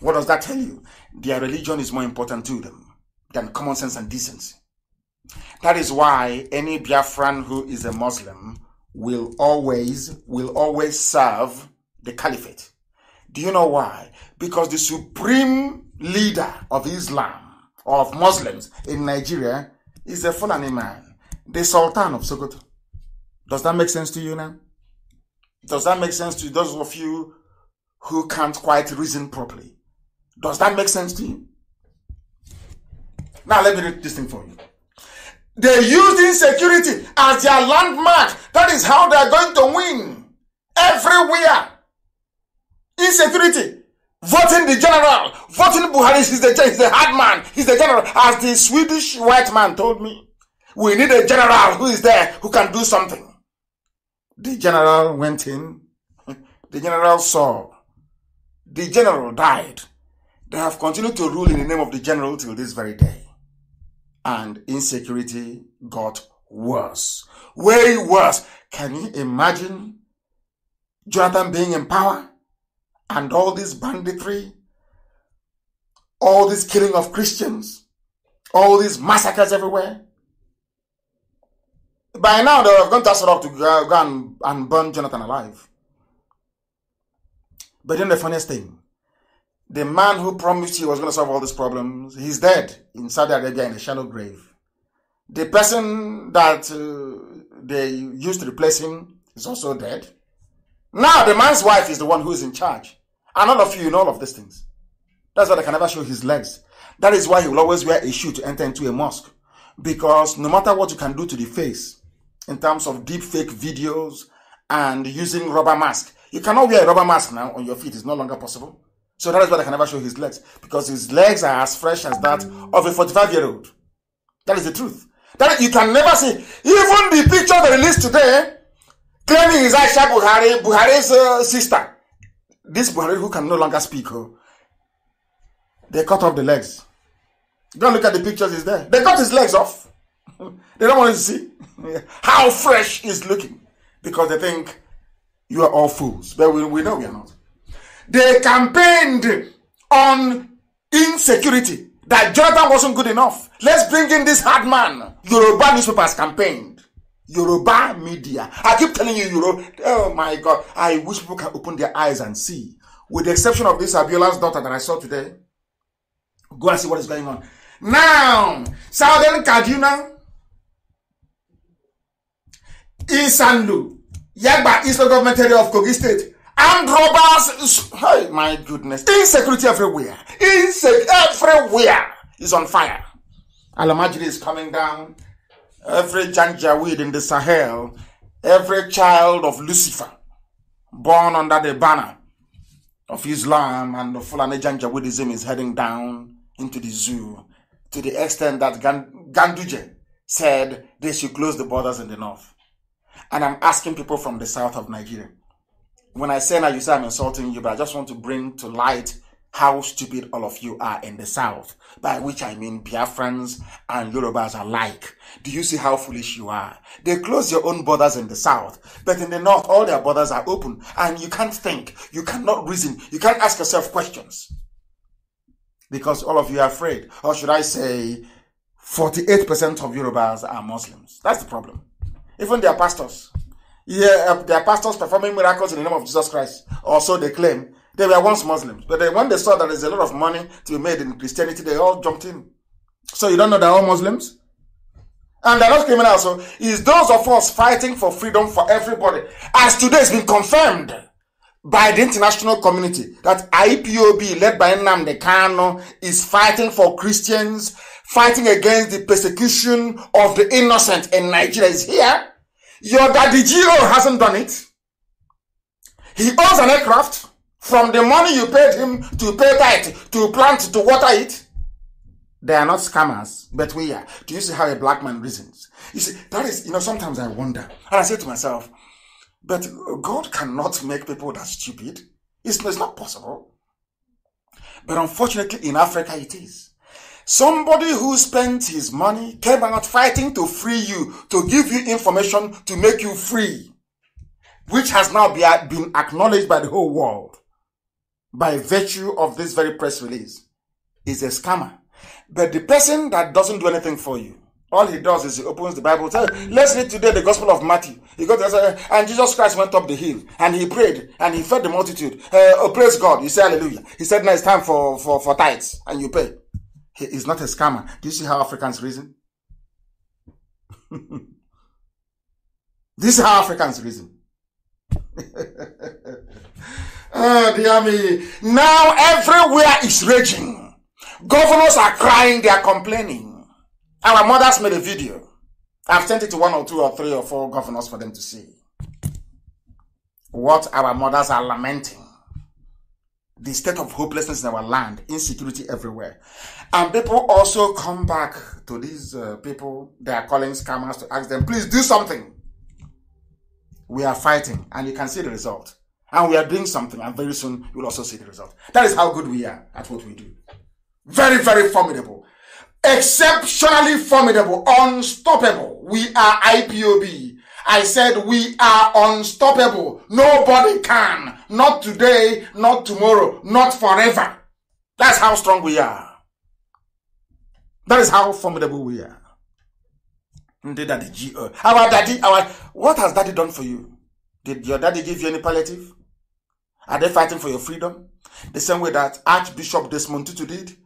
What does that tell you? Their religion is more important to them than common sense and decency. That is why any Biafran who is a Muslim will always will always serve the caliphate. Do you know why? Because the supreme leader of Islam of Muslims in Nigeria is a Fulani man, the Sultan of Sokoto. Does that make sense to you now? Does that make sense to those of you who can't quite reason properly? Does that make sense to you? Now let me read this thing for you. They used insecurity as their landmark. That is how they are going to win. Everywhere. Insecurity. Voting the general. Voting Buhari. He's the, he's the hard man. He's the general. As the Swedish white man told me. We need a general who is there, who can do something. The general went in. The general saw. The general died. They have continued to rule in the name of the general till this very day and insecurity got worse. Way worse. Can you imagine Jonathan being in power and all this banditry, all this killing of Christians, all these massacres everywhere? By now, they have gone to Asarok to go and, and burn Jonathan alive. But then the funniest thing, the man who promised he was going to solve all these problems, he's dead in Saudi Arabia in a shallow grave. The person that uh, they used to replace him is also dead. Now the man's wife is the one who is in charge. And all of you know all of these things. That's why they can never show his legs. That is why he will always wear a shoe to enter into a mosque. Because no matter what you can do to the face, in terms of deep fake videos and using rubber mask, you cannot wear a rubber mask now on your feet. It's no longer possible. So that is why I can never show his legs because his legs are as fresh as that of a 45 year old. That is the truth. That you can never see. Even the picture they released today, claiming is Aisha Buhari, Buhari's uh, sister. This Buhari who can no longer speak, oh, they cut off the legs. Don't look at the pictures, is there. They cut his legs off. they don't want to see how fresh he's looking because they think you are all fools. But we, we know we are not. They campaigned on insecurity, that Jonathan wasn't good enough. Let's bring in this hard man. Yoruba newspapers campaigned. Yoruba media. I keep telling you, Euro. Oh my God. I wish people can open their eyes and see. With the exception of this Abiola's daughter that I saw today. Go and see what is going on. Now, Southern Kaduna, Isanlu, Yagba, Eastern Government Area of Kogi State, And robbers. Hey, my goodness. Insecurity everywhere. Insect everywhere is on fire. Alamajiri is coming down. Every janjaweed in the Sahel, every child of Lucifer, born under the banner of Islam and the Fulani Janjaweedism, is heading down into the zoo to the extent that Ganduje said they should close the borders in the north. And I'm asking people from the south of Nigeria when I say that, you say I'm insulting you, but I just want to bring to light how stupid all of you are in the South, by which I mean Biafrans and Yorubas alike. Do you see how foolish you are? They close your own borders in the South, but in the North, all their borders are open, and you can't think, you cannot reason, you can't ask yourself questions. Because all of you are afraid, or should I say, 48% of Yorubas are Muslims. That's the problem. Even their pastors, yeah, um, their pastors performing miracles in the name of Jesus Christ, or so they claim. They were once Muslims, but then when they saw that there's a lot of money to be made in Christianity, they all jumped in. So you don't know they're all Muslims? And they're not criminals. So it's those of us fighting for freedom for everybody. As today has been confirmed by the international community that IPOB led by Nnamdi Kano is fighting for Christians, fighting against the persecution of the innocent in Nigeria is here. Your daddy Giro hasn't done it. He owns an aircraft from the money you paid him to pay tithe, to plant, to water it. They are not scammers, but we are. Do you see how a black man reasons? You see, that is, you know, sometimes I wonder. And I say to myself, but God cannot make people that stupid. It's, it's not possible. But unfortunately, in Africa, it is. Somebody who spent his money came out fighting to free you, to give you information to make you free, which has now been acknowledged by the whole world by virtue of this very press release is a scammer. But the person that doesn't do anything for you, all he does is he opens the Bible. Says, Let's read today the Gospel of Matthew. He goes and Jesus Christ went up the hill and he prayed and he fed the multitude. Uh, oh, praise God! You say Hallelujah. He said, "Now it's time for for for tithes and you pay." He is not a scammer. Do you see how Africans reason? this is how Africans reason. oh, dear me. Now everywhere is raging. Governors are crying, they are complaining. Our mothers made a video. I've sent it to one or two or three or four governors for them to see. What our mothers are lamenting. The state of hopelessness in our land, insecurity everywhere. And people also come back to these uh, people they are calling scammers to ask them, please do something. We are fighting, and you can see the result. And we are doing something, and very soon you'll also see the result. That is how good we are at what we do. Very, very formidable. Exceptionally formidable, unstoppable. We are IPOB. I said we are unstoppable. Nobody can. Not today, not tomorrow, not forever. That's how strong we are. That is how formidable we are. Did daddy, G- uh, our daddy, our what has daddy done for you? Did your daddy give you any palliative? Are they fighting for your freedom? The same way that Archbishop Desmond Tutu did.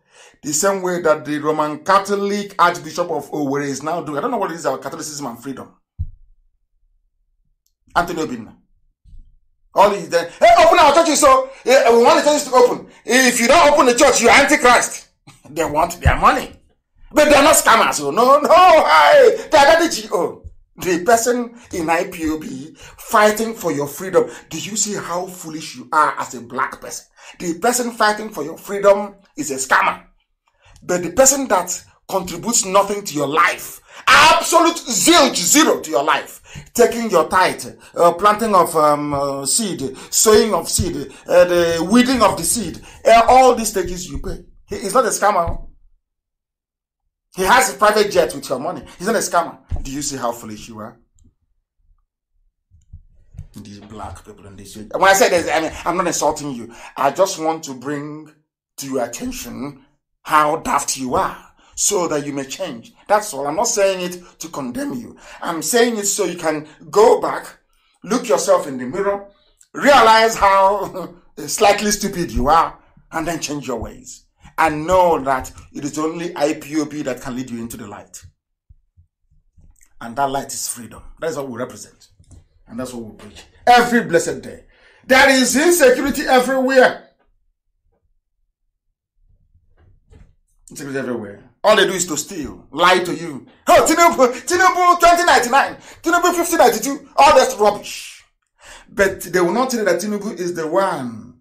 The same way that the Roman Catholic Archbishop of Owerri is now doing. I don't know what it is about Catholicism and freedom. Anthony Obinna. All is there. Hey, open our churches. So we want the churches to open. If you don't open the church, you're antichrist. they want their money. But they are not scammers. Oh, no, no. I, they are the GO. the person in IPOB fighting for your freedom. Do you see how foolish you are as a black person? The person fighting for your freedom is a scammer. But the person that contributes nothing to your life, absolute zilch, zero to your life, taking your tithe, uh, planting of um, uh, seed, sowing of seed, uh, the weeding of the seed, uh, all these stages you pay. He is not a scammer. Oh. He has a private jet with your money. He's not a scammer. Do you see how foolish you are? These black people in this. When I say this, I mean I'm not insulting you. I just want to bring to your attention how daft you are so that you may change. That's all. I'm not saying it to condemn you. I'm saying it so you can go back, look yourself in the mirror, realize how slightly stupid you are, and then change your ways and know that it is only IPOB that can lead you into the light. And that light is freedom. That's what we represent. And that's what we preach. Every blessed day. There is insecurity everywhere. Insecurity everywhere. All they do is to steal, lie to you. Oh, Tinubu, Tinubu 2099, Tinubu 1592, all that's rubbish. But they will not tell you that Tinubu is the one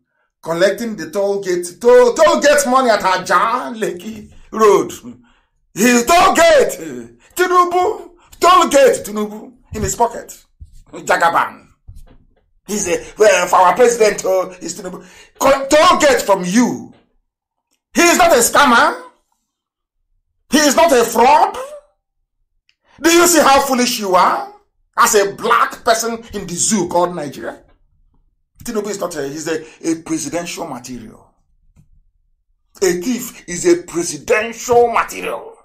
collecting the toll gate toll, toll gate money at Aja Lekki Road. His toll gate, Tinubu, toll gate, Tinubu, in his pocket, Jagaban. He's a, well, for our president, oh, he's Tinubu. Toll gate from you. He is not a scammer. He is not a fraud. Do you see how foolish you are as a black person in the zoo called Nigeria? Tinubu is not a, he's a, a presidential material. A thief is a presidential material.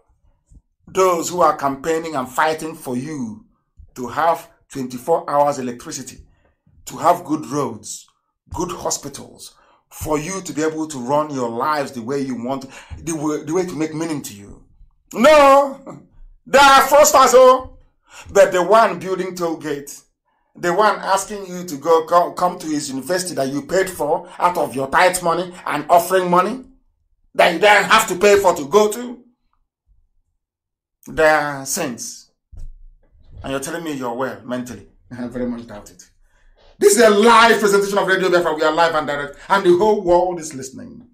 Those who are campaigning and fighting for you to have 24 hours electricity, to have good roads, good hospitals, for you to be able to run your lives the way you want, the way, the way to make meaning to you. No! They are fraudsters, oh! But the one building toll gates, the one asking you to go come, to his university that you paid for out of your tithe money and offering money that you then have to pay for to go to? the are saints. And you're telling me you're well mentally. I very much doubt it. This is a live presentation of Radio Biafra. We are live and direct, and the whole world is listening.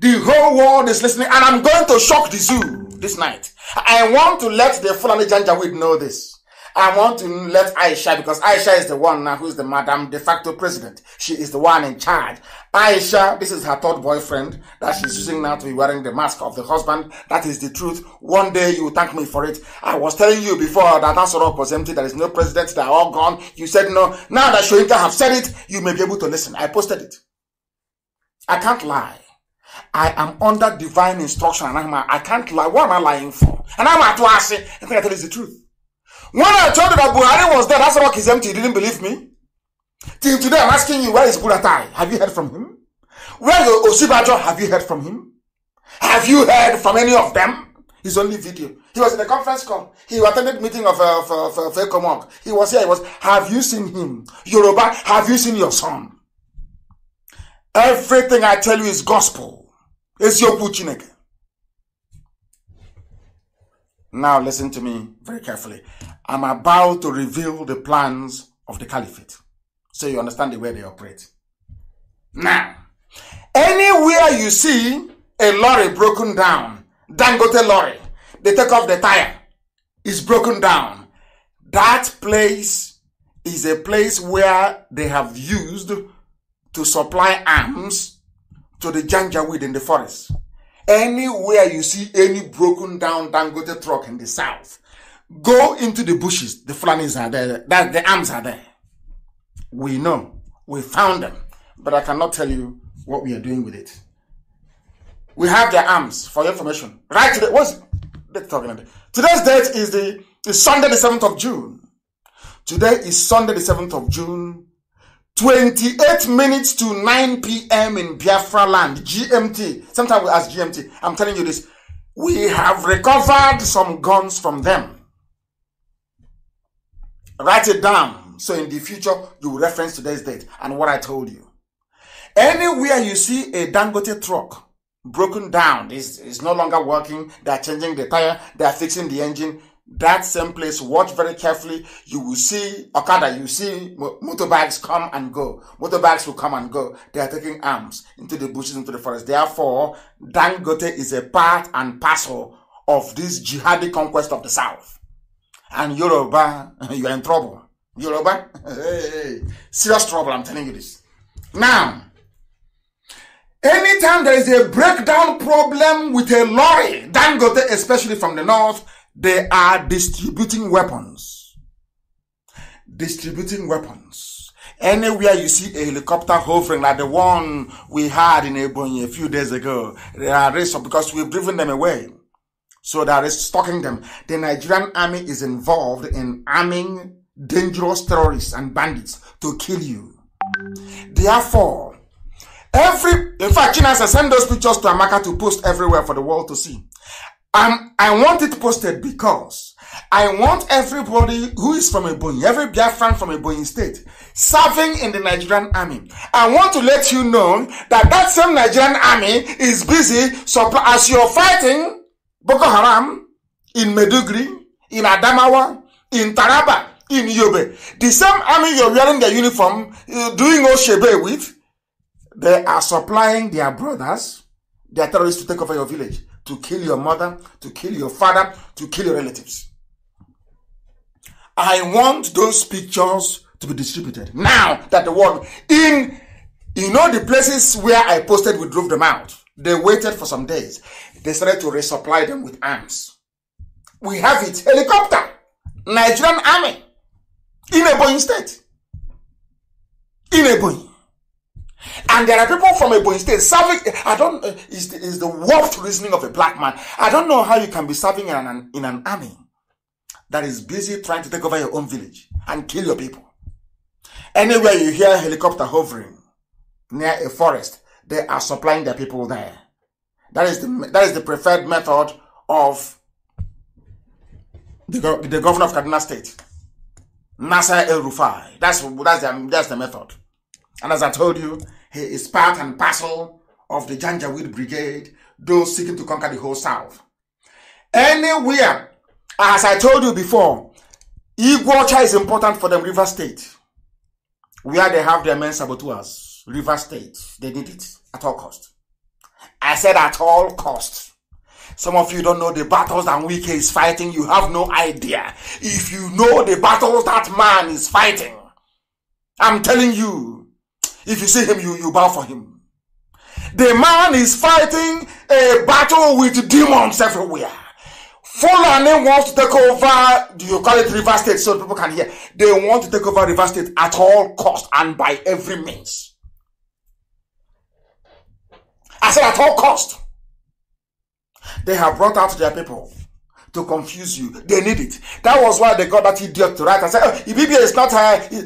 The whole world is listening, and I'm going to shock the zoo this night. I want to let the Fulani Janjaweed know this. I want to let Aisha, because Aisha is the one now who is the madam de facto president. She is the one in charge. Aisha, this is her third boyfriend that she's using now to be wearing the mask of the husband. That is the truth. One day you will thank me for it. I was telling you before that Asorok was empty. There is no president. They are all gone. You said no. Now that Shoinka have said it, you may be able to listen. I posted it. I can't lie. I am under divine instruction and I'm, I am can not lie. What am I lying for? And I'm at I think I tell you the truth. When I told you that Buhari was there, that's rock empty. He didn't believe me? Till today, I'm asking you, where is Buratai? Have you heard from him? Where is Osibajo? Have you heard from him? Have you heard from any of them? His only video. He was in a conference call. He attended meeting of uh, for, for, He was here. He was. Have you seen him? Yoruba, have you seen your son? Everything I tell you is gospel. It's your Puchineke. Now listen to me very carefully. I'm about to reveal the plans of the caliphate. So you understand the way they operate. Now, anywhere you see a lorry broken down, Dangote lorry, they take off the tire, it's broken down. That place is a place where they have used to supply arms to the Janjaweed in the forest. Anywhere you see any broken down Dangote truck in the south, go into the bushes. The Fulanis are there. That the arms are there. We know. We found them. But I cannot tell you what we are doing with it. We have their arms for your information. Right today, what's the talking about? Today's date is the is Sunday the 7th of June. Today is Sunday the 7th of June 28 minutes to 9 p.m. in Biafra land, GMT. Sometimes we ask GMT. I'm telling you this. We have recovered some guns from them. Write it down. So in the future, you reference today's date and what I told you. Anywhere you see a Dangote truck broken down, is is no longer working, they're changing the tire, they're fixing the engine, that same place, watch very carefully. You will see Okada, you see motorbikes come and go. Motorbikes will come and go. They are taking arms into the bushes, into the forest. Therefore, Dangote is a part and parcel of this jihadi conquest of the South. And Yoruba, you are in trouble. Yoruba, hey, serious trouble, I'm telling you this. Now, anytime there is a breakdown problem with a lorry, Dangote, especially from the north, they are distributing weapons. Distributing weapons. Anywhere you see a helicopter hovering like the one we had in Ebony a few days ago, they are raised because we've driven them away. So that is stalking them. The Nigerian army is involved in arming dangerous terrorists and bandits to kill you. Therefore, every in fact, China says send those pictures to Amaka to post everywhere for the world to see. I'm, I want it posted because I want everybody who is from Ebonyi, every Biafran from Ebonyi state, serving in the Nigerian army. I want to let you know that that same Nigerian army is busy supply, as you're fighting Boko Haram in Meduguri, in Adamawa, in Taraba, in Yobe. The same army you're wearing their uniform, uh, doing Oshebe with, they are supplying their brothers, their terrorists to take over your village. to kill your mother, to kill your father, to kill your relatives. I want those pictures to be distributed now that the world in you know the places where I posted we drove them out. They waited for some days. They started to resupply them with arms. We have it. Helicopter. Nigerian army. In Ebony state. In Ebony. And there are people from Ebony State serving. I don't. Uh, is the, is the warped reasoning of a black man? I don't know how you can be serving in an in an army that is busy trying to take over your own village and kill your people. Anywhere you hear helicopter hovering near a forest, they are supplying their people there. That is the that is the preferred method of the, the governor of Kaduna State, Nasser El Rufai. That's that's the, that's the method. And as I told you, he is part and parcel of the Janjaweed Brigade, those seeking to conquer the whole South. Anywhere, as I told you before, Iguacha is important for them River State, where they have their men saboteurs. River State, they need it at all costs. I said at all costs. Some of you don't know the battles that Wike is fighting. You have no idea. If you know the battles that man is fighting, I'm telling you, if you see him, you, you bow for him. The man is fighting a battle with demons everywhere. Fulani wants to take over, do you call it River State so people can hear? They want to take over River State at all cost and by every means. I said at all cost. They have brought out their people to confuse you. They need it. That was why they got that idiot to write and say, oh, Ibibia is not high. Uh,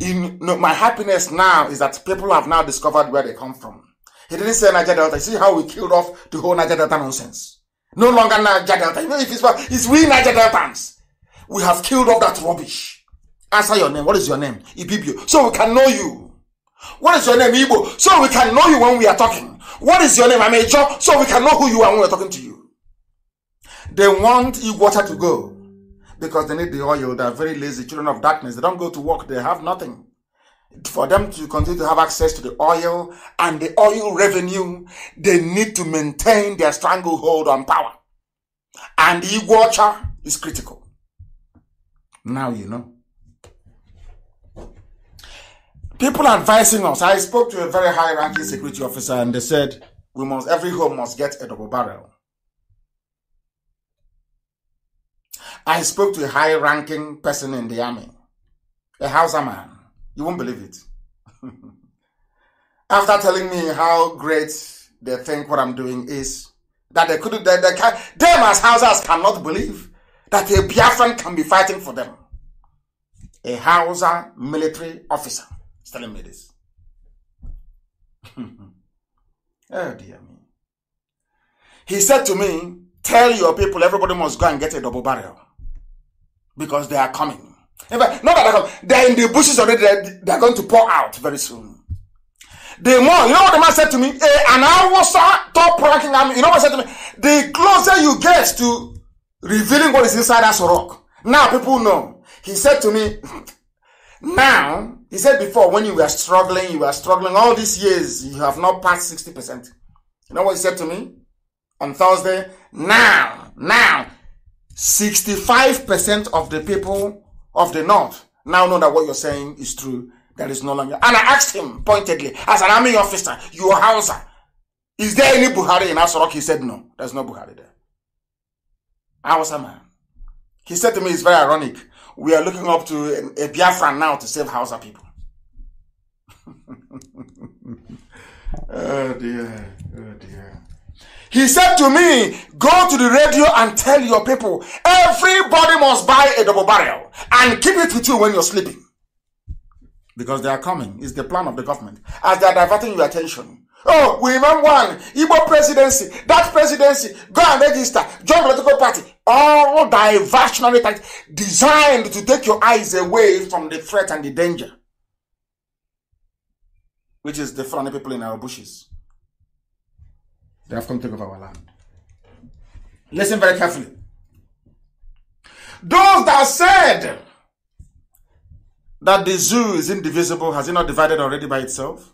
in my happiness now is that people have now discovered where they come from. He didn't say Niger Delta. see how we killed off the whole Niger Delta nonsense. No longer Niger Delta. Even if it's, it's we Niger Deltans. We have killed off that rubbish. Answer your name. What is your name? Ibibio. So we can know you. What is your name? Ibo. So we can know you when we are talking. What is your name? I'm a job. So we can know who you are when we're talking to you. They want you water to go because they need the oil. They are very lazy children of darkness. They don't go to work. They have nothing. For them to continue to have access to the oil and the oil revenue, they need to maintain their stranglehold on power. And the watcher is critical. Now you know. People advising us. I spoke to a very high-ranking security officer, and they said we must every home must get a double barrel. I spoke to a high ranking person in the army, a Hausa man. You won't believe it. After telling me how great they think what I'm doing is, that they couldn't, they, they can, them as Hausas cannot believe that a Biafran can be fighting for them. A Hausa military officer is telling me this. oh dear me. He said to me, Tell your people everybody must go and get a double barrel because they are coming. In fact, not that they're coming, they're in the bushes already, they're, they're going to pour out very soon. The more, you know what the man said to me? and I was top ranking army. You know what he said to me? The closer you get to revealing what is inside us rock, now people know. He said to me, now, he said before, when you were struggling, you were struggling all these years, you have not passed 60%. You know what he said to me on Thursday? Now, now, 65% of the people of the North now know that what you're saying is true. That is no longer. And I asked him pointedly, as an army officer, your house, Hausa, is there any Buhari in Asorok? He said, no, there's no Buhari there. I was a man. He said to me, it's very ironic. We are looking up to a, a Biafra now to save Hausa people. oh dear, oh dear. He said to me, Go to the radio and tell your people, everybody must buy a double barrel and keep it with you when you're sleeping. Because they are coming. It's the plan of the government. As they are diverting your attention. Oh, we remember one Igbo presidency, that presidency, go and register, join political party. All diversionary tactics designed to take your eyes away from the threat and the danger, which is the front people in our bushes. They have come to take over our land. Listen very carefully. Those that said that the zoo is indivisible, has it not divided already by itself?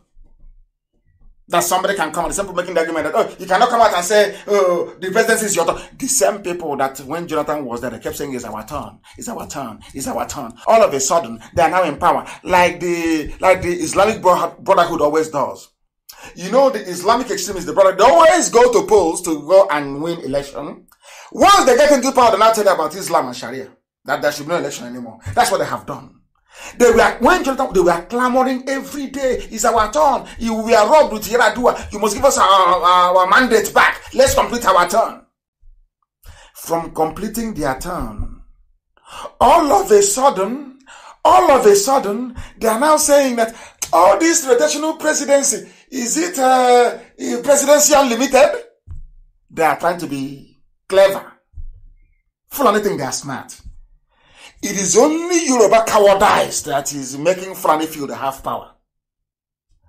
That somebody can come and the same people making the argument that, oh, you cannot come out and say, oh, the presidency is your turn. The same people that when Jonathan was there, they kept saying, it's our turn, it's our turn, it's our turn. All of a sudden, they are now in power, like the, like the Islamic Brotherhood always does. You know, the Islamic extremists, the brother, they always go to polls to go and win election. Once they get into power, they now tell you about Islam and Sharia. That there should be no election anymore. That's what they have done. They were when Jonathan, they were clamoring every day. It's our turn. we are robbed with Yeradua. You must give us our, our mandate back. Let's complete our turn. From completing their turn, all of a sudden, all of a sudden, they are now saying that all this rotational presidency, is it uh, eh, presidential limited? They are trying to be clever. Fulani think they are smart. It is only Yoruba cowardice that is making Fulani feel they have power.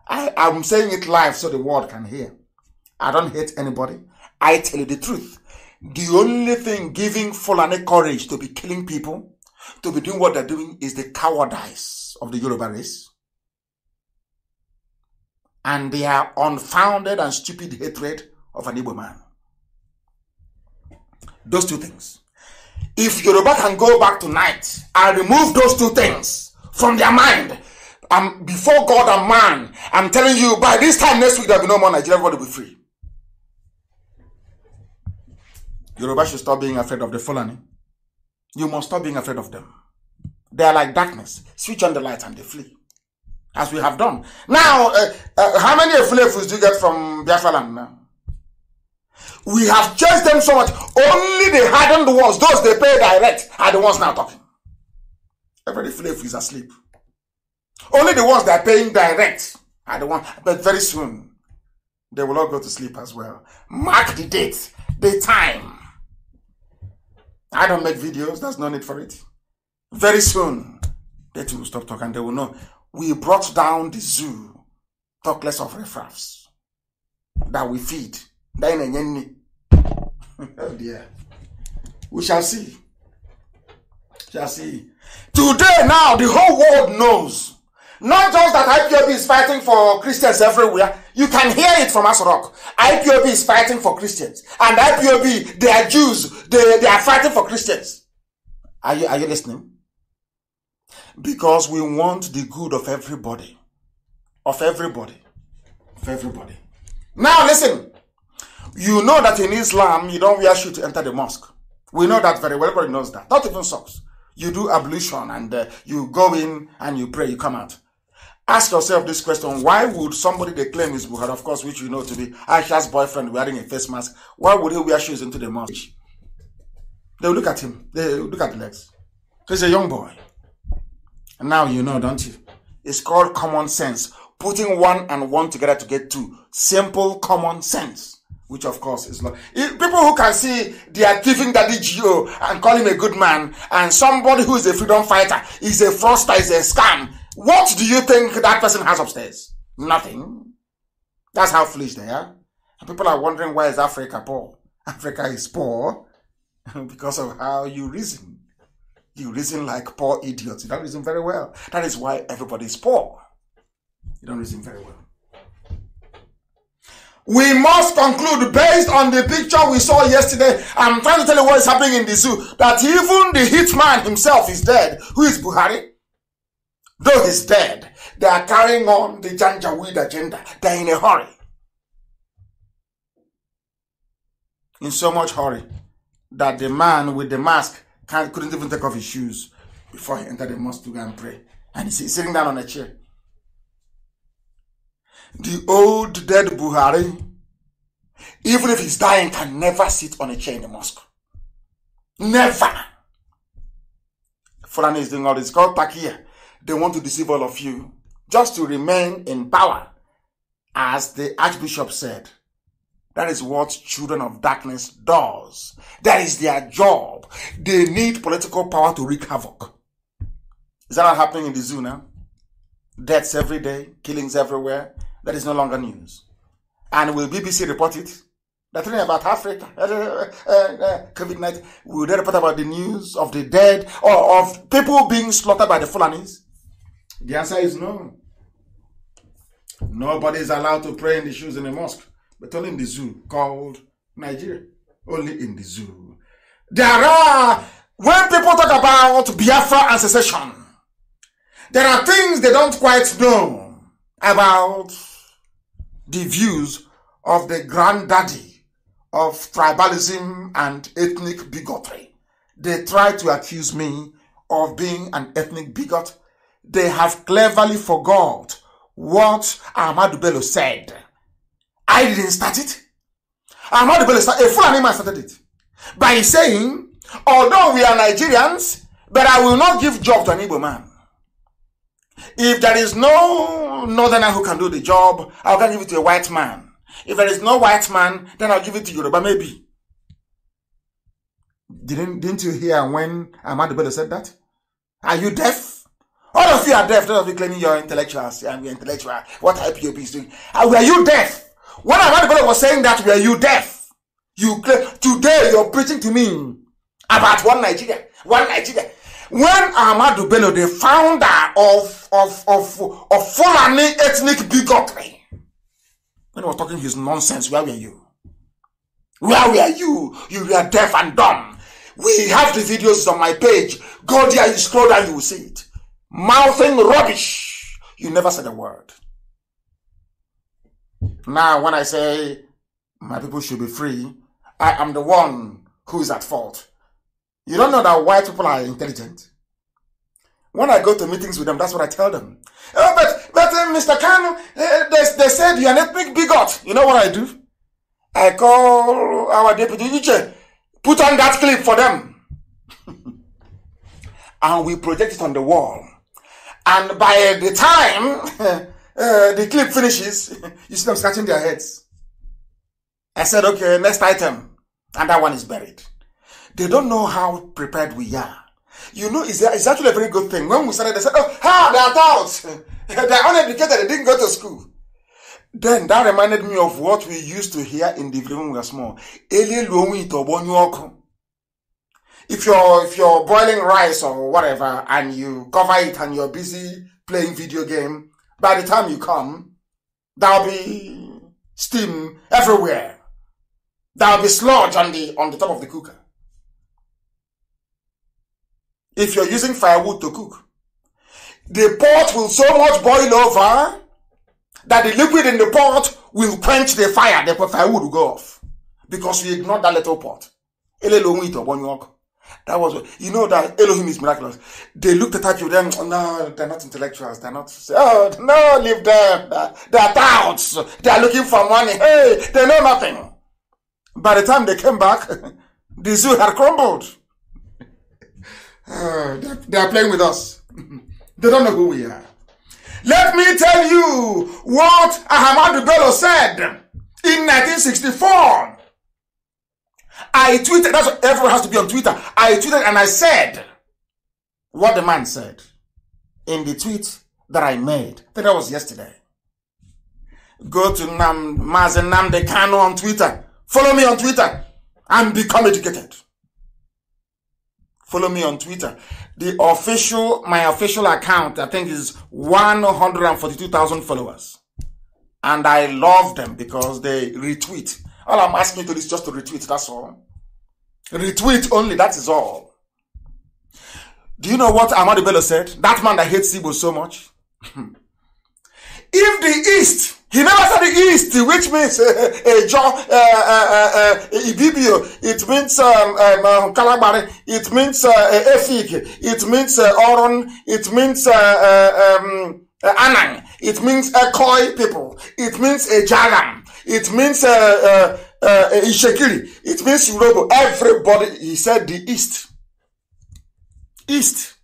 I am saying it live so the world can hear. I don't hate anybody. I tell you the truth. The only thing giving Fulani courage to be killing people, to be doing what they're doing, is the cowardice of the Yoruba race and their unfounded and stupid hatred of an Igbo man. Those two things. If Yoruba can go back tonight and remove those two things from their mind, I'm um, before God and man, I'm telling you, by this time next week, there'll be no more Nigeria, everybody will be free. Yoruba should stop being afraid of the Fulani. You must stop being afraid of them. They are like darkness. Switch on the light and they flee as we have done. Now, uh, uh, how many Efulefus do you get from Biafra now? We have chased them so much, only the hardened ones, those they pay direct, are the ones now talking. Every Efulefu is asleep. Only the ones that are paying direct are the ones, but very soon, they will all go to sleep as well. Mark the date, the time. I don't make videos, there's no need for it. Very soon, they will stop talking, they will know we brought down the zoo talk less of riffraffs that we feed then again oh dear we shall see shall see today now the whole world knows not just that IPOB is fighting for Christians everywhere. You can hear it from Asorok. IPOB is fighting for Christians. And IPOB, they are Jews. They, they are fighting for Christians. Are you, are you listening? Because we want the good of everybody. Of everybody. Of everybody. Now listen. You know that in Islam, you don't wear shoes to enter the mosque. We know that very well. Everybody knows that. Not even socks. You do ablution and uh, you go in and you pray, you come out. Ask yourself this question. Why would somebody they claim is Buhari, of course, which you know to be Aisha's boyfriend wearing a face mask, why would he wear shoes into the mosque? They look at him. They look at the legs. He's a young boy. Now you know, don't you? It's called common sense. Putting one and one together to get two. Simple common sense. Which of course is not. People who can see they are giving Daddy Geo and call him a good man and somebody who is a freedom fighter is a fraudster, is a scam. What do you think that person has upstairs? Nothing. That's how foolish they are. And people are wondering why is Africa poor? Africa is poor because of how you reason. You reason like poor idiots. You don't reason very well. That is why everybody is poor. You don't reason very well. We must conclude based on the picture we saw yesterday. I'm trying to tell you what is happening in the zoo. That even the hitman himself is dead, who is Buhari. Though he's dead, they are carrying on the Janjaweed agenda. They're in a hurry. In so much hurry that the man with the mask can't, couldn't even take off his shoes before he entered the mosque to go and pray. And he's sitting down on a chair. The old dead Buhari, even if he's dying, can never sit on a chair in the mosque. Never. Fulani is doing all this. called Takia. They want to deceive all of you just to remain in power. As the Archbishop said, that is what children of darkness does. That is their job. They need political power to wreak havoc. Is that not happening in the zoo now? Deaths every day, killings everywhere. That is no longer news. And will BBC report it? They're talking about Africa, uh, uh, COVID 19. Will they report about the news of the dead or of people being slaughtered by the Fulanis? The answer is no. Nobody is allowed to pray in the shoes in a mosque, but only in the zoo called Nigeria only in the zoo. There are, when people talk about Biafra and secession, there are things they don't quite know about the views of the granddaddy of tribalism and ethnic bigotry. They try to accuse me of being an ethnic bigot. They have cleverly forgot what Ahmadu Bello said. I didn't start it. I'm not the Palestinian. A Fulani man started it by saying, although we are Nigerians, but I will not give job to an Igbo man. If there is no northerner who can do the job, I'll give it to a white man. If there is no white man, then I'll give it to Yoruba, maybe. Didn't, didn't you hear when Ahmad Bello said that? Are you deaf? All of you are deaf. Those of you claiming you're intellectuals and we're intellectual. What IPOP is doing. Are you deaf? When I heard God was saying that, were you deaf? You today you're preaching to me about one Nigeria, one Nigeria. When Ahmadu Bello, the founder of of of of Fulani ethnic bigotry, when he was talking his nonsense, where were you? Where were you? You were deaf and dumb. We have the videos on my page. Go there, you scroll down, you will see it. Mouthing rubbish. You never said a word. Now, when I say my people should be free, I am the one who is at fault. You don't know that white people are intelligent. When I go to meetings with them, that's what I tell them. Oh, but, but uh, Mr. Khan, uh, they, they said you're an ethnic bigot. You know what I do? I call our deputy DJ, put on that clip for them. and we project it on the wall. And by the time Uh, the clip finishes, you see them scratching their heads. I said, okay, next item. And that one is buried. They don't know how prepared we are. You know, it's, it's actually a very good thing. When we started, they said, oh, ha, ah, they're adults. they're uneducated. They didn't go to school. Then that reminded me of what we used to hear in the when we were small. If you're, if you're boiling rice or whatever and you cover it and you're busy playing video game, by the time you come, there'll be steam everywhere. There'll be sludge on the, on the top of the cooker. If you're using firewood to cook, the pot will so much boil over that the liquid in the pot will quench the fire. The firewood will go off because you ignore that little pot. That was, you know, that Elohim is miraculous. They looked at you, then, oh, no, they're not intellectuals. They're not, oh, no, leave them. They're, they touts. They're looking for money. Hey, they know nothing. By the time they came back, the zoo had crumbled. Uh, oh, they're, they're playing with us. they don't know who we are. Let me tell you what Ahmadu Bello said in 1964. I tweeted, that's what everyone has to be on Twitter. I tweeted and I said what the man said in the tweet that I made. That was yesterday. Go to Nam, Mazen Namde on Twitter. Follow me on Twitter and become educated. Follow me on Twitter. The official, my official account, I think is 142,000 followers. And I love them because they retweet. All I'm asking you to do is just to retweet, that's all. Retweet only, that is all. Do you know what Amadu Bello said? That man that hates Igbo so much. if the East, he never said the East, which means uh, uh, John, uh, uh, uh, Ibibio, it means um, um, um Kalabari, it means uh, eh, Efik, it means uh, Oron, it means uh, uh um, uh, Anang, it means Ekoi uh, people, it means Ejalam, it means uh, uh, eh, eh, in Shekiri. It means you know everybody. He said the East. East.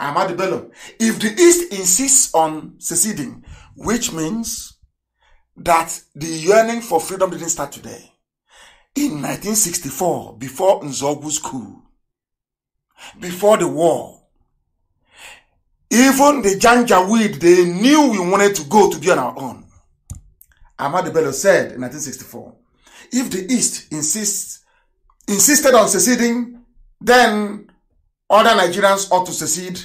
Ahmad Bello. If the East insists on seceding, which means that the yearning for freedom didn't start today. In 1964, before Nzogu's coup, before the war, even the Janjaweed, they knew we wanted to go to be on our own. Ahmadu Bello said in 1964, if the East insists, insisted on seceding, then other Nigerians ought to secede,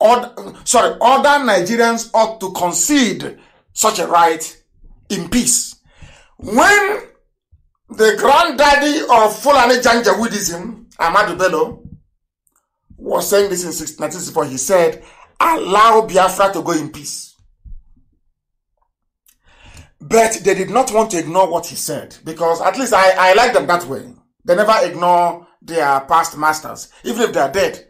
or, sorry, other Nigerians ought to concede such a right in peace. When the granddaddy of Fulani Janjaweedism, Ahmadu Bello, was saying this in 1964, he said, allow Biafra to go in peace. But they did not want to ignore what he said because at least I, I like them that way. They never ignore their past masters, even if they are dead.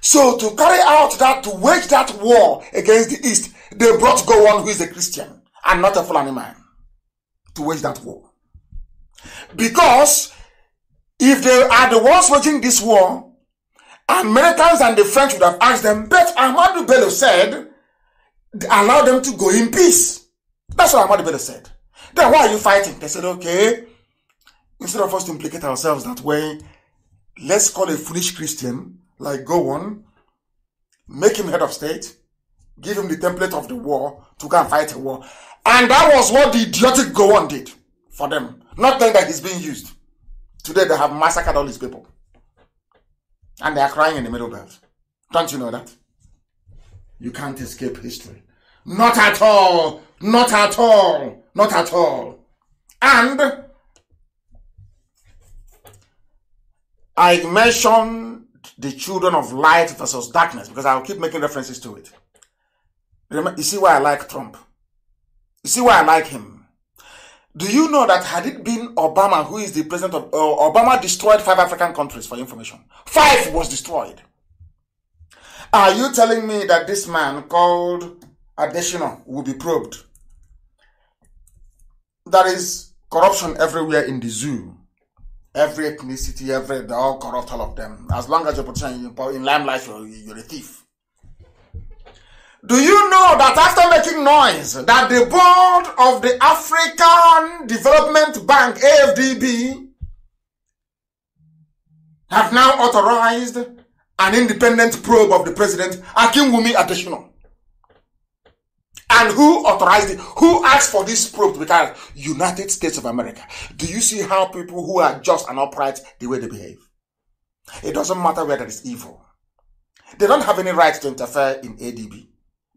So to carry out that, to wage that war against the East, they brought Gowon, who is a Christian and not a Fulani man, to wage that war. Because if they are the ones waging this war, Americans and the French would have asked them, but Ahmadu Bello said, allow them to go in peace. That's what Ahmad Bello said. Then why are you fighting? They said, okay, instead of us to implicate ourselves that way, let's call a foolish Christian like go on, make him head of state, give him the template of the war to go and fight a war. And that was what the idiotic go on did for them. Not knowing that he's being used. Today they have massacred all these people. And they are crying in the middle belt. Don't you know that? You can't escape history. Not at all. Not at all. Not at all. And I mentioned the children of light versus darkness because I'll keep making references to it. you see why I like Trump. You see why I like him. Do you know that had it been Obama who is the president of uh, Obama destroyed five African countries for information? Five was destroyed. Are you telling me that this man called Additional will be probed. That is corruption everywhere in the zoo. Every ethnicity, every they're all corrupt, all of them. As long as you're in limelight, you're, you're a thief. Do you know that after making noise, that the board of the African Development Bank (AFDB) have now authorized an independent probe of the president Akinwumi Adesina? And who authorized it? Who asked for this probe to be carried? United States of America. Do you see how people who are just and upright, the way they behave? It doesn't matter whether it's evil. They don't have any right to interfere in ADB.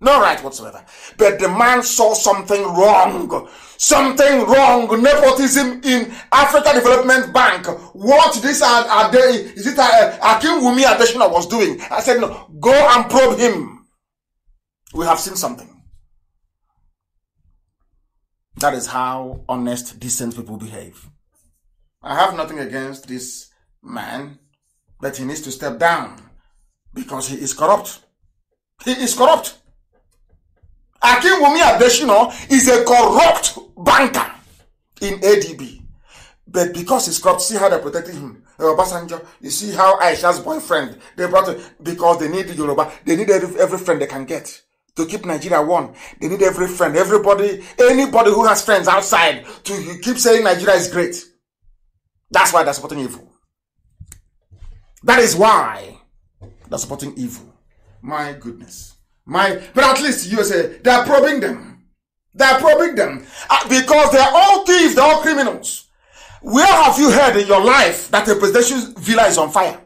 No right whatsoever. But the man saw something wrong. Something wrong. Nepotism in Africa Development Bank. What this are, are they, is it uh, Akim Wumi Adeshina was doing? I said, no, go and probe him. We have seen something. That is how honest, decent people behave. I have nothing against this man, but he needs to step down because he is corrupt. He is corrupt. Wumi Adeshino is a corrupt banker in ADB. But because he's corrupt, see how they protected him. Obasanjo, you see how Aisha's boyfriend, they brought him because they need Yoruba. They need every, every friend they can get to keep Nigeria one. They need every friend, everybody, anybody who has friends outside to keep saying Nigeria is great. That's why they're supporting evil. That is why they're supporting evil. My goodness. My, but at least USA, they're probing them. They're probing them uh, because they're all thieves, they're all criminals. Where have you heard in your life that a presidential villa is on fire?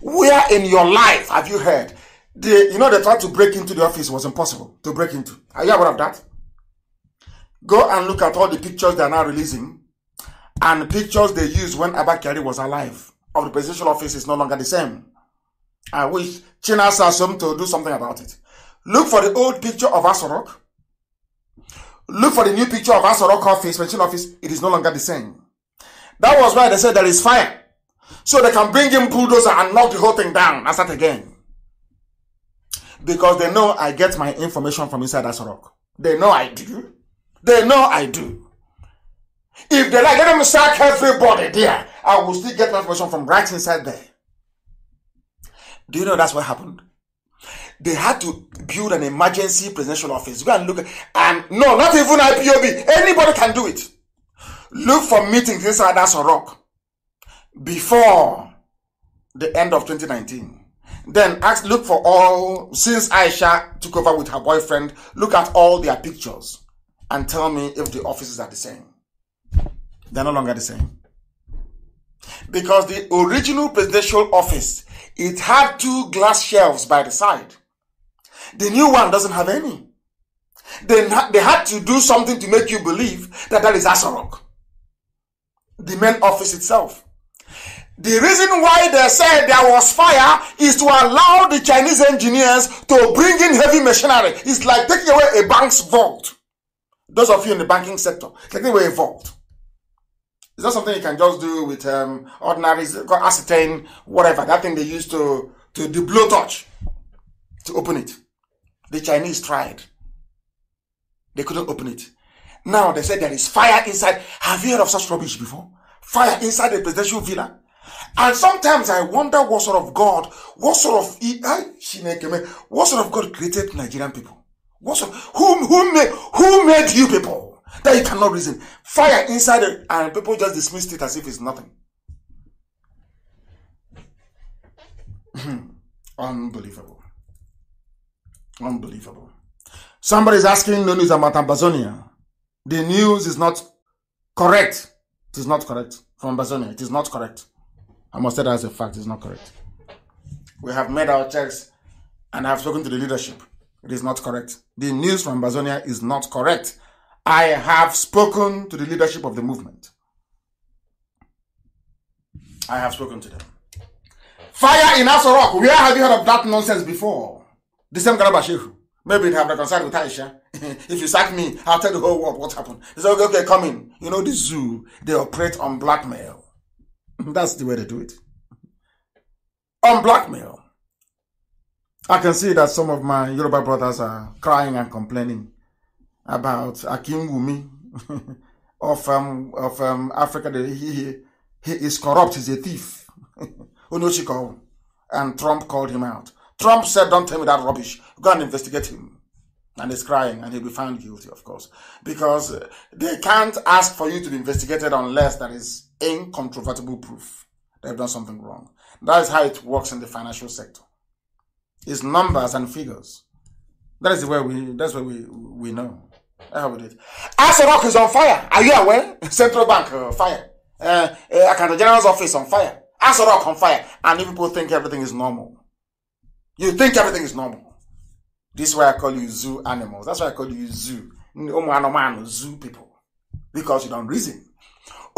Where in your life have you heard they, you know, they tried to break into the office. It was impossible to break into. Are you aware of that? Go and look at all the pictures they are now releasing and the pictures they used when Abakari was alive of the presidential office is no longer the same. I wish China Sassum to do something about it. Look for the old picture of Asorok. Look for the new picture of Asorok office, presidential office. It is no longer the same. That was why they said there is fire. So they can bring in bulldozer and knock the whole thing down and start again because they know I get my information from inside that rock. They know I do. They know I do. If they like, let them sack everybody there. I will still get information from right inside there. Do you know that's what happened? They had to build an emergency presidential office. Go and look. and no, not even IPOB. Anybody can do it. Look for meetings inside that rock before the end of 2019. Then ask, look for all, since Aisha took over with her boyfriend, look at all their pictures and tell me if the offices are the same. They're no longer the same. Because the original presidential office, it had two glass shelves by the side. The new one doesn't have any. They, they had to do something to make you believe that that is Asarok. The main office itself. The reason why they said there was fire is to allow the Chinese engineers to bring in heavy machinery. It's like taking away a bank's vault. Those of you in the banking sector, taking away a vault. It's not something you can just do with um, ordinary ascertain, whatever, that thing they use to, to do blowtorch to open it. The Chinese tried. They couldn't open it. Now they said there is fire inside. Have you heard of such rubbish before? Fire inside a presidential villa? And sometimes I wonder what sort of God, what sort of what sort of God created Nigerian people? What sort, who who made who made you people that you cannot reason? Fire inside and people just dismissed it as if it's nothing. Unbelievable. Unbelievable. Somebody is asking no news about Ambazonia. The news is not correct. It is not correct from Ambazonia. It is not correct. I must say that as a fact, it's not correct. We have made our checks and I have spoken to the leadership. It is not correct. The news from Bazonia is not correct. I have spoken to the leadership of the movement. I have spoken to them. Fire in Asorok. Where have you heard of that nonsense before? The same Garaba Maybe they have reconciled with Aisha. if you sack me, I'll tell the whole world what happened. They say, okay, okay, come in. You know, the zoo, they operate on blackmail. That's the way they do it. On blackmail. I can see that some of my Yoruba brothers are crying and complaining about Akim Wumi of um, of um, Africa. He, he, he is corrupt. He's a thief. Unochiko. and Trump called him out. Trump said, don't tell me that rubbish. Go and investigate him. And he's crying and he'll be found guilty, of course. Because uh, they can't ask for you to be investigated unless there is incontrovertible proof they have done something wrong. That is how it works in the financial sector. It's numbers and figures. That is where we that's where we we know. how it is. did. Aso is on fire. Are you aware? Central Bank uh, fire. Uh, uh, Accountant General's office on fire. rock on fire. And people think everything is normal. You think everything is normal. This is why I call you zoo animals. That's why I call you zoo. Zoo people. Because you don't reason.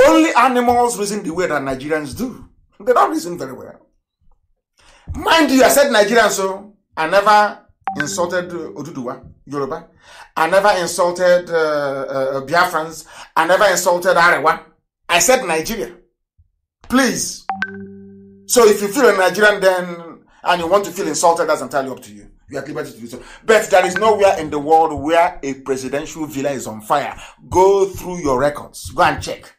Only animals reason the way that Nigerians do. They don't reason very well. Mind you, I said Nigerians. so I never insulted uh, Oduduwa, Yoruba. I never insulted uh, uh, uh, Biafrans. I never insulted Arewa. I said Nigeria. Please. So if you feel a Nigerian then and you want to feel insulted, that's entirely up to you. You are liberty to do so. But there is nowhere in the world where a presidential villa is on fire. Go through your records. Go and check.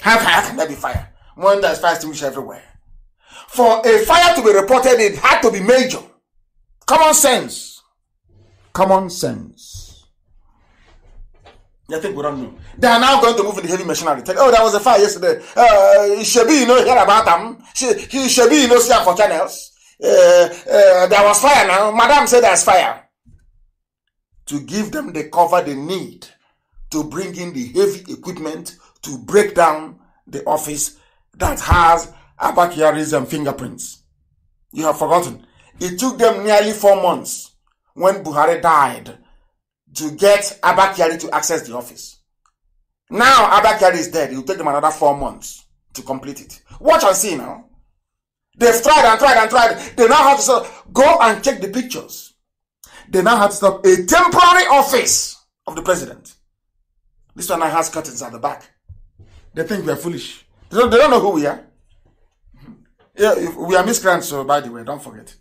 Hellfire can never be fire. One that is fire reach everywhere. For a fire to be reported, it had to be major. Common sense. Common sense. I think we don't know. They are now going to move in the heavy machinery. oh, there was a fire yesterday. Uh, Shebi, you know, hear about them. She, he, Shebi, you know, see for channels. Uh, uh, there was fire now. Madam said there's fire. To give them the cover they need to bring in the heavy equipment to break down the office that has Abakiarism fingerprints. You have forgotten. It took them nearly four months when Buhari died to get Abakiari to access the office. Now Abakiari is dead. It will take them another four months to complete it. Watch and see now. They've tried and tried and tried. They now have to stop. Go and check the pictures. They now have to stop a temporary office of the president. This one now has curtains at the back. They think we are foolish. They don't, they don't know who we are. Yeah, we are miscreants, so by the way, don't forget.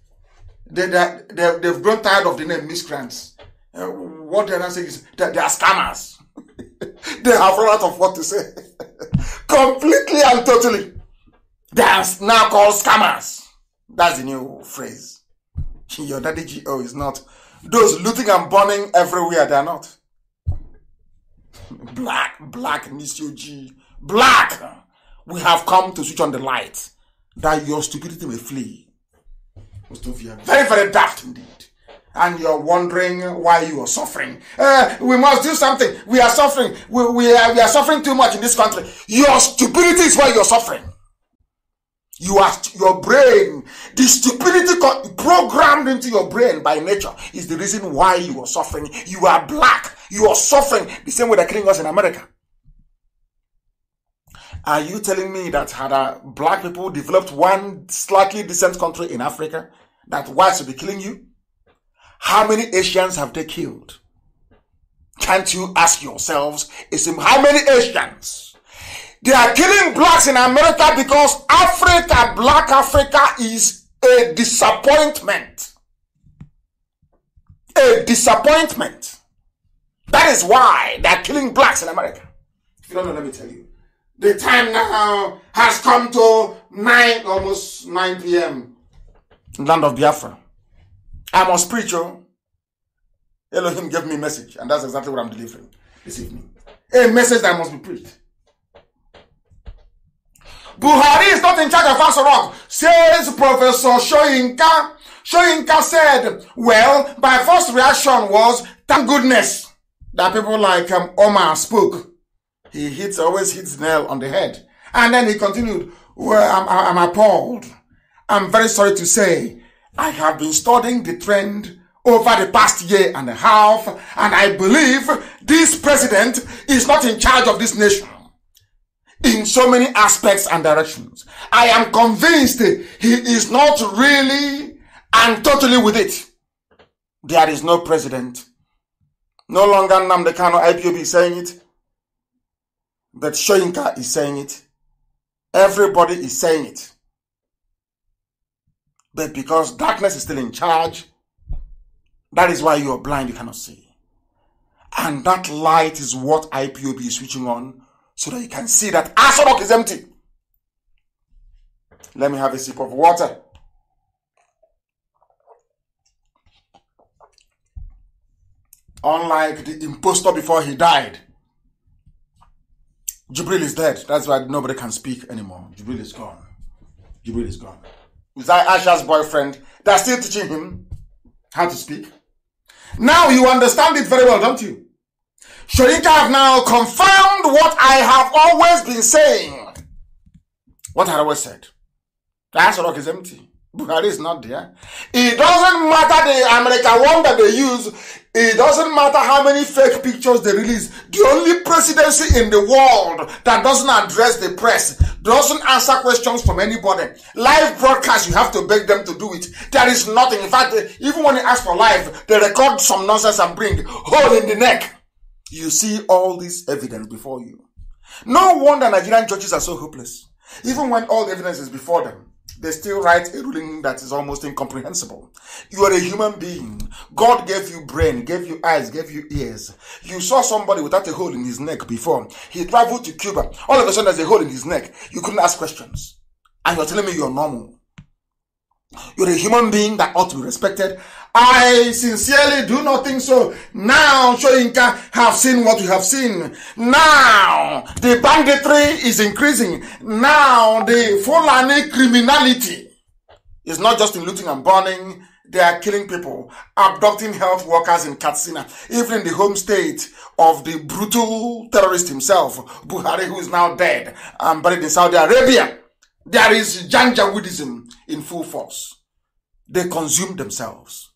They, they, they, they've grown tired of the name miscreants. Uh, what they're not saying is that they are scammers. they have run out of what to say. Completely and totally. They are now called scammers. That's the new phrase. Your daddy GO is not. Those looting and burning everywhere, they are not. Black, black, Mister G black, we have come to switch on the light that your stupidity may flee. Very, very daft indeed. And you're wondering why you are suffering. Uh, we must do something. We are suffering. We, we, are, we are suffering too much in this country. Your stupidity is why you're suffering. You are, your brain, the stupidity programmed into your brain by nature is the reason why you are suffering. You are black. You are suffering the same way they're killing us in America. Are you telling me that had uh, black people developed one slightly decent country in Africa, that whites would be killing you? How many Asians have they killed? Can't you ask yourselves, is how many Asians? They are killing blacks in America because Africa, black Africa is a disappointment. A disappointment. That is why they are killing blacks in America. If you don't know, let me tell you. The time now has come to 9, almost 9 p.m. Land of Biafra. I'm on spiritual. Elohim gave me a message, and that's exactly what I'm delivering this evening. A message that must be preached. Buhari is not in charge of Rock, says Professor Shoyinka. Shoyinka said, well, my first reaction was, thank goodness that people like um, Omar spoke he hits, always hits nail on the head. And then he continued, well, I'm, I'm appalled. I'm very sorry to say I have been studying the trend over the past year and a half, and I believe this president is not in charge of this nation in so many aspects and directions. I am convinced he is not really and totally with it. There is no president. No longer Namdekano IPOB saying it. But Shoinka is saying it. Everybody is saying it. But because darkness is still in charge, that is why you are blind, you cannot see. And that light is what IPOB is switching on so that you can see that Asadok is empty. Let me have a sip of water. Unlike the impostor before he died, Jibril is dead. That's why nobody can speak anymore. Jibril is gone. Jibril is gone. Is that Asha's boyfriend? They're still teaching him how to speak. Now you understand it very well, don't you? Sharika have now confirmed what I have always been saying. What I always said. The rock is empty. Bukhari is not there. It doesn't matter the American one that they use. It doesn't matter how many fake pictures they release. The only presidency in the world that doesn't address the press, doesn't answer questions from anybody. Live broadcast, you have to beg them to do it. There is nothing. In fact, even when they ask for live, they record some nonsense and bring hole in the neck. You see all this evidence before you. No wonder Nigerian judges are so hopeless. Even when all the evidence is before them, they still write a ruling that is almost incomprehensible. You are a human being. God gave you brain, gave you eyes, gave you ears. You saw somebody without a hole in his neck before. He traveled to Cuba. All of a sudden, there's a hole in his neck. You couldn't ask questions. And you're telling me you're normal. You're a human being that ought to be respected I sincerely do not think so. Now Shoinka have seen what you have seen. Now the banditry is increasing. Now the Fulani criminality is not just in looting and burning. They are killing people, abducting health workers in Katsina, even in the home state of the brutal terrorist himself, Buhari, who is now dead and buried in Saudi Arabia. There is Janjaweedism in full force. They consume themselves.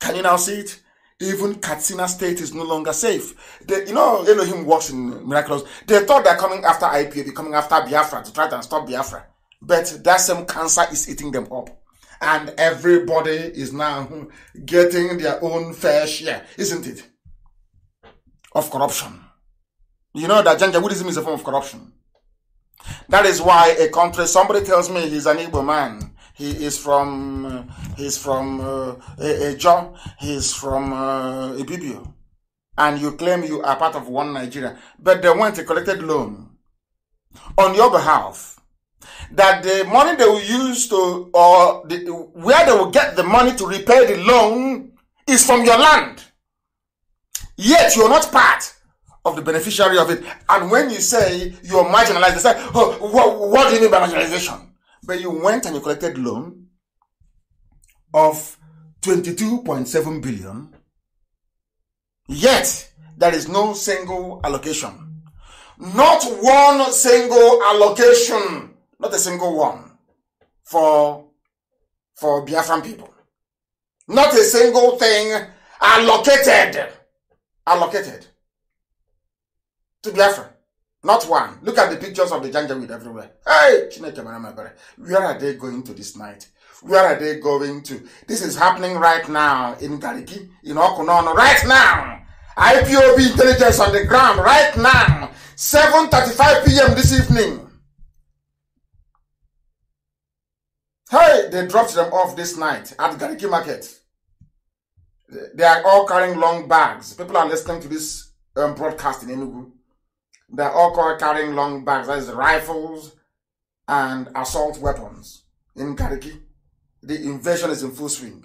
Can you now see it? Even Katsina State is no longer safe. They, you know, Elohim works in miracles. They thought they're coming after they're coming after Biafra to try and stop Biafra. But that same cancer is eating them up. And everybody is now getting their own fair share, isn't it? Of corruption. You know that Janjaweedism is a form of corruption. That is why a country, somebody tells me he's an able man. He is from he's from uh, a, He's from uh, Ibibio, and you claim you are part of one Nigeria, but they went a collected loan on your behalf. That the money they will use to or the, where they will get the money to repay the loan is from your land. Yet you are not part of the beneficiary of it. And when you say you're marginalized, they say, oh, what do you mean by marginalization? But you went and you collected loan of 22.7 billion. Yet there is no single allocation. Not one single allocation. Not a single one for, for Biafran people. Not a single thing allocated. Allocated to Biafra. Not one. Look at the pictures of the Janjaweed everywhere. Hey, where are they going to this night? Where are they going to? This is happening right now in Gariki, in Okunono, right now. IPOB intelligence on the ground right now. 7.35 p.m. this evening. Hey, they dropped them off this night at Gariki Market. They are all carrying long bags. People are listening to this um, broadcast in Enugu. They're all carrying long bags, that is rifles and assault weapons in Kariki. The invasion is in full swing.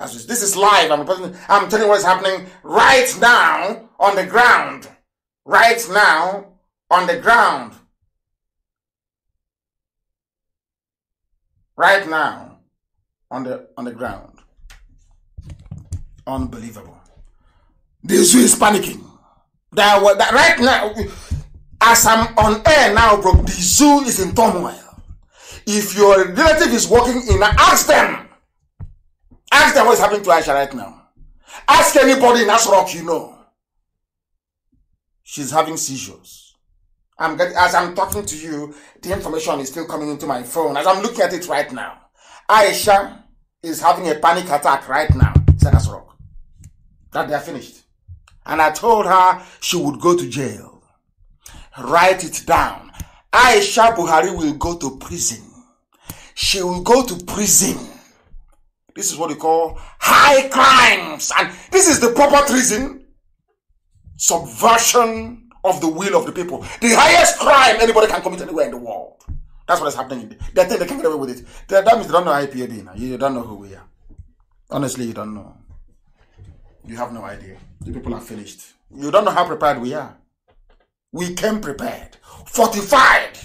this is live. I'm, I'm telling you what's happening right now on the ground. Right now on the ground. Right now on the on the ground. Unbelievable. This is panicking. That, that right now as I'm on air now, bro, the zoo is in turmoil. If your relative is working in, ask them. Ask them what's happening to Aisha right now. Ask anybody in Asrock you know. She's having seizures. I'm getting, as I'm talking to you, the information is still coming into my phone. As I'm looking at it right now, Aisha is having a panic attack right now. Said Asrock. That they're finished. And I told her she would go to jail. Write it down. Aisha Buhari will go to prison. She will go to prison. This is what we call high crimes. And this is the proper treason. Subversion of the will of the people. The highest crime anybody can commit anywhere in the world. That's what is happening. They think they can get away with it. That, means they don't know IPOB now. You don't know who we are. Honestly, you don't know. You have no idea. The people are finished. You don't know how prepared we are we came prepared, fortified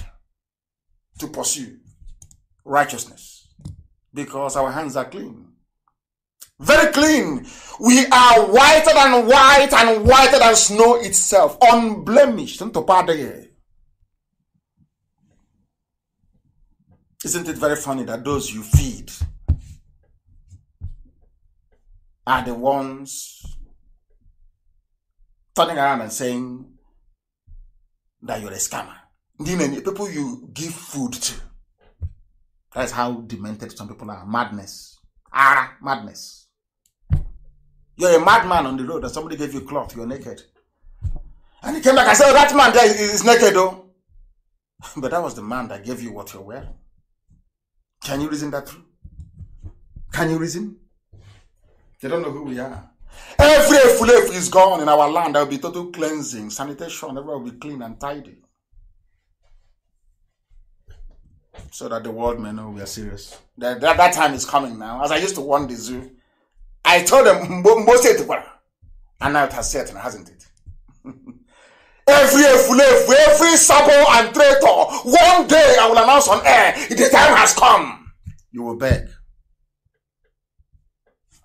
to pursue righteousness because our hands are clean. Very clean. We are whiter than white and whiter than snow itself, unblemished. Isn't it very funny that those you feed are the ones turning around and saying, that you're a scammer. The people you give food to. That's how demented some people are. Madness. Ah, madness. You're a madman on the road and somebody gave you cloth, you're naked. And he came back and said, oh, that man there is, naked though. Oh. but that was the man that gave you what you're wearing. Can you reason that through? Can you reason? They don't know who we are. Every efulefu is gone in our land. There will be total cleansing, sanitation. Everyone will be clean and tidy. So that the world may know we are serious. That, that, that time is coming now. As I used to warn the zoo, I told them, Mbose And now it has set, hasn't it? every efulefu, every sabo and traitor, one day I will announce on air, the time has come. You will beg.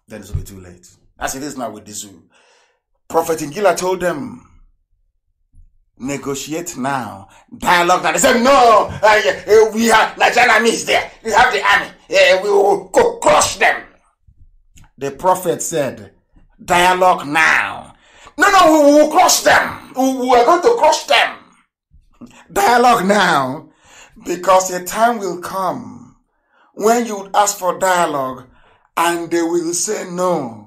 Then it will be too late. As it is now with the zoo. Prophet Ingila told them, negotiate now. Dialogue now. They said, no, uh, uh, we have Nigerian is there. We have the army. Uh, we will crush them. The prophet said, dialogue now. No, no, we will crush them. We are going to crush them. Dialogue now. Because a time will come when you ask for dialogue and they will say no.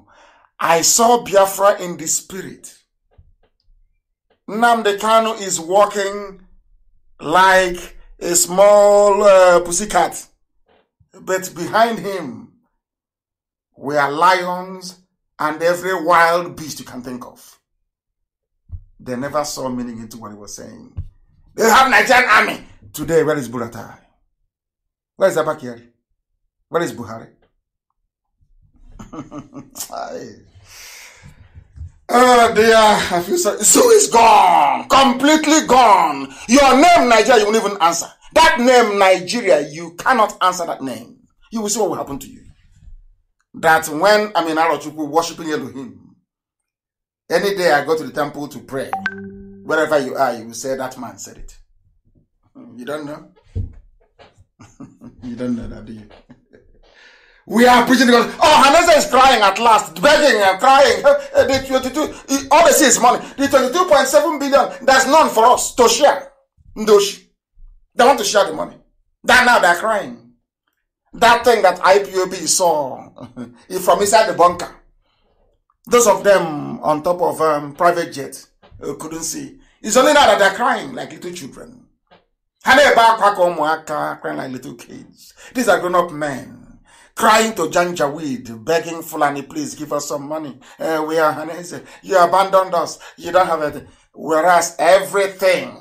I saw Biafra in the spirit. Namde Kanu is walking like a small uh, pussycat, but behind him were lions and every wild beast you can think of. They never saw meaning into what he was saying. They have Nigerian army. Today, where is Buratai? Where is Abakiri? Where is Buhari? oh dear, I feel sorry. So is gone, completely gone. Your name, Nigeria, you won't even answer. That name, Nigeria, you cannot answer that name. You will see what will happen to you. That when I'm in Arochukwu worshiping Elohim, any day I go to the temple to pray, wherever you are, you will say, That man said it. Hmm, you don't know? you don't know that, do you? We are preaching because, oh, Hanessa is crying at last, begging and crying. Eh, the 22, all they see is money. The 22.7 billion, there's none for us to share. Ndoshi. They want to share the money. That now they're crying. That thing that IPOB saw from inside the bunker. Those of them on top of um, private jet uh, couldn't see. It's only now that they're crying like little children. Hannah crying like little kids. These are grown-up men crying to Janjaweed, begging Fulani, please give us some money. Uh, we are You abandoned us. You don't have it. Whereas everything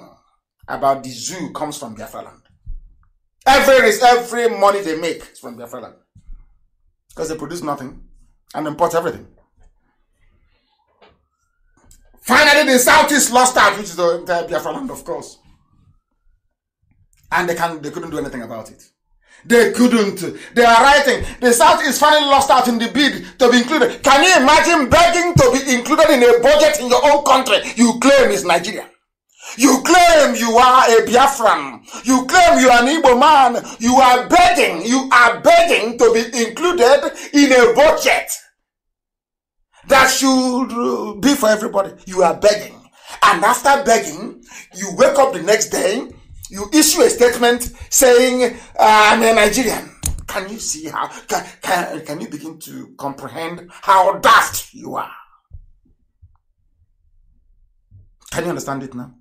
about the zoo comes from Biafra land. Every, every money they make is from Biafra land. Because they produce nothing and import everything. Finally, the Southeast lost out, which is the entire Biafra land, of course. And they, can, they couldn't do anything about it. They couldn't. They are writing. The South is finally lost out in the bid to be included. Can you imagine begging to be included in a budget in your own country you claim is Nigeria? You claim you are a Biafran. You claim you are an Igbo man. You are begging. You are begging to be included in a budget that should be for everybody. You are begging. And after begging, you wake up the next day you issue a statement saying, I'm a Nigerian. Can you see how, can, can, can you begin to comprehend how daft you are? Can you understand it now?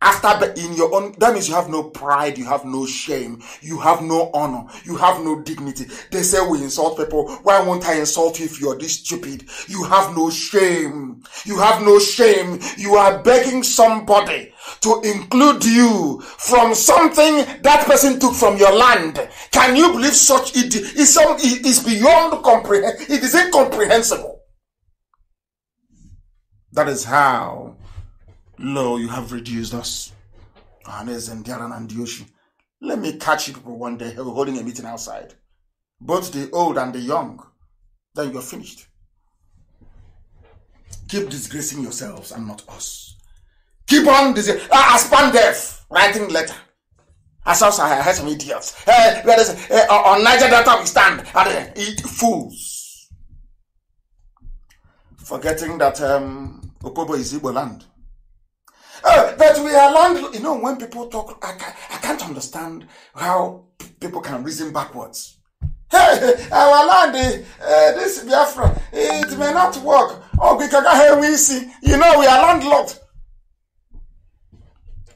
after in your own that means you have no pride you have no shame you have no honor you have no dignity they say we insult people why won't i insult you if you're this stupid you have no shame you have no shame you are begging somebody to include you from something that person took from your land can you believe such it is some it is beyond comprehend it is incomprehensible that is how Lo, you have reduced us. Anes and and Yoshi. Let me catch you people one day holding a meeting outside. Both the old and the young. Then you're finished. Keep disgracing yourselves and not us. Keep on disgracing. Uh, death writing letter. As I heard some idiots. Hey, uh, where is, hey, uh, on Niger Delta we stand. And, uh, fools. Forgetting that um, Opobo is Igbo land that uh, we are land, You know, when people talk, I, I can't understand how people can reason backwards. Hey, our land, uh, this Biafra, it may not work. Oh, we can because we see, you know, we are landlocked.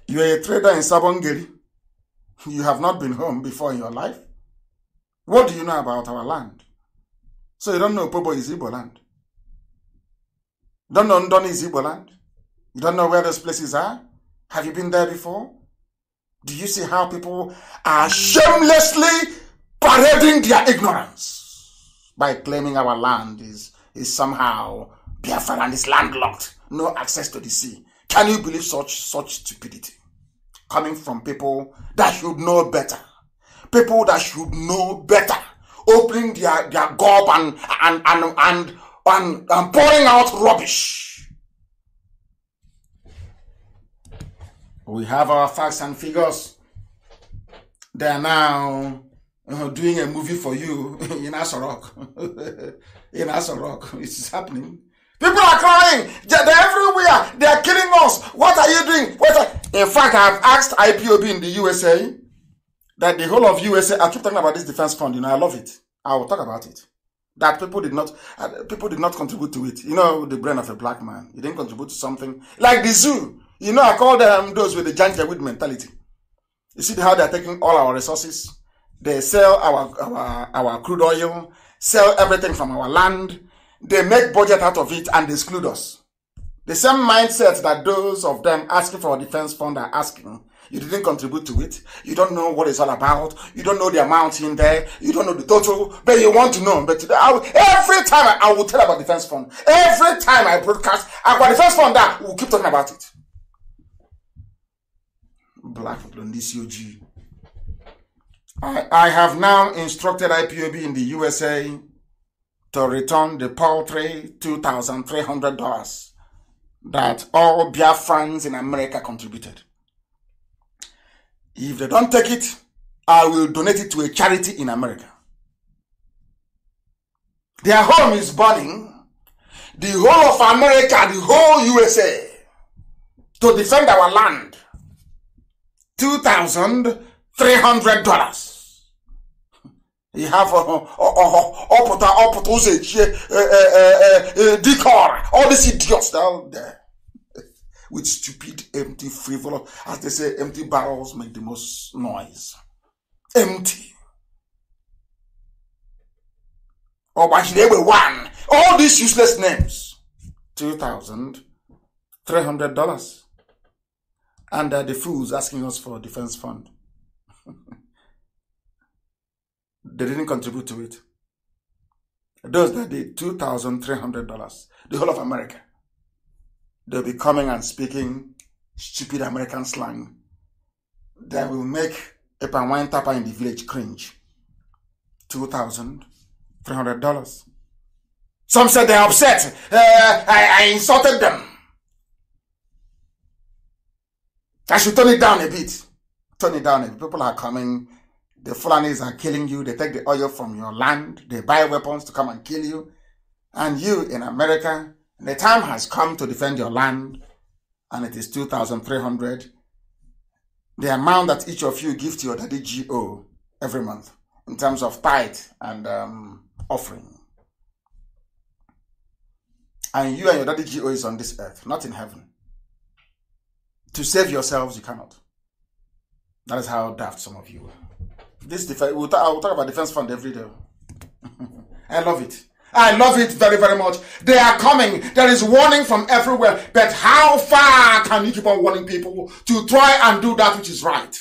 You are a trader in Sabongeri. You have not been home before in your life. What do you know about our land? So you don't know Pobo is Igbo land. Don't know Ndon is Igbo land. You don't know where those places are? Have you been there before? Do you see how people are shamelessly parading their ignorance by claiming our land is, is somehow Biafra and is landlocked, no access to the sea? Can you believe such such stupidity coming from people that should know better? People that should know better, opening their, their gob and and and and, and, and pouring out rubbish We have our facts and figures. They are now uh, doing a movie for you in Asorok. in Asorok. It's happening. People are crying. They're everywhere. They're killing us. What are you doing? What are... In fact, I've asked IPOB in the USA that the whole of USA, I keep talking about this defense fund, you know, I love it. I will talk about it. That people did not, uh, people did not contribute to it. You know, the brain of a black man. He didn't contribute to something. Like the zoo. You know, I call them those with the Janjaweed mentality. You see how they're taking all our resources. They sell our, our, our crude oil, sell everything from our land. They make budget out of it and exclude us. The same mindset that those of them asking for a defense fund are asking. You didn't contribute to it. You don't know what it's all about. You don't know the amount in there. You don't know the total, but you want to know. But today, will, every time I, I, will tell about defense fund, every time I broadcast about defense fund, that we'll keep talking about it. Black on this ojii I, I have now instructed IPOB in the USA to return the paltry $2,300 that all Biafrans in America contributed. If they don't take it, I will donate it to a charity in America. Their home is burning. The whole of America, the whole USA, to defend our land. $2,300. You have a, ọpụta ọpụta ụzọ echie dike ọra all these idiots down there with stupid empty frivolous as they say empty barrels make the most noise empty ọgbachiri oh, egbe one all these useless names $2,300 and uh, the fools asking us for a defense fund. they didn't contribute to it. Those that did $2,300, the whole of America, they'll be coming and speaking stupid American slang that will make a wine tapper in the village cringe. $2,300. Some said they're upset. Uh, I, I insulted them. I should turn it down a bit. Turn it down. If people are coming, the Fulanis are killing you. They take the oil from your land. They buy weapons to come and kill you. And you in America, the time has come to defend your land, and it is 2,300. The amount that each of you give to your daddy GO every month in terms of tithe and um, offering. And you and your daddy GO is on this earth, not in heaven to save yourselves, you cannot. That is how daft some of you are. This defense, we'll ta- I will talk about defense fund every day. I love it. I love it very, very much. They are coming. There is warning from everywhere. But how far can you keep on warning people to try and do that which is right?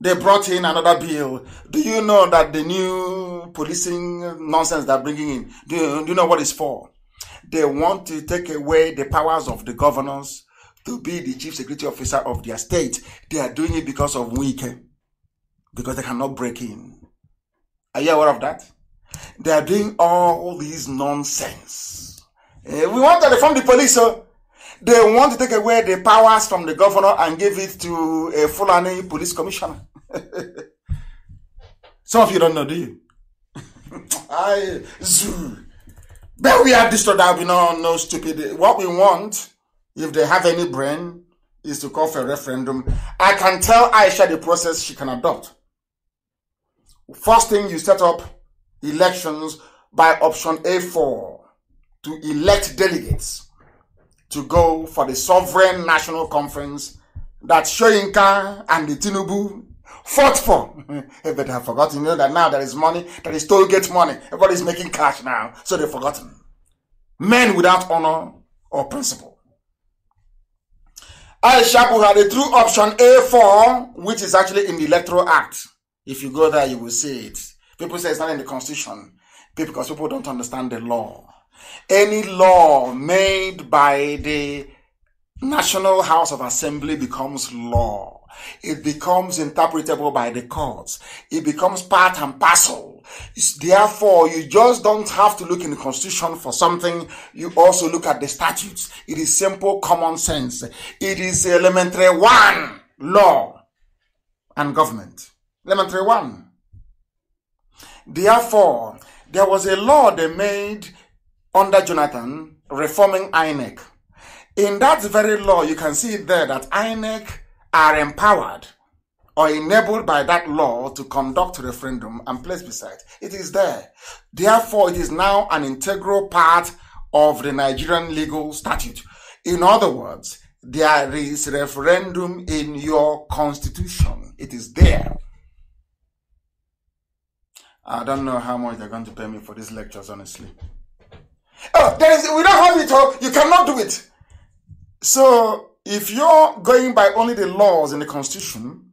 They brought in another bill. Do you know that the new policing nonsense they're bringing in? Do you, do you know what it's for? They want to take away the powers of the governors to be the chief security officer of their state. They are doing it because of weak, because they cannot break in. Are you aware of that? They are doing all these nonsense. Eh, we want to reform the police, so oh. they want to take away the powers from the governor and give it to a Fulani police commissioner. Some of you don't know, do you? I zoo. But we have this that we know no stupid. What we want if they have any brain, is to call for a referendum. I can tell Aisha the process she can adopt. First thing, you set up elections by option A4 to elect delegates to go for the sovereign national conference that Shoyinka and the Tinubu fought for. Everybody have forgotten. You know that now there is money, there is toll gate money. Everybody is making cash now, so they've forgotten. Men without honor or principle had a true option A4, which is actually in the Electoral Act. If you go there, you will see it. People say it's not in the Constitution because people don't understand the law. Any law made by the National House of Assembly becomes law. It becomes interpretable by the courts. It becomes part and parcel Therefore, you just don't have to look in the constitution for something. You also look at the statutes. It is simple common sense. It is elementary one law and government. Elementary one. Therefore, there was a law they made under Jonathan reforming INEC. In that very law, you can see there that INEC are empowered or enabled by that law to conduct referendum and place beside. It is there. Therefore, it is now an integral part of the Nigerian legal statute. In other words, there is referendum in your constitution. It is there. I don't know how much they're going to pay me for these lectures, honestly. Oh, there is, we don't have it, all. Oh. you cannot do it. So, if you're going by only the laws in the constitution,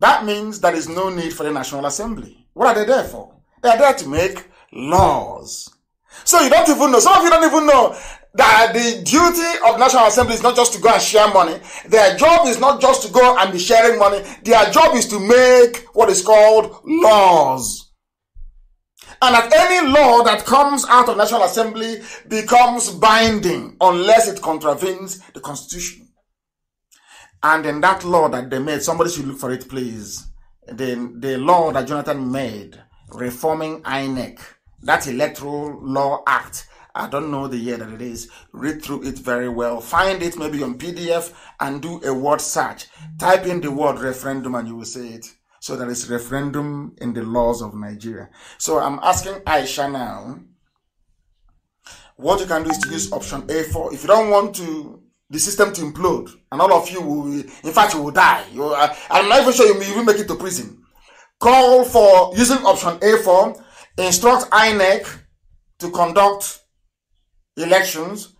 that means there is no need for the National Assembly. What are they there for? They are there to make laws. So you don't even know. Some of you don't even know that the duty of National Assembly is not just to go and share money. Their job is not just to go and be sharing money. Their job is to make what is called laws. And that any law that comes out of National Assembly becomes binding unless it contravenes the Constitution. And then that law that they made, somebody should look for it, please. The, the law that Jonathan made, reforming INEC, that Electoral Law Act. I don't know the year that it is. Read through it very well. Find it maybe on PDF and do a word search. Type in the word referendum and you will see it. So there is referendum in the laws of Nigeria. So I'm asking Aisha now. What you can do is to use option A4. If you don't want to the system to implode, and all of you will, in fact, you will die. You, uh, I'm not even sure you will even make it to prison. Call for using option A for instruct INEC to conduct elections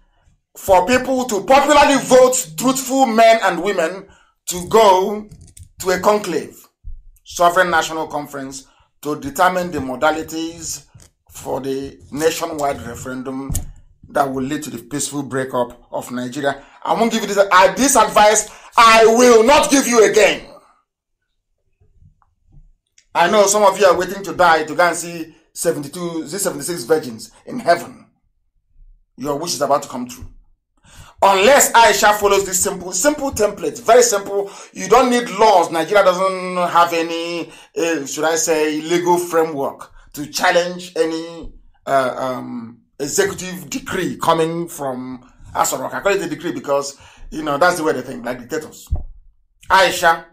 for people to popularly vote truthful men and women to go to a conclave, sovereign national conference, to determine the modalities for the nationwide referendum that will lead to the peaceful breakup of Nigeria I won't give you this, this advice. I will not give you again. I know some of you are waiting to die to go and see 72, 76 virgins in heaven. Your wish is about to come true. Unless Aisha follows this simple, simple template, very simple. You don't need laws. Nigeria doesn't have any, uh, should I say, legal framework to challenge any uh, um, executive decree coming from as rock. I call it a decree because, you know, that's the way they think, like dictators. Aisha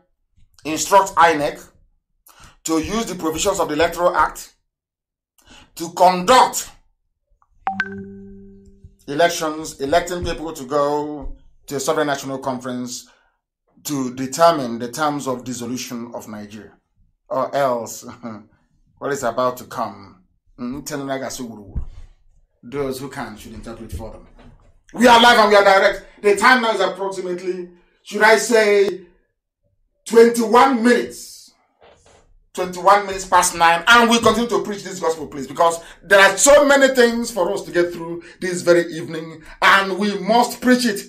instructs INEC to use the provisions of the Electoral Act to conduct elections, electing people to go to a sovereign national conference to determine the terms of dissolution of Nigeria, or else what is about to come. Hmm, Those who can should interpret for them. We are live and we are direct. The time now is approximately, should I say, 21 minutes. 21 minutes past 9. And we continue to preach this gospel, please, because there are so many things for us to get through this very evening, and we must preach it.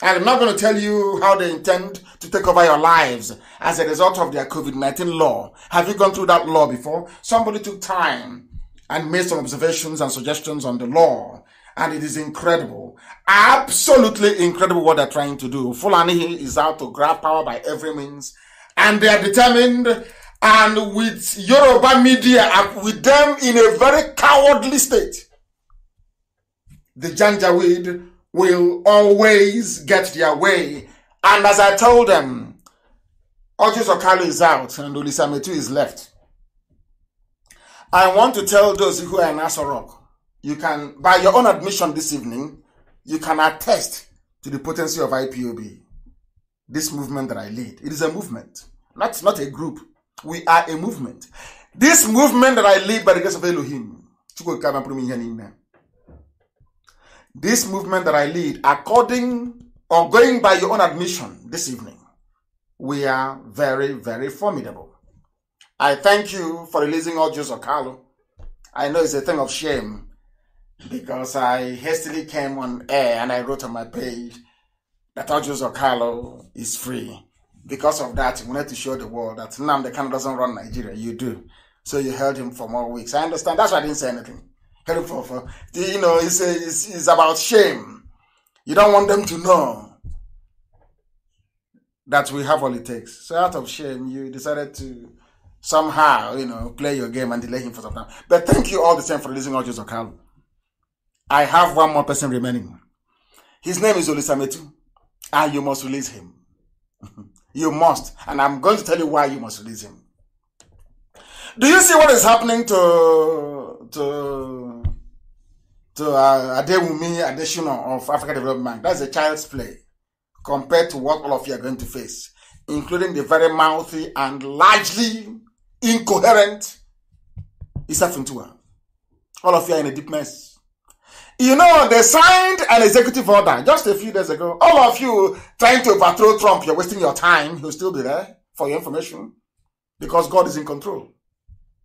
And I'm not going to tell you how they intend to take over your lives as a result of their COVID-19 law. Have you gone through that law before? Somebody took time and made some observations and suggestions on the law and it is incredible. Absolutely incredible what they're trying to do. Fulani is out to grab power by every means, and they are determined. And with Yoruba media, with them in a very cowardly state, the Janjaweed will always get their way. And as I told them, Ojus Okalu is out and Ulisametu is left. I want to tell those who are in Asorok you can, by your own admission this evening, you can attest to the potency of IPOB, this movement that I lead. It is a movement, not, not a group. We are a movement. This movement that I lead by the grace of Elohim, this movement that I lead, according or going by your own admission this evening, we are very, very formidable. I thank you for releasing all Joseph Carlo. I know it's a thing of shame because I hastily came on air and I wrote on my page that Audios Okalo is free. Because of that, we wanted to show the world that the Kanu doesn't run Nigeria, you do. So you held him for more weeks. I understand. That's why I didn't say anything. Held him for, for you know, it's, it's, it's about shame. You don't want them to know that we have all it takes. So out of shame, you decided to somehow, you know, play your game and delay him for some time. But thank you all the same for releasing Audios Okalo. I have one more person remaining. His name is Olisametu, and ah, you must release him. you must, and I'm going to tell you why you must release him. Do you see what is happening to to to uh, Adewumi of Africa Development That's a child's play compared to what all of you are going to face, including the very mouthy and largely incoherent Isafintua. All of you are in a deep mess. You know, they signed an executive order just a few days ago. All of you trying to overthrow Trump, you're wasting your time. He'll still be there for your information because God is in control.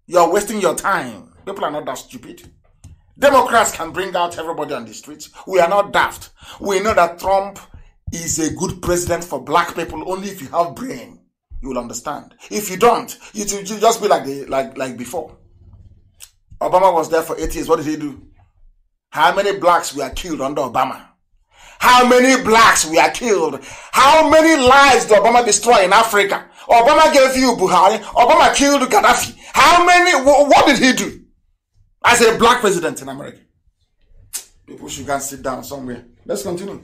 You're wasting your time. People are not that stupid. Democrats can bring out everybody on the streets. We are not daft. We know that Trump is a good president for black people only if you have brain. You will understand. If you don't, you just be like the, like like before. Obama was there for eight years. What did he do? How many blacks were killed under Obama? How many blacks were killed? How many lives did Obama destroy in Africa? Obama gave you Buhari. Obama killed Gaddafi. How many, what did he do? As a black president in America. People should go sit down somewhere. Let's continue.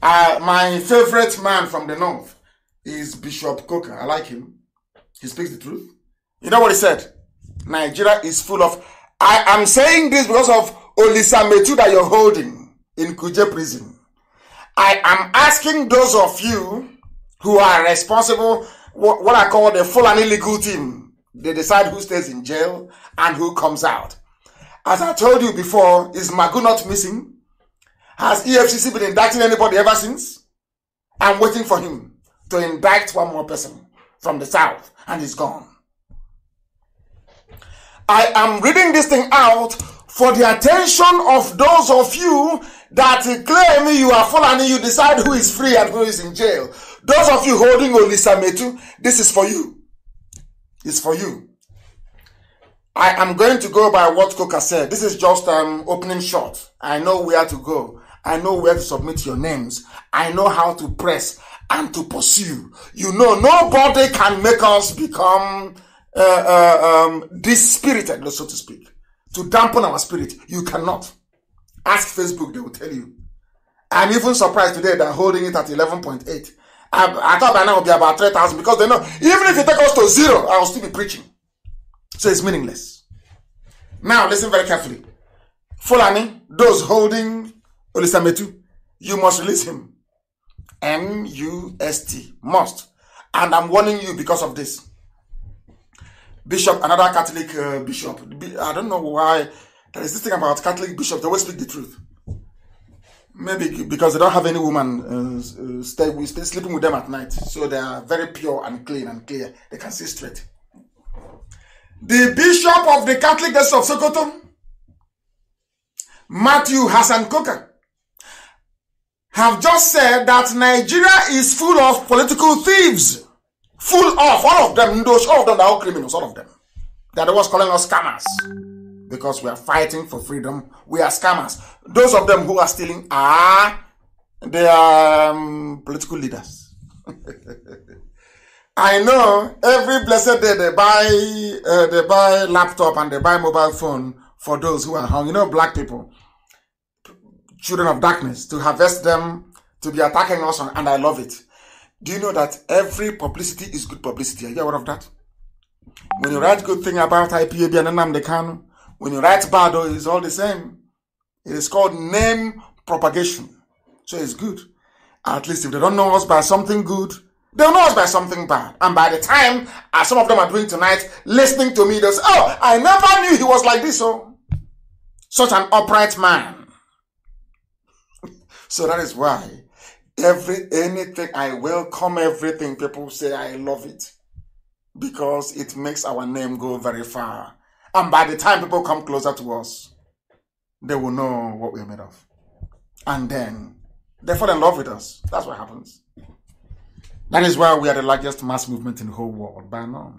Uh, my favorite man from the North is Bishop Coker. I like him. He speaks the truth. You know what he said? Nigeria is full of. I am saying this because of Olisametu that you're holding in Kuje prison, I am asking those of you who are responsible, what, what I call the full and illegal team. They decide who stays in jail and who comes out. As I told you before, is Magu not missing? Has EFCC been indicting anybody ever since? I'm waiting for him to indict one more person from the south, and he's gone. I am reading this thing out for the attention of those of you that claim you are fallen, you decide who is free and who is in jail. Those of you holding Olisametu, this is for you. It's for you. I am going to go by what Coca said. This is just um, opening shot. I know where to go. I know where to submit your names. I know how to press and to pursue. You know, nobody can make us become uh, uh, um, dispirited, so to speak to dampen our spirit. You cannot. Ask Facebook, they will tell you. I'm even surprised today they're holding it at 11.8. I, I thought by now it would be about 3,000 because they know even if you take us to zero, I will still be preaching. So it's meaningless. Now, listen very carefully. Fulani, those holding Olisametu, you must release him. M U S T, must. And I'm warning you because of this bishop, another Catholic uh, bishop. I don't know why there is this thing about Catholic bishops. They always speak the truth. Maybe because they don't have any woman uh, uh stay stay sleeping with them at night, so they are very pure and clean and clear. They can see straight. The bishop of the Catholic Diocese of Sokoto, Matthew Hassan Koka, have just said that Nigeria is full of political thieves. Full of all of them, those all of them are all criminals, all of them. They're the ones calling us scammers. Because we are fighting for freedom. We are scammers. Those of them who are stealing are they are um, political leaders. I know every blessed day they buy uh, they buy laptop and they buy mobile phone for those who are hung. You know, black people, children of darkness, to harvest them, to be attacking us, and I love it. Do you know that every publicity is good publicity? Are you aware of that? When you write good thing about IPAB and Anam can. when you write bad, oh, it's all the same. It is called name propagation. So it's good. At least if they don't know us by something good, they'll know us by something bad. And by the time, as some of them are doing tonight, listening to me, they'll say, Oh, I never knew he was like this. Oh, such an upright man. so that is why Every anything, I welcome everything. People say I love it because it makes our name go very far. And by the time people come closer to us, they will know what we're made of. And then they fall in love with us. That's what happens. That is why we are the largest mass movement in the whole world by now.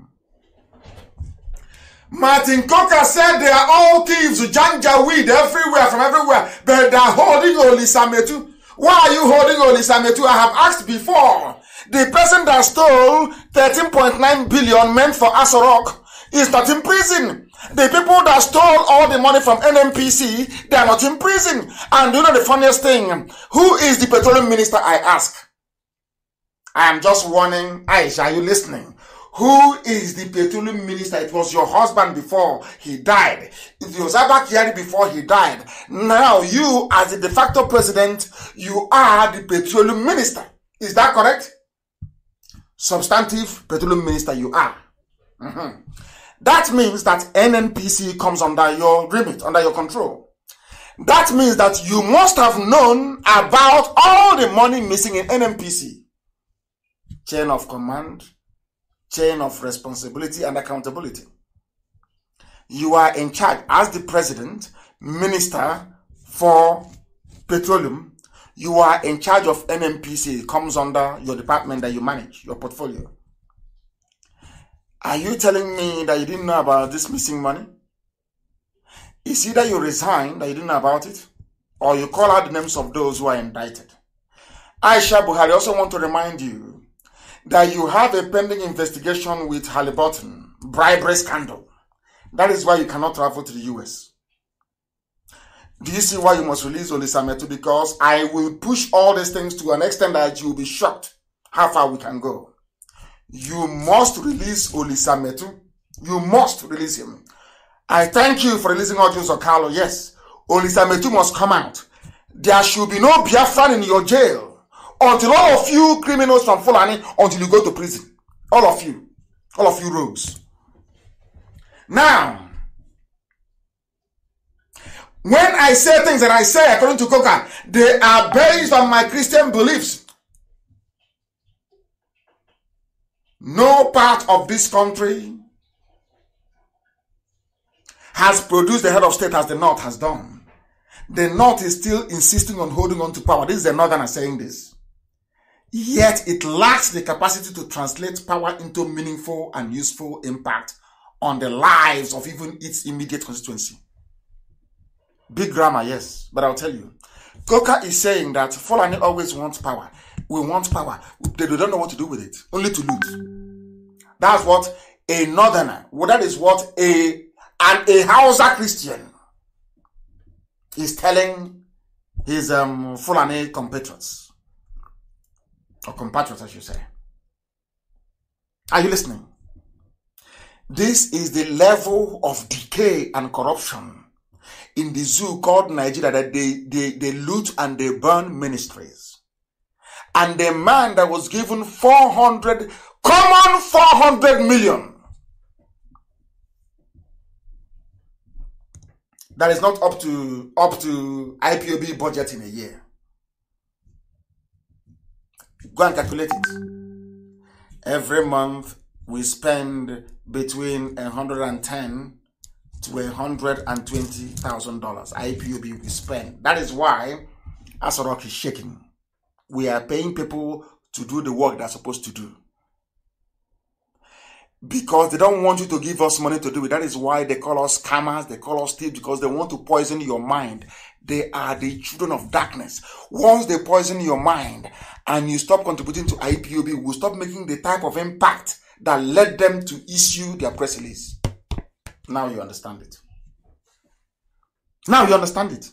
Martin Coker said they are all thieves, janjaweed everywhere, from everywhere, but they're holding Sametu. Why are you holding on Isametu? I have asked before. The person that stole 13.9 billion meant for Asorok is not in prison. The people that stole all the money from NMPC, they are not in prison. And you know the funniest thing? Who is the petroleum minister, I ask? I am just warning Aisha, are you listening? Who is the petroleum minister? It was your husband before he died. It was Abba before he died. Now you, as the de facto president, you are the petroleum minister. Is that correct? Substantive petroleum minister you are. Mm-hmm. That means that NNPC comes under your remit, under your control. That means that you must have known about all the money missing in NNPC. Chain of command chain of responsibility and accountability. You are in charge as the president, minister for petroleum. You are in charge of NMPC. It comes under your department that you manage, your portfolio. Are you telling me that you didn't know about this missing money? It's either you resign that you didn't know about it, or you call out the names of those who are indicted. Aisha Buhari also want to remind you that you have a pending investigation with Halliburton, bribery scandal. That is why you cannot travel to the US. Do you see why you must release Olisametu? Because I will push all these things to an extent that you will be shocked how far we can go. You must release Olisametu. You must release him. I thank you for releasing Odjun Sokalo. Yes, Olisametu must come out. There should be no Biafran in your jail. until all of you criminals from Fulani, until you go to prison. All of you. All of you rogues. Now, when I say things that I say according to Coca, they are based on my Christian beliefs. No part of this country has produced the head of state as the North has done. The North is still insisting on holding on to power. This is the Northern saying this yet it lacks the capacity to translate power into meaningful and useful impact on the lives of even its immediate constituency. Big grammar, yes, but I'll tell you. Coca is saying that Fulani always wants power. We want power. They don't know what to do with it, only to loot. That's what a northerner, well, that is what a and a Hausa Christian is telling his um, Fulani compatriots or compatriots, I should say. Are you listening? This is the level of decay and corruption in the zoo called Nigeria that they, they, they loot and they burn ministries. And the man that was given 400, common 400 million. That is not up to, up to IPOB budget in a year. Go and calculate it. Every month we spend between 110 to 120 thousand dollars. IPOB we spend. That is why Asorok is shaking. We are paying people to do the work they're supposed to do. because they don't want you to give us money to do it. That is why they call us scammers, they call us thieves because they want to poison your mind. They are the children of darkness. Once they poison your mind and you stop contributing to IPOB, we stop making the type of impact that led them to issue their press release. Now you understand it. Now you understand it.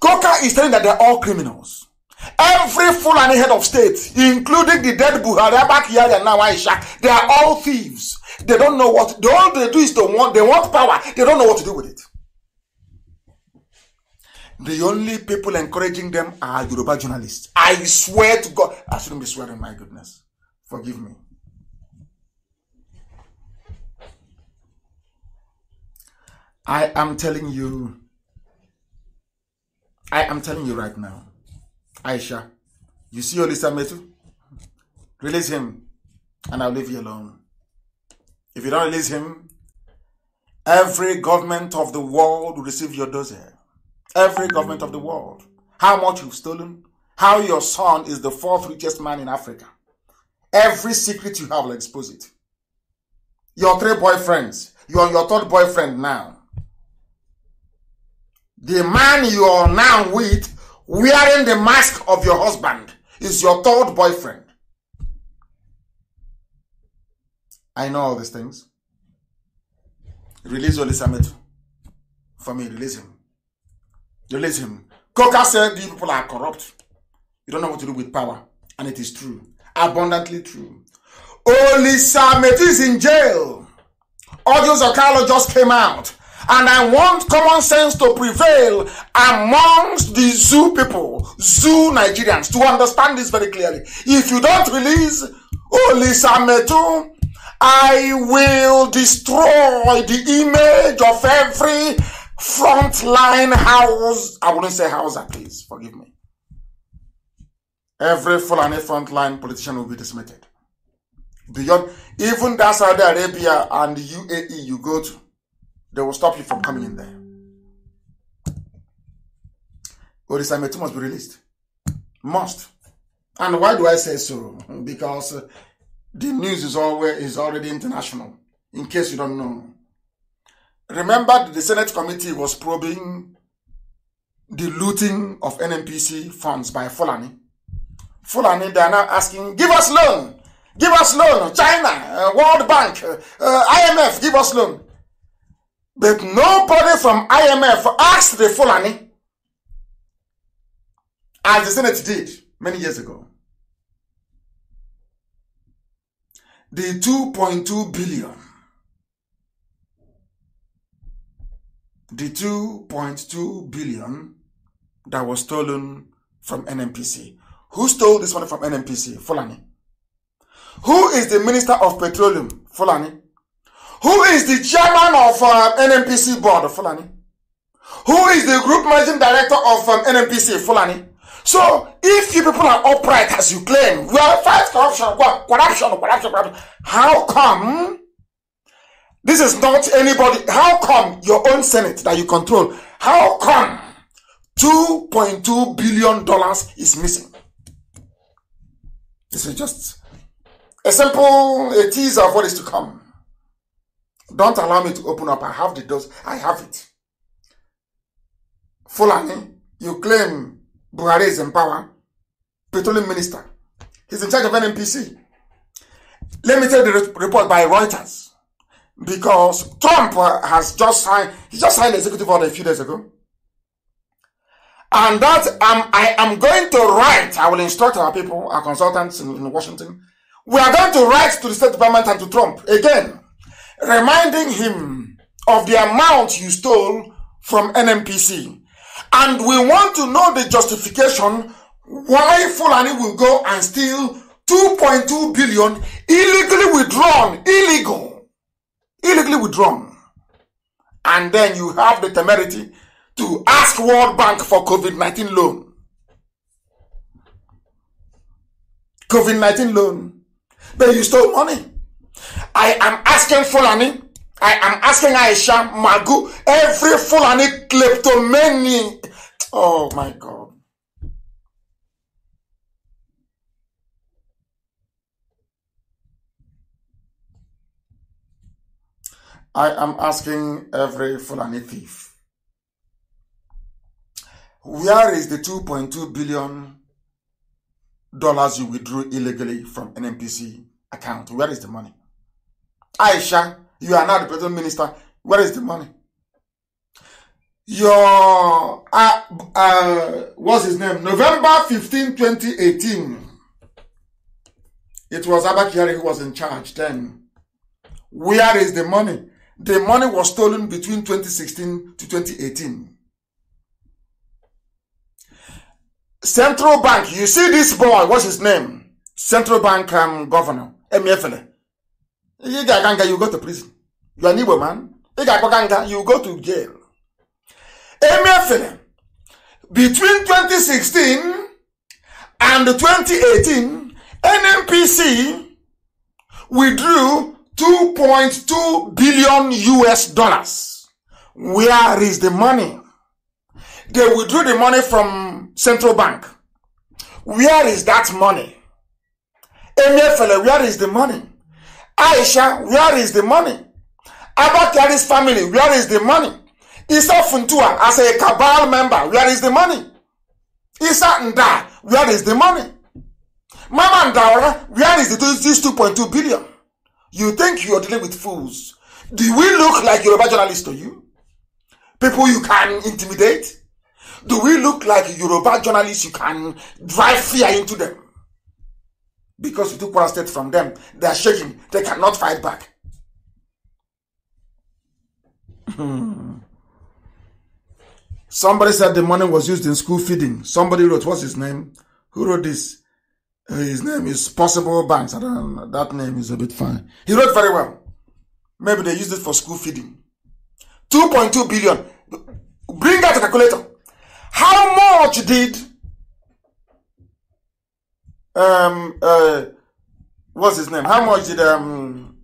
Coca is saying that they're all criminals. Every fool and head of state, including the dead Buhari, Abakiyari, and now Aisha, they are all thieves. They don't know what, they, all they do is they want, they want power. They don't know what to do with it. The only people encouraging them are Yoruba journalists. I swear to God. I shouldn't be swearing, my goodness. Forgive me. I am telling you, I am telling you right now, Aisha, you see Olisa Metu? Release him and I'll leave you alone. If you don't release him, every government of the world will receive your dossier. Every government of the world. How much you've stolen, how your son is the fourth richest man in Africa. Every secret you have will expose it. Your three boyfriends, you are your third boyfriend now. The man you are now with wearing the mask of your husband is your third boyfriend. I know all these things. Release Oli For me, release him. Release him. Coca said you people are corrupt. You don't know what to do with power. And it is true. Abundantly true. Oli Samet is in jail. Audio Zakalo just came out and I want common sense to prevail amongst the zoo people, zoo Nigerians, to understand this very clearly. If you don't release Metu, I will destroy the image of every frontline house. I wouldn't say house, please forgive me. Every Fulani frontline politician will be dismissed. Beyond even that Saudi Arabia and UAE you go to, they will stop you from coming in there. Or Odisametu must be released. Must. And why do I say so? Because uh, the news is always is already international, in case you don't know. Remember the Senate committee was probing the looting of NMPC funds by Fulani. Fulani, they are now asking, give us loan, give us loan, China, uh, World Bank, uh, uh IMF, give us loan. But nobody from IMF asked the Fulani as the Senate did many years ago. The 2.2 billion. The 2.2 billion that was stolen from NMPC. Who stole this money from NMPC? Fulani. Who is the Minister of Petroleum? Fulani. Who is the chairman of um, NMPC board, Fulani? Who is the group managing director of um, NMPC, Fulani? So, if you people are upright as you claim, we are fighting corruption, corruption, corruption, corruption. How come this is not anybody? How come your own Senate that you control? How come $2.2 billion is missing? This is just a simple a teaser of what is to come. Don't allow me to open up. I have the dose. I have it. Fulani, you claim Buhari is in power. Petroleum minister. He's in charge of NMPC. Let me tell the report by Reuters. Because Trump uh, has just signed, he just signed executive order a few days ago. And that um, I am going to write, I will instruct our people, our consultants in, in Washington. We are going to write to the State Department and to Trump again reminding him of the amount you stole from NMPC. And we want to know the justification why Fulani will go and steal 2.2 billion illegally withdrawn, illegal, illegally withdrawn. And then you have the temerity to ask World Bank for COVID-19 loan. COVID-19 loan. But you stole money. I am asking Fulani, I am asking Aisha, Magu, every Fulani kleptomani. Oh my God. I am asking every Fulani thief. Where is the 2.2 billion dollars you withdrew illegally from NMPC account? Where is the money? Aisha, you are now the president minister. Where is the money? Your, uh, uh, what's his name? November 15, 2018. It was Abakari who was in charge then. Where is the money? The money was stolen between 2016 to 2018. Central Bank, you see this boy, what's his name? Central Bank um, governor, Emiefele. Ị ga-aga nga you go to prison. You are an Igbo man. Ị ga-agbaga nga you go to jail. Emefere between 2016 and 2018 NNPC withdrew 2.2 billion US dollars. Where is the money? They withdrew the money from central bank. Where is that money? Emefele, where is the money? Aisha, where is the money? Abba Kyari's family, where is the money? Isa Funtua, as a cabal member, where is the money? Isa Nda, where is the money? Mama Ndaura, where is the, this 2.2 billion? You think you're dealing with fools. Do we look like Yoruba journalists to you? People you can intimidate? Do we look like Yoruba journalists you can drive fear into them? Because you took one step from them, they are shaking. They cannot fight back. Hmm. Somebody said the money was used in school feeding. Somebody wrote, what's his name? Who wrote this? Uh, his name is Possible Banks. I don't know. That name is a bit fine. He wrote very well. Maybe they used it for school feeding. 2.2 billion. Bring out the calculator. How much did um uh what's his name? How much did um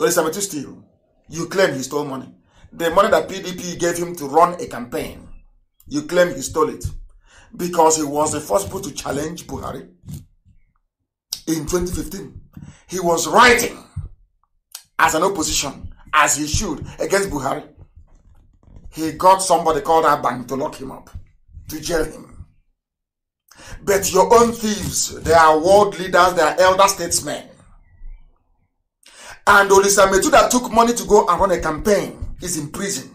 Elizabeth steal? You claim he stole money. The money that PDP gave him to run a campaign, you claim he stole it because he was the first person to challenge Buhari in 2015. He was writing as an opposition, as he should, against Buhari. He got somebody called Abang to lock him up, to jail him. But your own thieves, they are world leaders, they are elder statesmen. And Olisa Metu that took money to go and run a campaign is in prison.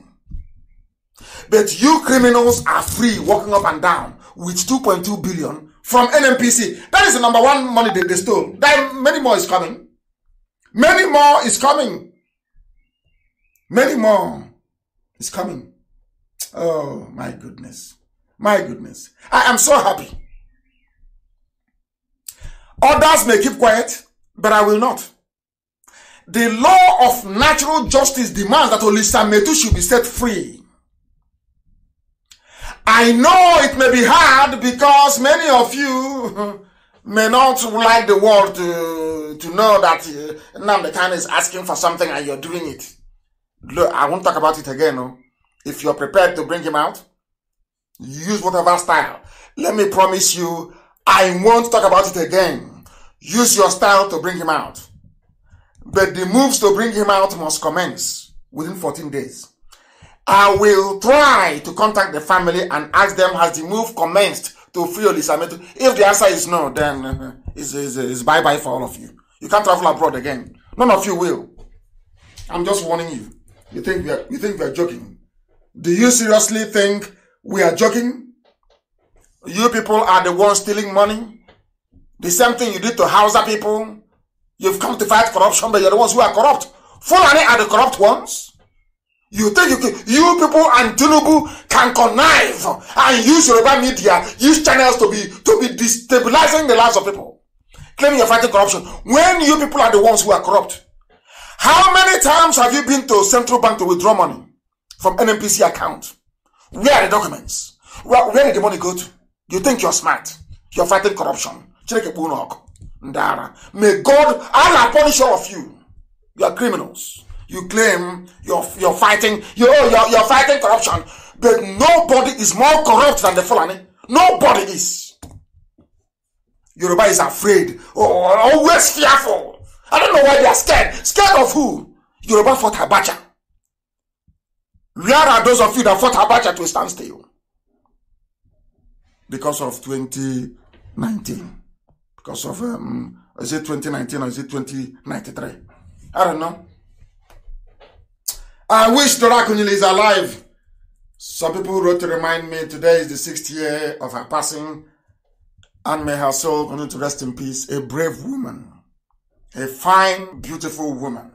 But you criminals are free walking up and down with 2.2 billion from NMPC. That is the number one money they, they stole. Then many more is coming. Many more is coming. Many more is coming. Oh my goodness. My goodness. I am so happy. Others may keep quiet, but I will not. The law of natural justice demands that Olisa Metu should be set free. I know it may be hard because many of you may not like the world to, to know that uh, Namdekan is asking for something and you're doing it. Look, I won't talk about it again. No? Oh. If you're prepared to bring him out, use whatever style. Let me promise you, I won't talk about it again. Use your style to bring him out. But the moves to bring him out must commence within 14 days. I will try to contact the family and ask them has the move commenced to free Olisameto. If the answer is no, then it's, it's bye bye for all of you. You can't travel abroad again. None of you will. I'm just warning you. You think we are, you think we are joking? Do you seriously think we are joking? You people are the ones stealing money. The same thing you did to Hausa people. You've come to fight corruption, but you're the ones who are corrupt. Fulani are the corrupt ones. You think you, can, you people and Tinubu can connive and use Yoruba media, use channels to be to be destabilizing the lives of people, claiming you're fighting corruption when you people are the ones who are corrupt. How many times have you been to central bank to withdraw money from NMPC account? Where are the documents? Where, where did the money go to? You think you're smart. You're fighting corruption. Ndara. May God, Allah punish all of you. You are criminals. You claim you're, you're fighting, you're, oh, you're, you're fighting corruption. But nobody is more corrupt than the Fulani. Nobody is. Yoruba is afraid. Oh, always fearful. I don't know why they are scared. Scared of who? Yoruba fought Abacha. Where are those of you that fought Abacha to a standstill? because of 2019. Because of, um, is it 2019 or is it 2093? I don't know. I wish Dorakunil is alive. Some people wrote to remind me today is the sixth year of her passing, and may her soul continue to rest in peace. A brave woman, a fine, beautiful woman,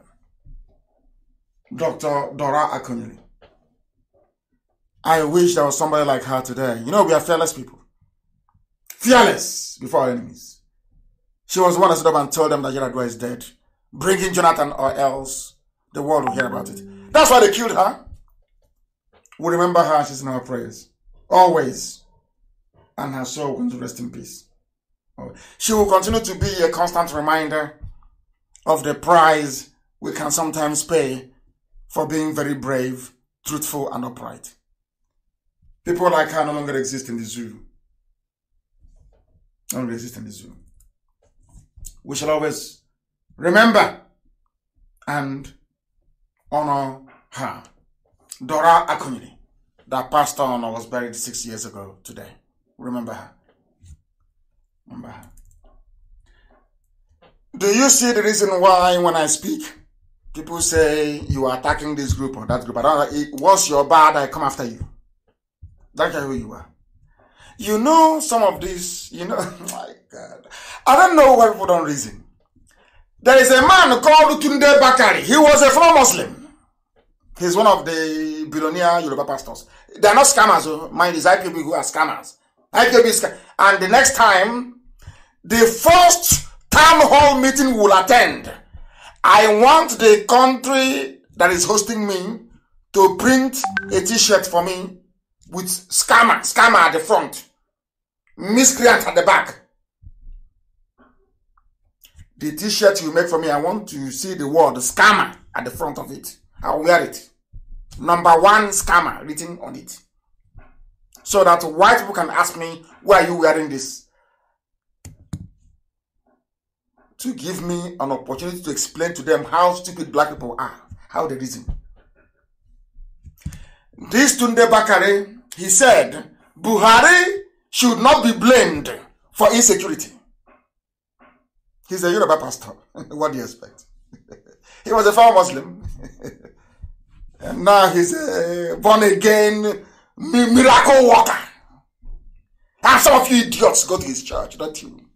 Dr. Dora Akunyili. I wish there was somebody like her today. You know, we are fearless people fearless before our enemies. She was one that stood up and told them that Jeradua is dead. Bring in Jonathan or else the world will hear about it. That's why they killed her. We remember her, she's in our prayers. Always. And her soul will rest in peace. Oh. She will continue to be a constant reminder of the price we can sometimes pay for being very brave, truthful, and upright. People like her no longer exist in the zoo and resist in this room. We shall always remember and honor her. Dora Akunyini, that passed on and was buried six years ago today. Remember her. Remember her. Do you see the reason why when I speak, people say you are attacking this group or that group? I don't, once you bad, I come after you. Don't care who you are. You know some of this, you know, my God. I don't know why people don't reason. There is a man called Tunde Bakari. He was a former Muslim. He's one of the billionaire Yoruba pastors. They are not scammers. Oh. Mind is IPB who are scammers. IPB is And the next time, the first town hall meeting will attend. I want the country that is hosting me to print a t-shirt for me with scammer, scammer at the front. miscreant at the back. The t-shirt you make for me, I want to see the word scammer at the front of it. I'll wear it. Number one scammer written on it. So that white people can ask me, why are you wearing this? To give me an opportunity to explain to them how stupid black people are, how they reason. This Tunde Bakare, he said, Buhari should not be blamed for insecurity. He's a Yoruba pastor. what do you expect? he was a former Muslim. and now he's a uh, born again miracle worker. And some of you idiots go to his church, not you.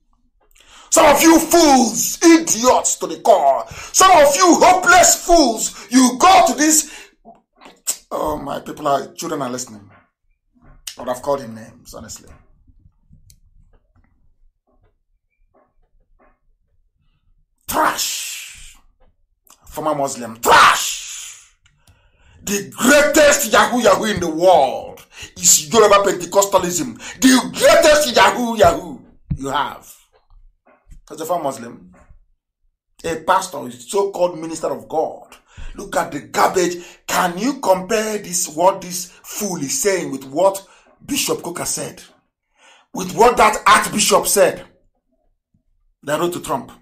Some of you fools, idiots to the core. Some of you hopeless fools, you go to this. Oh, my people are, children are listening. I would have called him names, honestly. trash. Former Muslim, trash. The greatest Yahoo Yahoo in the world is Yoruba Pentecostalism. The greatest Yahoo Yahoo you have. As a former Muslim, a pastor, a so-called minister of God, look at the garbage. Can you compare this what this fool is saying with what Bishop Coker said? With what that Archbishop said? that wrote to Trump.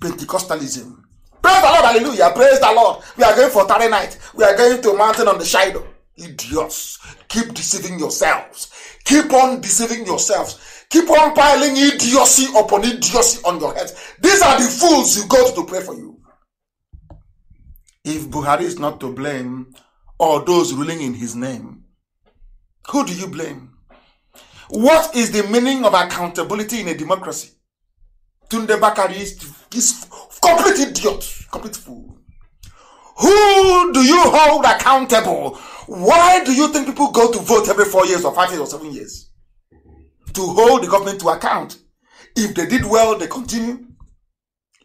Pentecostalism. Praise the Lord, hallelujah. Praise the Lord. We are going for Tarry night. We are going to a mountain on the Shiloh. Idiots. Keep deceiving yourselves. Keep on deceiving yourselves. Keep on piling idiocy upon idiocy on your heads. These are the fools you go to, pray for you. If Buhari is not to blame, or those ruling in his name, who do you blame? What is the meaning of accountability in a democracy? Tunde Bakari He's complete idiot, complete fool. Who do you hold accountable? Why do you think people go to vote every four years or five years or seven years? To hold the government to account. If they did well, they continue.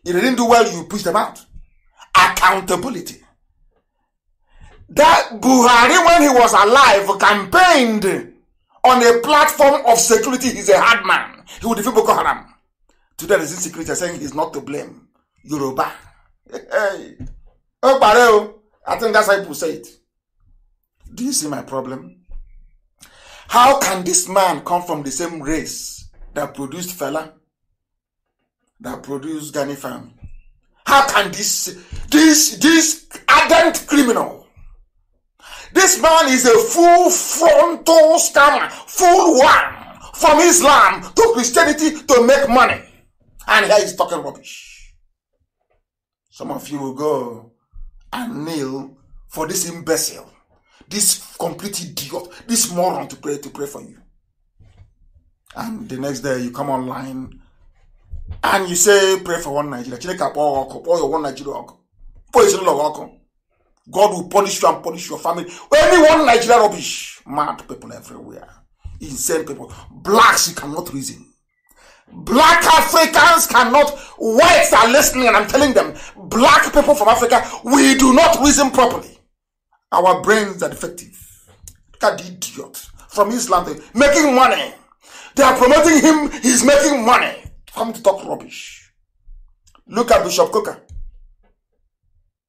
If they didn't do well, you push them out. Accountability. That Buhari, when he was alive, campaigned on a platform of security. He's a hard man. He would defeat Boko Haram. Today there is insecurity saying he's not to blame. Yoruba. Hey. Oh, oh. I think that's how people say it. Do you see my problem? How can this man come from the same race that produced fella that produced Gani Fam? How can this this this ardent criminal? This man is a full frontal scammer, full one from Islam to Christianity to make money. And here he's talking rubbish. Some of you will go and kneel for this imbecile, this complete idiot, this moron to pray to pray for you. And the next day you come online and you say, pray for one Nigeria. Chineke akpọ ọkụ, kpọọ your one Nigeria God will punish you and punish your family. Any one Nigeria rubbish. Mad people everywhere. Insane people. Blacks you cannot reason. Black Africans cannot. Whites are listening, and I'm telling them, black people from Africa, we do not reason properly. Our brains are defective. Look at the idiot from Islam, making money. They are promoting him, he's making money. Come to talk rubbish. Look at Bishop Coker.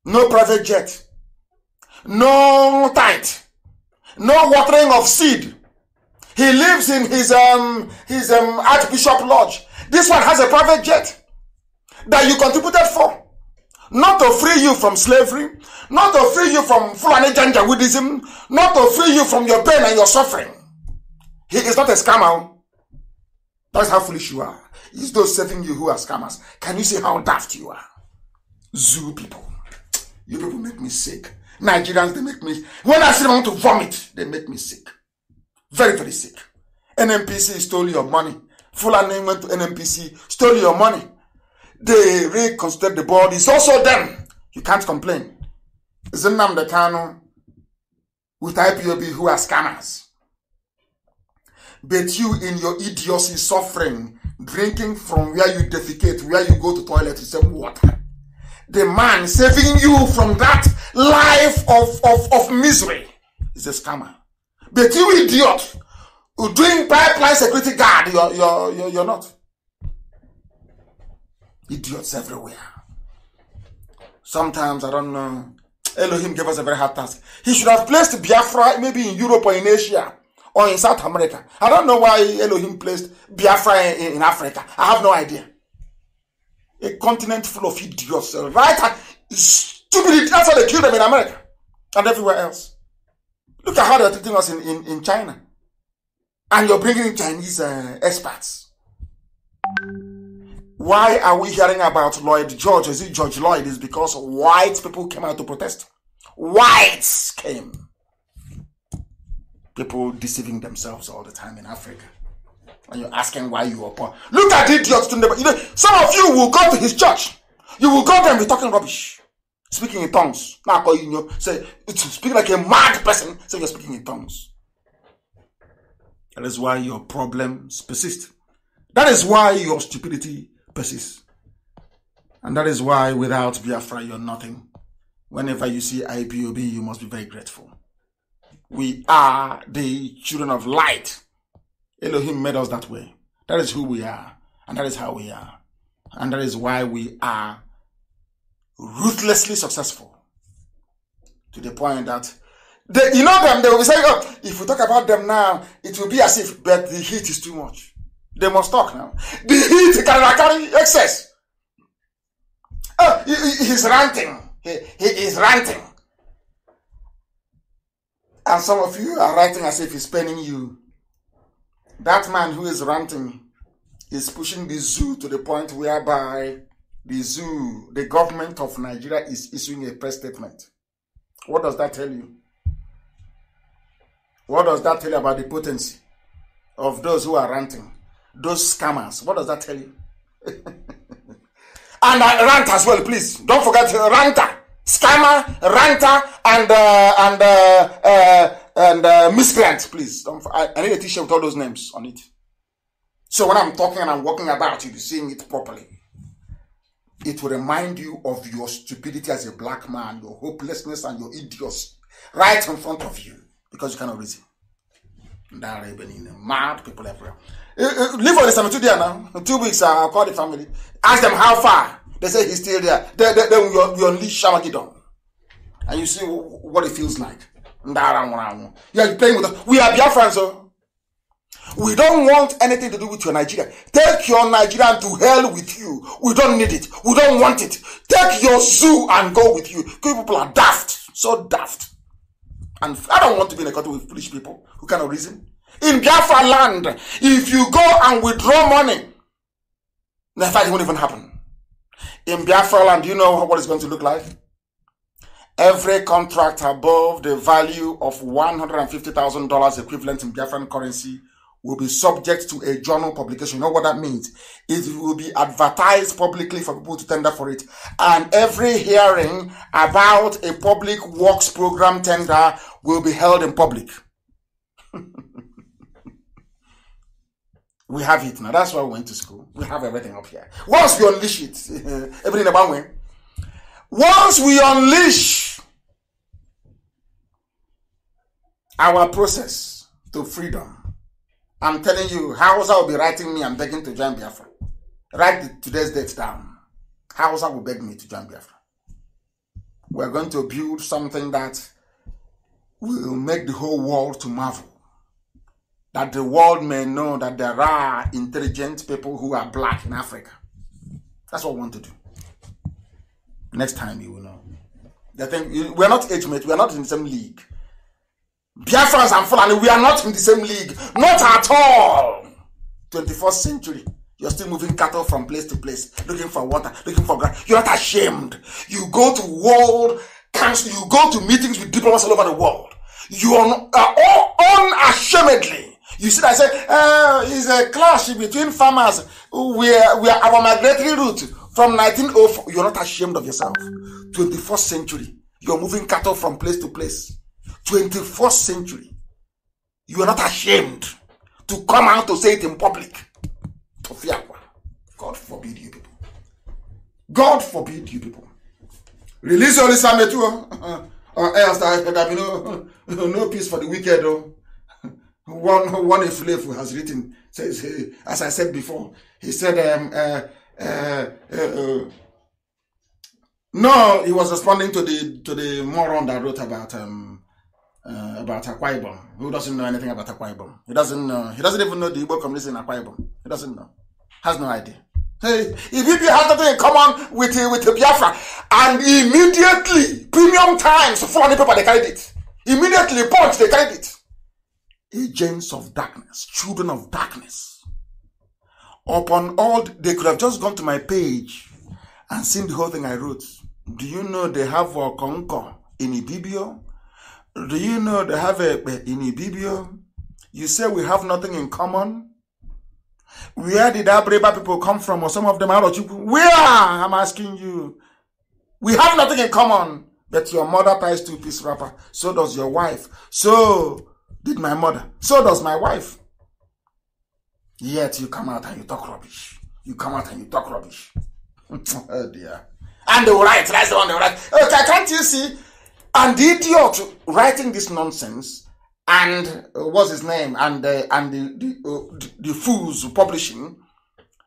No private jet. No tight. No watering of seed. He lives in his um his um Archbishop Lodge. This one has a private jet that you contributed for. Not to free you from slavery, not to free you from Fulani Janjaweedism, not to free you from your pain and your suffering. He is not a scammer. Oh. That's how foolish you are. It's those serving you who are scammers. Can you see how daft you are? Zoo people. You people make me sick. Nigerians, they make me. When I see them, I want to vomit. They make me sick very, very sick. NMPC stole your money. full went to NMPC, stole your money. They reconstructed the board. It's also them. You can't complain. the Dekano with IPOB who are scammers. But you in your idiocy suffering, drinking from where you defecate, where you go to toilet to save water. The man saving you from that life of, of, of misery is a scammer. But you idiot, you're doing pipeline security guard, you're, you're, you're, you're not. Idiots everywhere. Sometimes, I don't know, Elohim gave us a very hard task. He should have placed Biafra maybe in Europe or in Asia or in South America. I don't know why Elohim placed Biafra in, in Africa. I have no idea. A continent full of idiots, right? Stupid, that's how they kill them in America and everywhere else. Look at how they're treating us in, in, in China. And you're bringing in Chinese uh, experts. Why are we hearing about Lloyd George? Is it George Lloyd? Is because white people came out to protest. Whites came. People deceiving themselves all the time in Africa. And you're asking why you are poor. Look at idiots. You know, some of you will go to his church. You will go there and be talking rubbish speaking in tongues. Now I call you, say speak like a mad person. Say you're speaking in tongues. That is why your problems persist. That is why your stupidity persists. And that is why without Biafra, you're nothing. Whenever you see IPOB, you must be very grateful. We are the children of light. Elohim made us that way. That is who we are. And that is how we are. And that is why we are ruthlessly successful to the point that they, you know them, they will be saying, oh, if we talk about them now, it will be as if, but the heat is too much. They must talk now. The heat can carry excess. Oh, he, he's ranting. He, he is ranting. And some of you are writing as if he's penning you. That man who is ranting is pushing the zoo to the point whereby the zoo, the government of Nigeria is issuing a press statement. What does that tell you? What does that tell you about the potency of those who are ranting? Those scammers. What does that tell you? and uh, rant as well, please. Don't forget uh, ranter, scammer, ranter, and uh, and uh, uh, and uh, miscreant, please. Don't. I, I need a T-shirt with all those names on it. So when I'm talking and I'm walking about, you'll be seeing it properly it will remind you of your stupidity as a black man, your hopelessness and your idiots right in front of you because you cannot reason. That even in mad people everywhere. Eh, eh, leave for the cemetery there now. In two weeks, I'll call the family. Ask them how far. They say he's still there. Then, then, then you, you unleash Shamagidon. And you see what it feels like. Yeah, you're playing with us. We are Biafran, so oh. We don't want anything to do with your Nigeria. Take your Nigerian to hell with you. We don't need it. We don't want it. Take your zoo and go with you. People are daft. So daft. And I don't want to be in a country with foolish people who cannot reason. In Biafra land, if you go and withdraw money, the fight won't even happen. In Biafra land, do you know what it's going to look like? Every contract above the value of $150,000 equivalent in Biafran currency will be subject to a journal publication. You know what that means? It will be advertised publicly for people to tender for it. And every hearing about a public works program tender will be held in public. we have it now. That's why we went to school. We have everything up here. Once we unleash it, everything about way. Once we unleash our process to freedom, I'm telling you, Hausa will be writing me, I'm begging to join Biafra. Write the, today's date down. Hausa will beg me to join Biafra. We're going to build something that will make the whole world to marvel. That the world may know that there are intelligent people who are black in Africa. That's what we want to do. Next time you will know. The thing, we're not age mates, we're not in the same league. Biafrans and Fulani, we are not in the same league. Not at all. 21st century. You're still moving cattle from place to place, looking for water, looking for grass. You're not ashamed. You go to world council, you go to meetings with diplomats all over the world. You are uh, all unashamedly. You see, I say, uh, it's a clash between farmers. We are, we are our migratory route from 1904. You're not ashamed of yourself. 21st century. You're moving cattle from place to place. 21st century, you are not ashamed to come out to say it in public. God forbid you people. God forbid you people. Release your Isametu, oh. or else there be no, no peace for the wicked. Oh. One, one slave has written, says, eh, as I said before, he said, um, uh, uh, uh, no, he was responding to the to the moron that wrote about um, uh, about Akwa Ibom. Who doesn't know anything about Akwa Ibom? He doesn't know. He doesn't even know the Igbo community in Akwa Ibom. He doesn't know. Has no idea. Hey, if you have nothing in common with uh, with Biafra, and immediately premium times full people paper they carried it. Immediately punch they carried it. Agents of darkness, children of darkness. Upon all, they could have just gone to my page and seen the whole thing I wrote. Do you know they have a conquer in Ibibio? Do you know they have a in Ibibio? You say we have nothing in common. Where did Abreba people come from, or some of them out of Where? I'm asking you. We have nothing in common. But your mother ties two piece wrapper. So does your wife. So did my mother. So does my wife. Yet you come out and you talk rubbish. You come out and you talk rubbish. oh dear. And the right. that's the one The right. Okay, can't you see? And the idiot writing this nonsense and uh, what's his name and uh, and the the, uh, the fools publishing,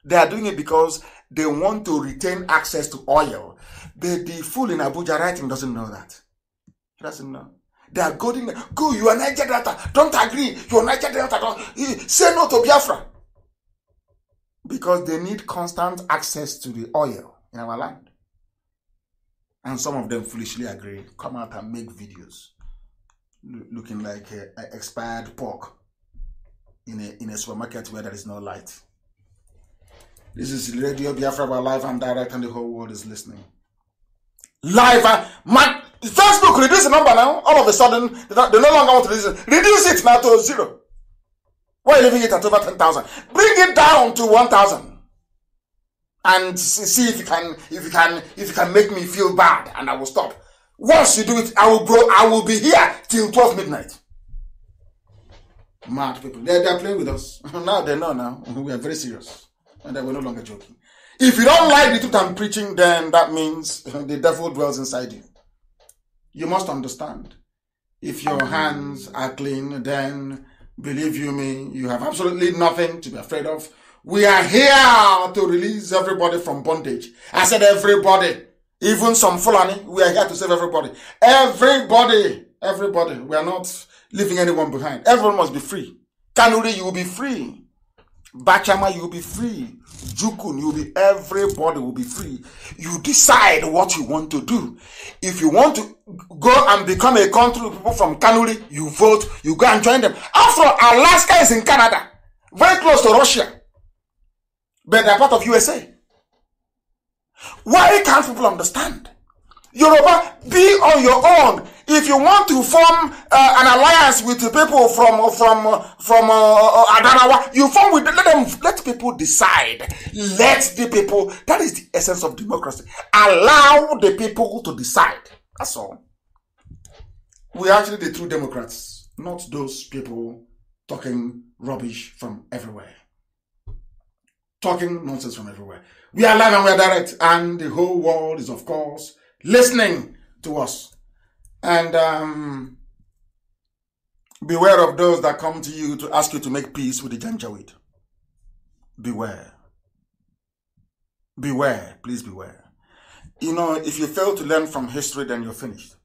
they are doing it because they want to retain access to oil. The the fool in Abuja writing doesn't know that. He doesn't know. They are going, go, you are Niger Delta. Don't agree. You are Niger Delta. Don't, say no to Biafra. Because they need constant access to the oil in our land and some of them foolishly agree come out and make videos looking like a, a expired pork in a in a supermarket where there is no light this is radio biafra live and direct and the whole world is listening live uh, man facebook reduce the number now all of a sudden they, they no longer want to reduce it reduce it now to zero why leaving it at over 10000 bring it down to 1000 and see if you can if you can if you can make me feel bad and I will stop. Once you do it, I will grow, I will be here till 12 midnight. Mad people. They're, they're playing with us. now they know now. We are very serious. And we are no longer joking. If you don't like the truth I'm preaching, then that means the devil dwells inside you. You must understand. If your hands are clean, then believe you me, you have absolutely nothing to be afraid of. We are here to release everybody from bondage. I said everybody, even some Fulani, we are here to save everybody. Everybody, everybody. We are not leaving anyone behind. Everyone must be free. Kanuri, you will be free. Bachama, you will be free. Jukun, you will be, everybody will be free. You decide what you want to do. If you want to go and become a country people from Kanuri, you vote, you go and join them. After all, Alaska is in Canada, very close to Russia. but they are part of USA. Why can't people understand? Yoruba, be on your own. If you want to form uh, an alliance with people from from from uh, uh Adanawa, you form with let them let people decide. Let the people. That is the essence of democracy. Allow the people to decide. That's all. We are actually the true democrats, not those people talking rubbish from everywhere. talking nonsense from everywhere. We are live and we are direct, and the whole world is, of course, listening to us. And um, beware of those that come to you to ask you to make peace with the Janjaweed. Beware. Beware. Please beware. You know, if you fail to learn from history, then you're finished.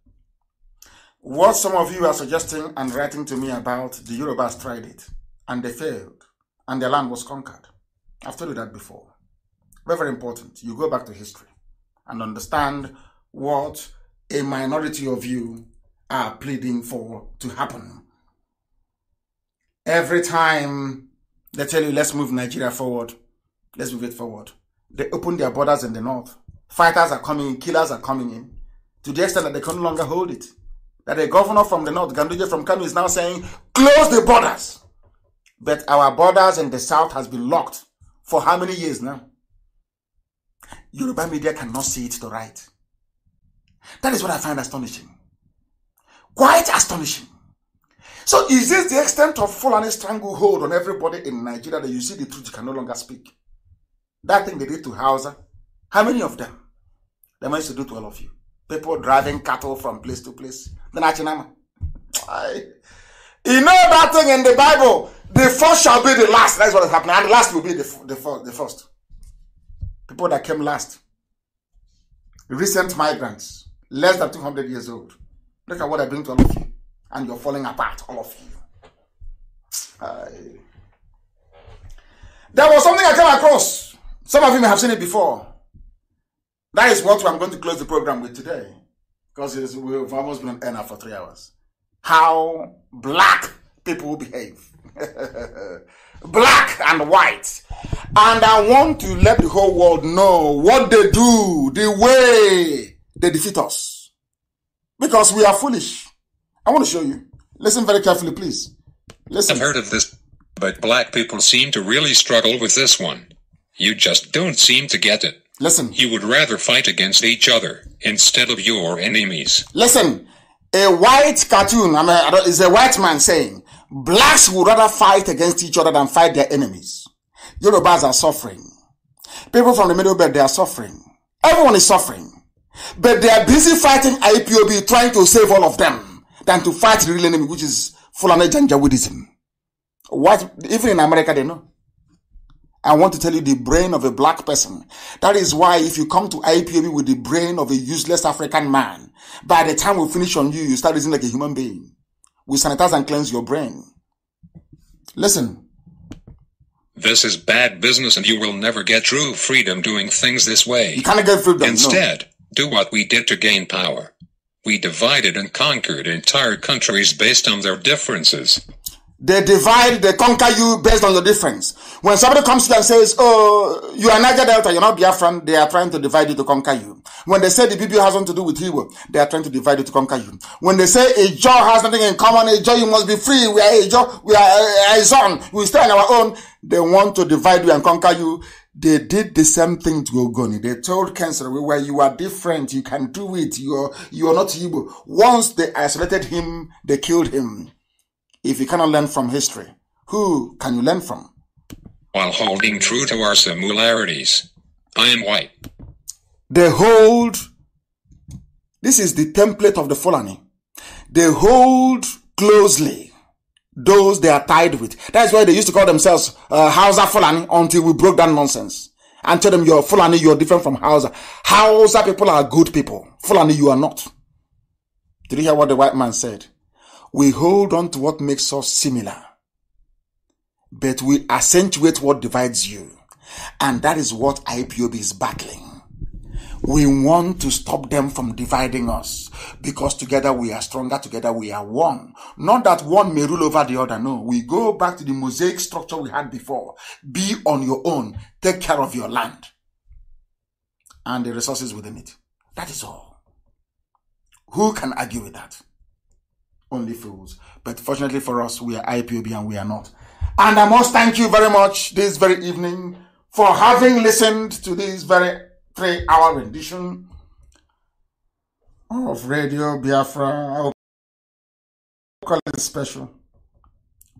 What some of you are suggesting and writing to me about, the Yorubas tried it, and they failed, and their land was conquered. I've told you that before. Very, very important. You go back to history and understand what a minority of you are pleading for to happen. Every time they tell you, let's move Nigeria forward, let's move it forward, they open their borders in the north. Fighters are coming in, killers are coming in, to the extent that they can no longer hold it. That a governor from the north, Ganduje from Kano, is now saying, close the borders. But our borders in the south has been locked for how many years now? Yoruba media cannot see it to right. That is what I find astonishing. Quite astonishing. So is this the extent of Fulani stranglehold on everybody in Nigeria that you see the truth you can no longer speak? That thing they did to Hausa, how many of them? They managed to do to all of you. People driving cattle from place to place. Then Achinama. You know that thing in the Bible The first shall be the last. That's what is happening. And the last will be the, the, the first. People that came last. Recent migrants, less than 200 years old. Look at what I bring to all of you. And you're falling apart, all of you. there was something I came across. Some of you may have seen it before. That is what I'm going to close the program with today. Because we've almost been on air for three hours. How black people behave. black and white. And I want to let the whole world know what they do, the way they defeat us. Because we are foolish. I want to show you. Listen very carefully, please. Listen. I've heard of this, but black people seem to really struggle with this one. You just don't seem to get it. Listen. You would rather fight against each other instead of your enemies. Listen. A white cartoon, I mean, is a white man saying, Blacks would rather fight against each other than fight their enemies. Yorubas are suffering. People from the Middle Belt, they are suffering. Everyone is suffering. But they are busy fighting IPOB, trying to save all of them, than to fight the real enemy, which is Fulani Janjaweedism. What, even in America, they know. I want to tell you the brain of a black person. That is why if you come to IPOB with the brain of a useless African man, by the time we finish on you, you start using like a human being we sanitize and cleanse your brain. Listen. This is bad business, and you will never get true freedom doing things this way. You can't get freedom. Instead, no. do what we did to gain power. We divided and conquered entire countries based on their differences. They divide, they conquer you based on your difference. When somebody comes to you and says, oh, you are Niger Delta, you're not Biafran, they are trying to divide you to conquer you. When they say the Bible has nothing to do with Hebrew, they are trying to divide you to conquer you. When they say a Jaw has nothing in common, a Jaw, you must be free, we are a Jaw, we are a zone, we stay on our own, they want to divide you and conquer you. They did the same thing to Ogoni. They told cancer, where you are different, you can do it, you are, you are not Hebrew." Once they isolated him, they killed him. If you cannot learn from history, who can you learn from? While holding true to our similarities, I am white. They hold, this is the template of the Fulani. They hold closely those they are tied with. That's why they used to call themselves uh, Hausa Fulani until we broke that nonsense and tell them you're Fulani, you're different from Hausa. Hausa people are good people. Fulani, you are not. Did you hear what the white man said? we hold on to what makes us similar, but we accentuate what divides you. And that is what IPOB is battling. We want to stop them from dividing us because together we are stronger, together we are one. Not that one may rule over the other. No, we go back to the mosaic structure we had before. Be on your own, take care of your land and the resources within it. That is all. Who can argue with that? only fools. But fortunately for us, we are IPOB and we are not. And I must thank you very much this very evening for having listened to this very three hour rendition of Radio Biafra. I will call it a special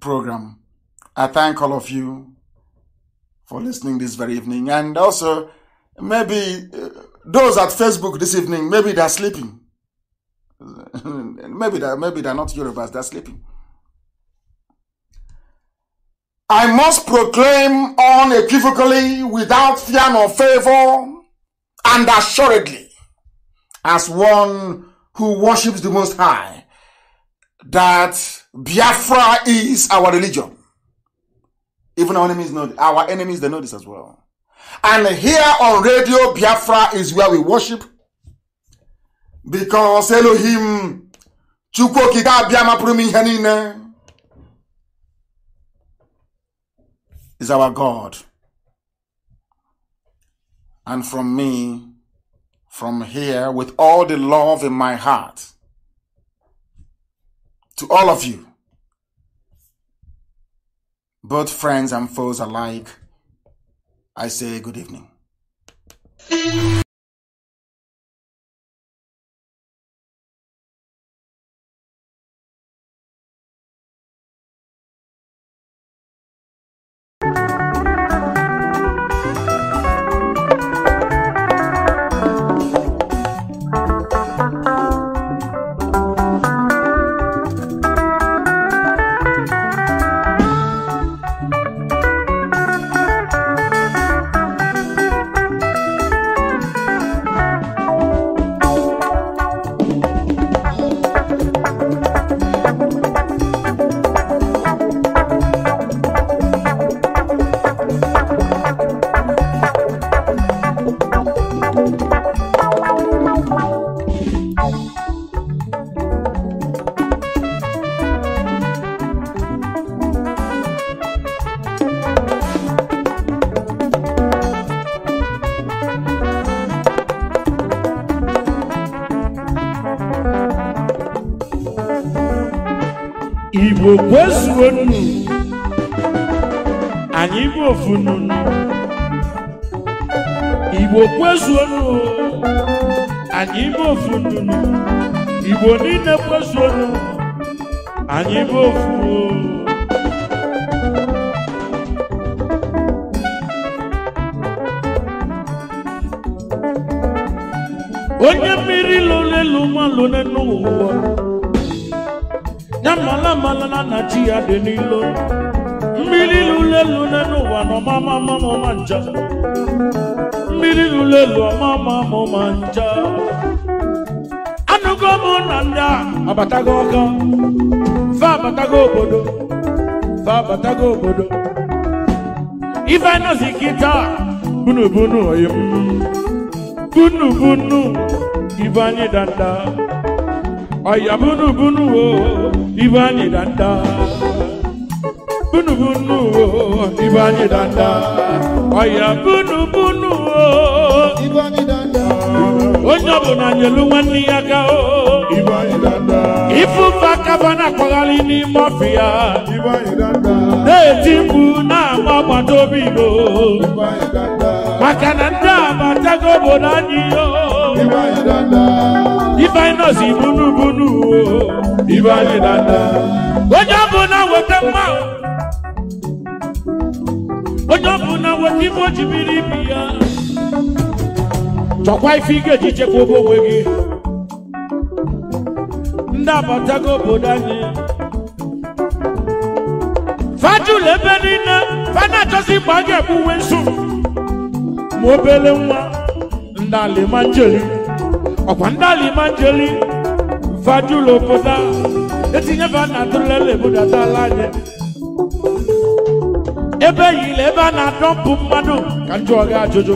program. I thank all of you for listening this very evening. And also, maybe uh, those at Facebook this evening, maybe they're sleeping maybe that maybe they're not Yorubas, they're sleeping. I must proclaim unequivocally, without fear nor favor, and assuredly, as one who worships the Most High, that Biafra is our religion. Even our enemies know our enemies they know this as well. And here on radio, Biafra is where we worship because Elohim Chukwu okike abịa is our God and from me from here with all the love in my heart to all of you both friends and foes alike I say good evening funu igbo kwezuonu anyị ime ofu nunu igbo niile kwezuonu anyị ime ofu onye mmiri lụrụ elu n'ụwa ya mala mala na chi ya dị n'ilo elu n'elu ụwa na ọmama mama ma nja mmiri ruru elu ọmama ma nja abatago ọka fa batago bodo, fa batago bodo. Ifa no zikita bunu bunu ayem, bunu bunu anyị danda ayabunu bunu o ife danda bunu bunu o ibani danda oya bunu bunu o ibani danda onye ọbụla nyelu nwanne ya ga o ibani danda ifufa kaba na-akpagharị n'ime ọfịa ibani danda na-eti mkpu na-ama agbata obi igbo ibani danda maka na ndị a batago obodo anyị o ibani danda ifeanyị nọzi bunu bunu o ibani danda onye ọbụla weta mmanwụ onye na weta ife o biri ibi ya chọkwa ife ị ga-eji chekwa obe onwe gị ndị abatago obodo anyị fajul ebe niile fana achọzi mgbe a ga nsu ma obere nwa ndali alimanjeli ọkwa ndị alimanjeli fajul obodo a etinye ba na atụlele ebudata ebe yile ebe a na-adọpụ mmadụ ka njọ ọga ajụjụ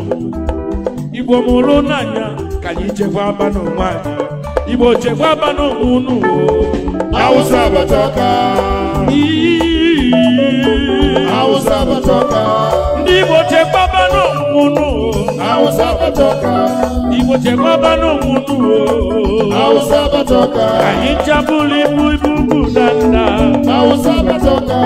igbo mụrụ n'anya ka anyị chekwa aba n'onwe anyị igbo chekwa aba n'onwe unu awụsa abata ọka awụsa abata ndị igbo chekwa aba unu Hausa batoka Ibo chema bano munu Hausa batoka Kahinja buli buibubu danda Hausa batoka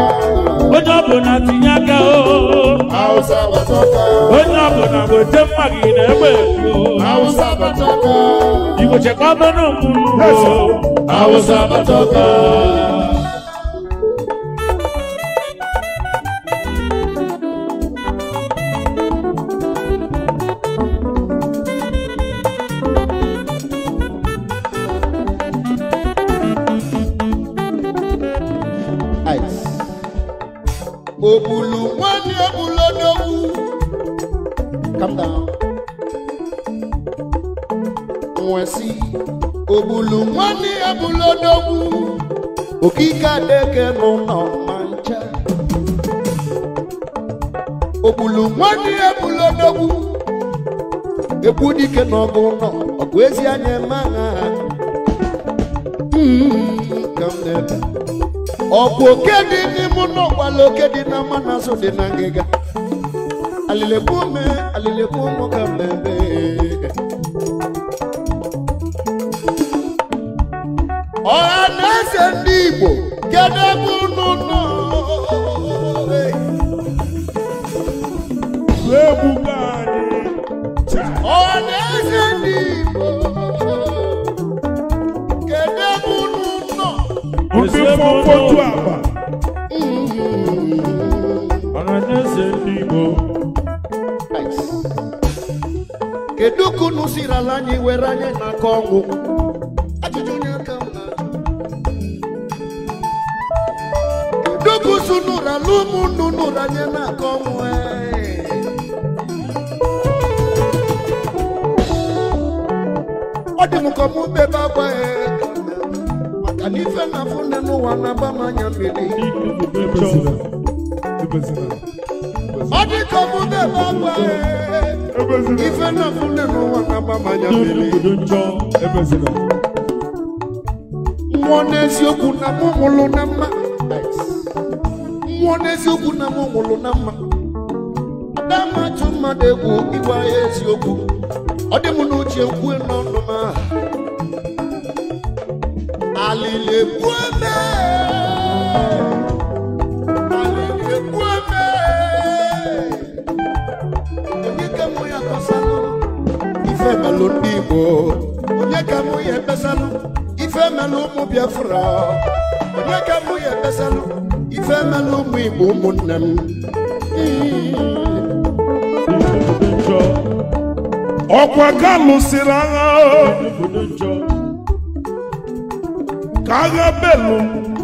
Ojobo na tinyaga o Hausa batoka Ojobo na gote magine wewo Hausa batoka Ibo chema bano munu Hausa batoka ogbulu nwanne ya bụla odogwu okike adeke n'ụlọ ncha ogbulu nwanne ya bụla odogwu ekwu dike n'ọgụ nọ ọgụ ezi anya eme aha hmm, ka m na-ebe ọkwa oke dị n'ime ụlọ gbala oke dị na mmanụ azụ dị na ngịga alilekwu ume alilekwu ụmụ ka m ebe eze ndị Igbo kedu ebe unu nọ ebuga anyị ọ na eze ndị Igbo kedu ebe unu nọ ndị mkpotu akpa ọnanyeze ndị Igbo kedu ka unu siri ala anyị were anyị n'aka ọdị maka ọnwụ ọ dị m maka na ife na afụ n'ụwa na-agba na na-agba mmiri mmụọ n'eziokwu na mụ mụlụ na mma eziokwu na m nwụrụ na mma na-amatụ mmadụ egwu ịgwa ya eziokwu ọ dị m n'uche kwue n'ọnụ m aha alili ekwueme alili ife melụ ndị Igbo onye ka mụ ya ebesalụ ife melụ ụmụ Biafra onye ka mụ ya ebesalụ ife mela ụmụ Igbo m ọkwa ka lụsịrị agha ka agha m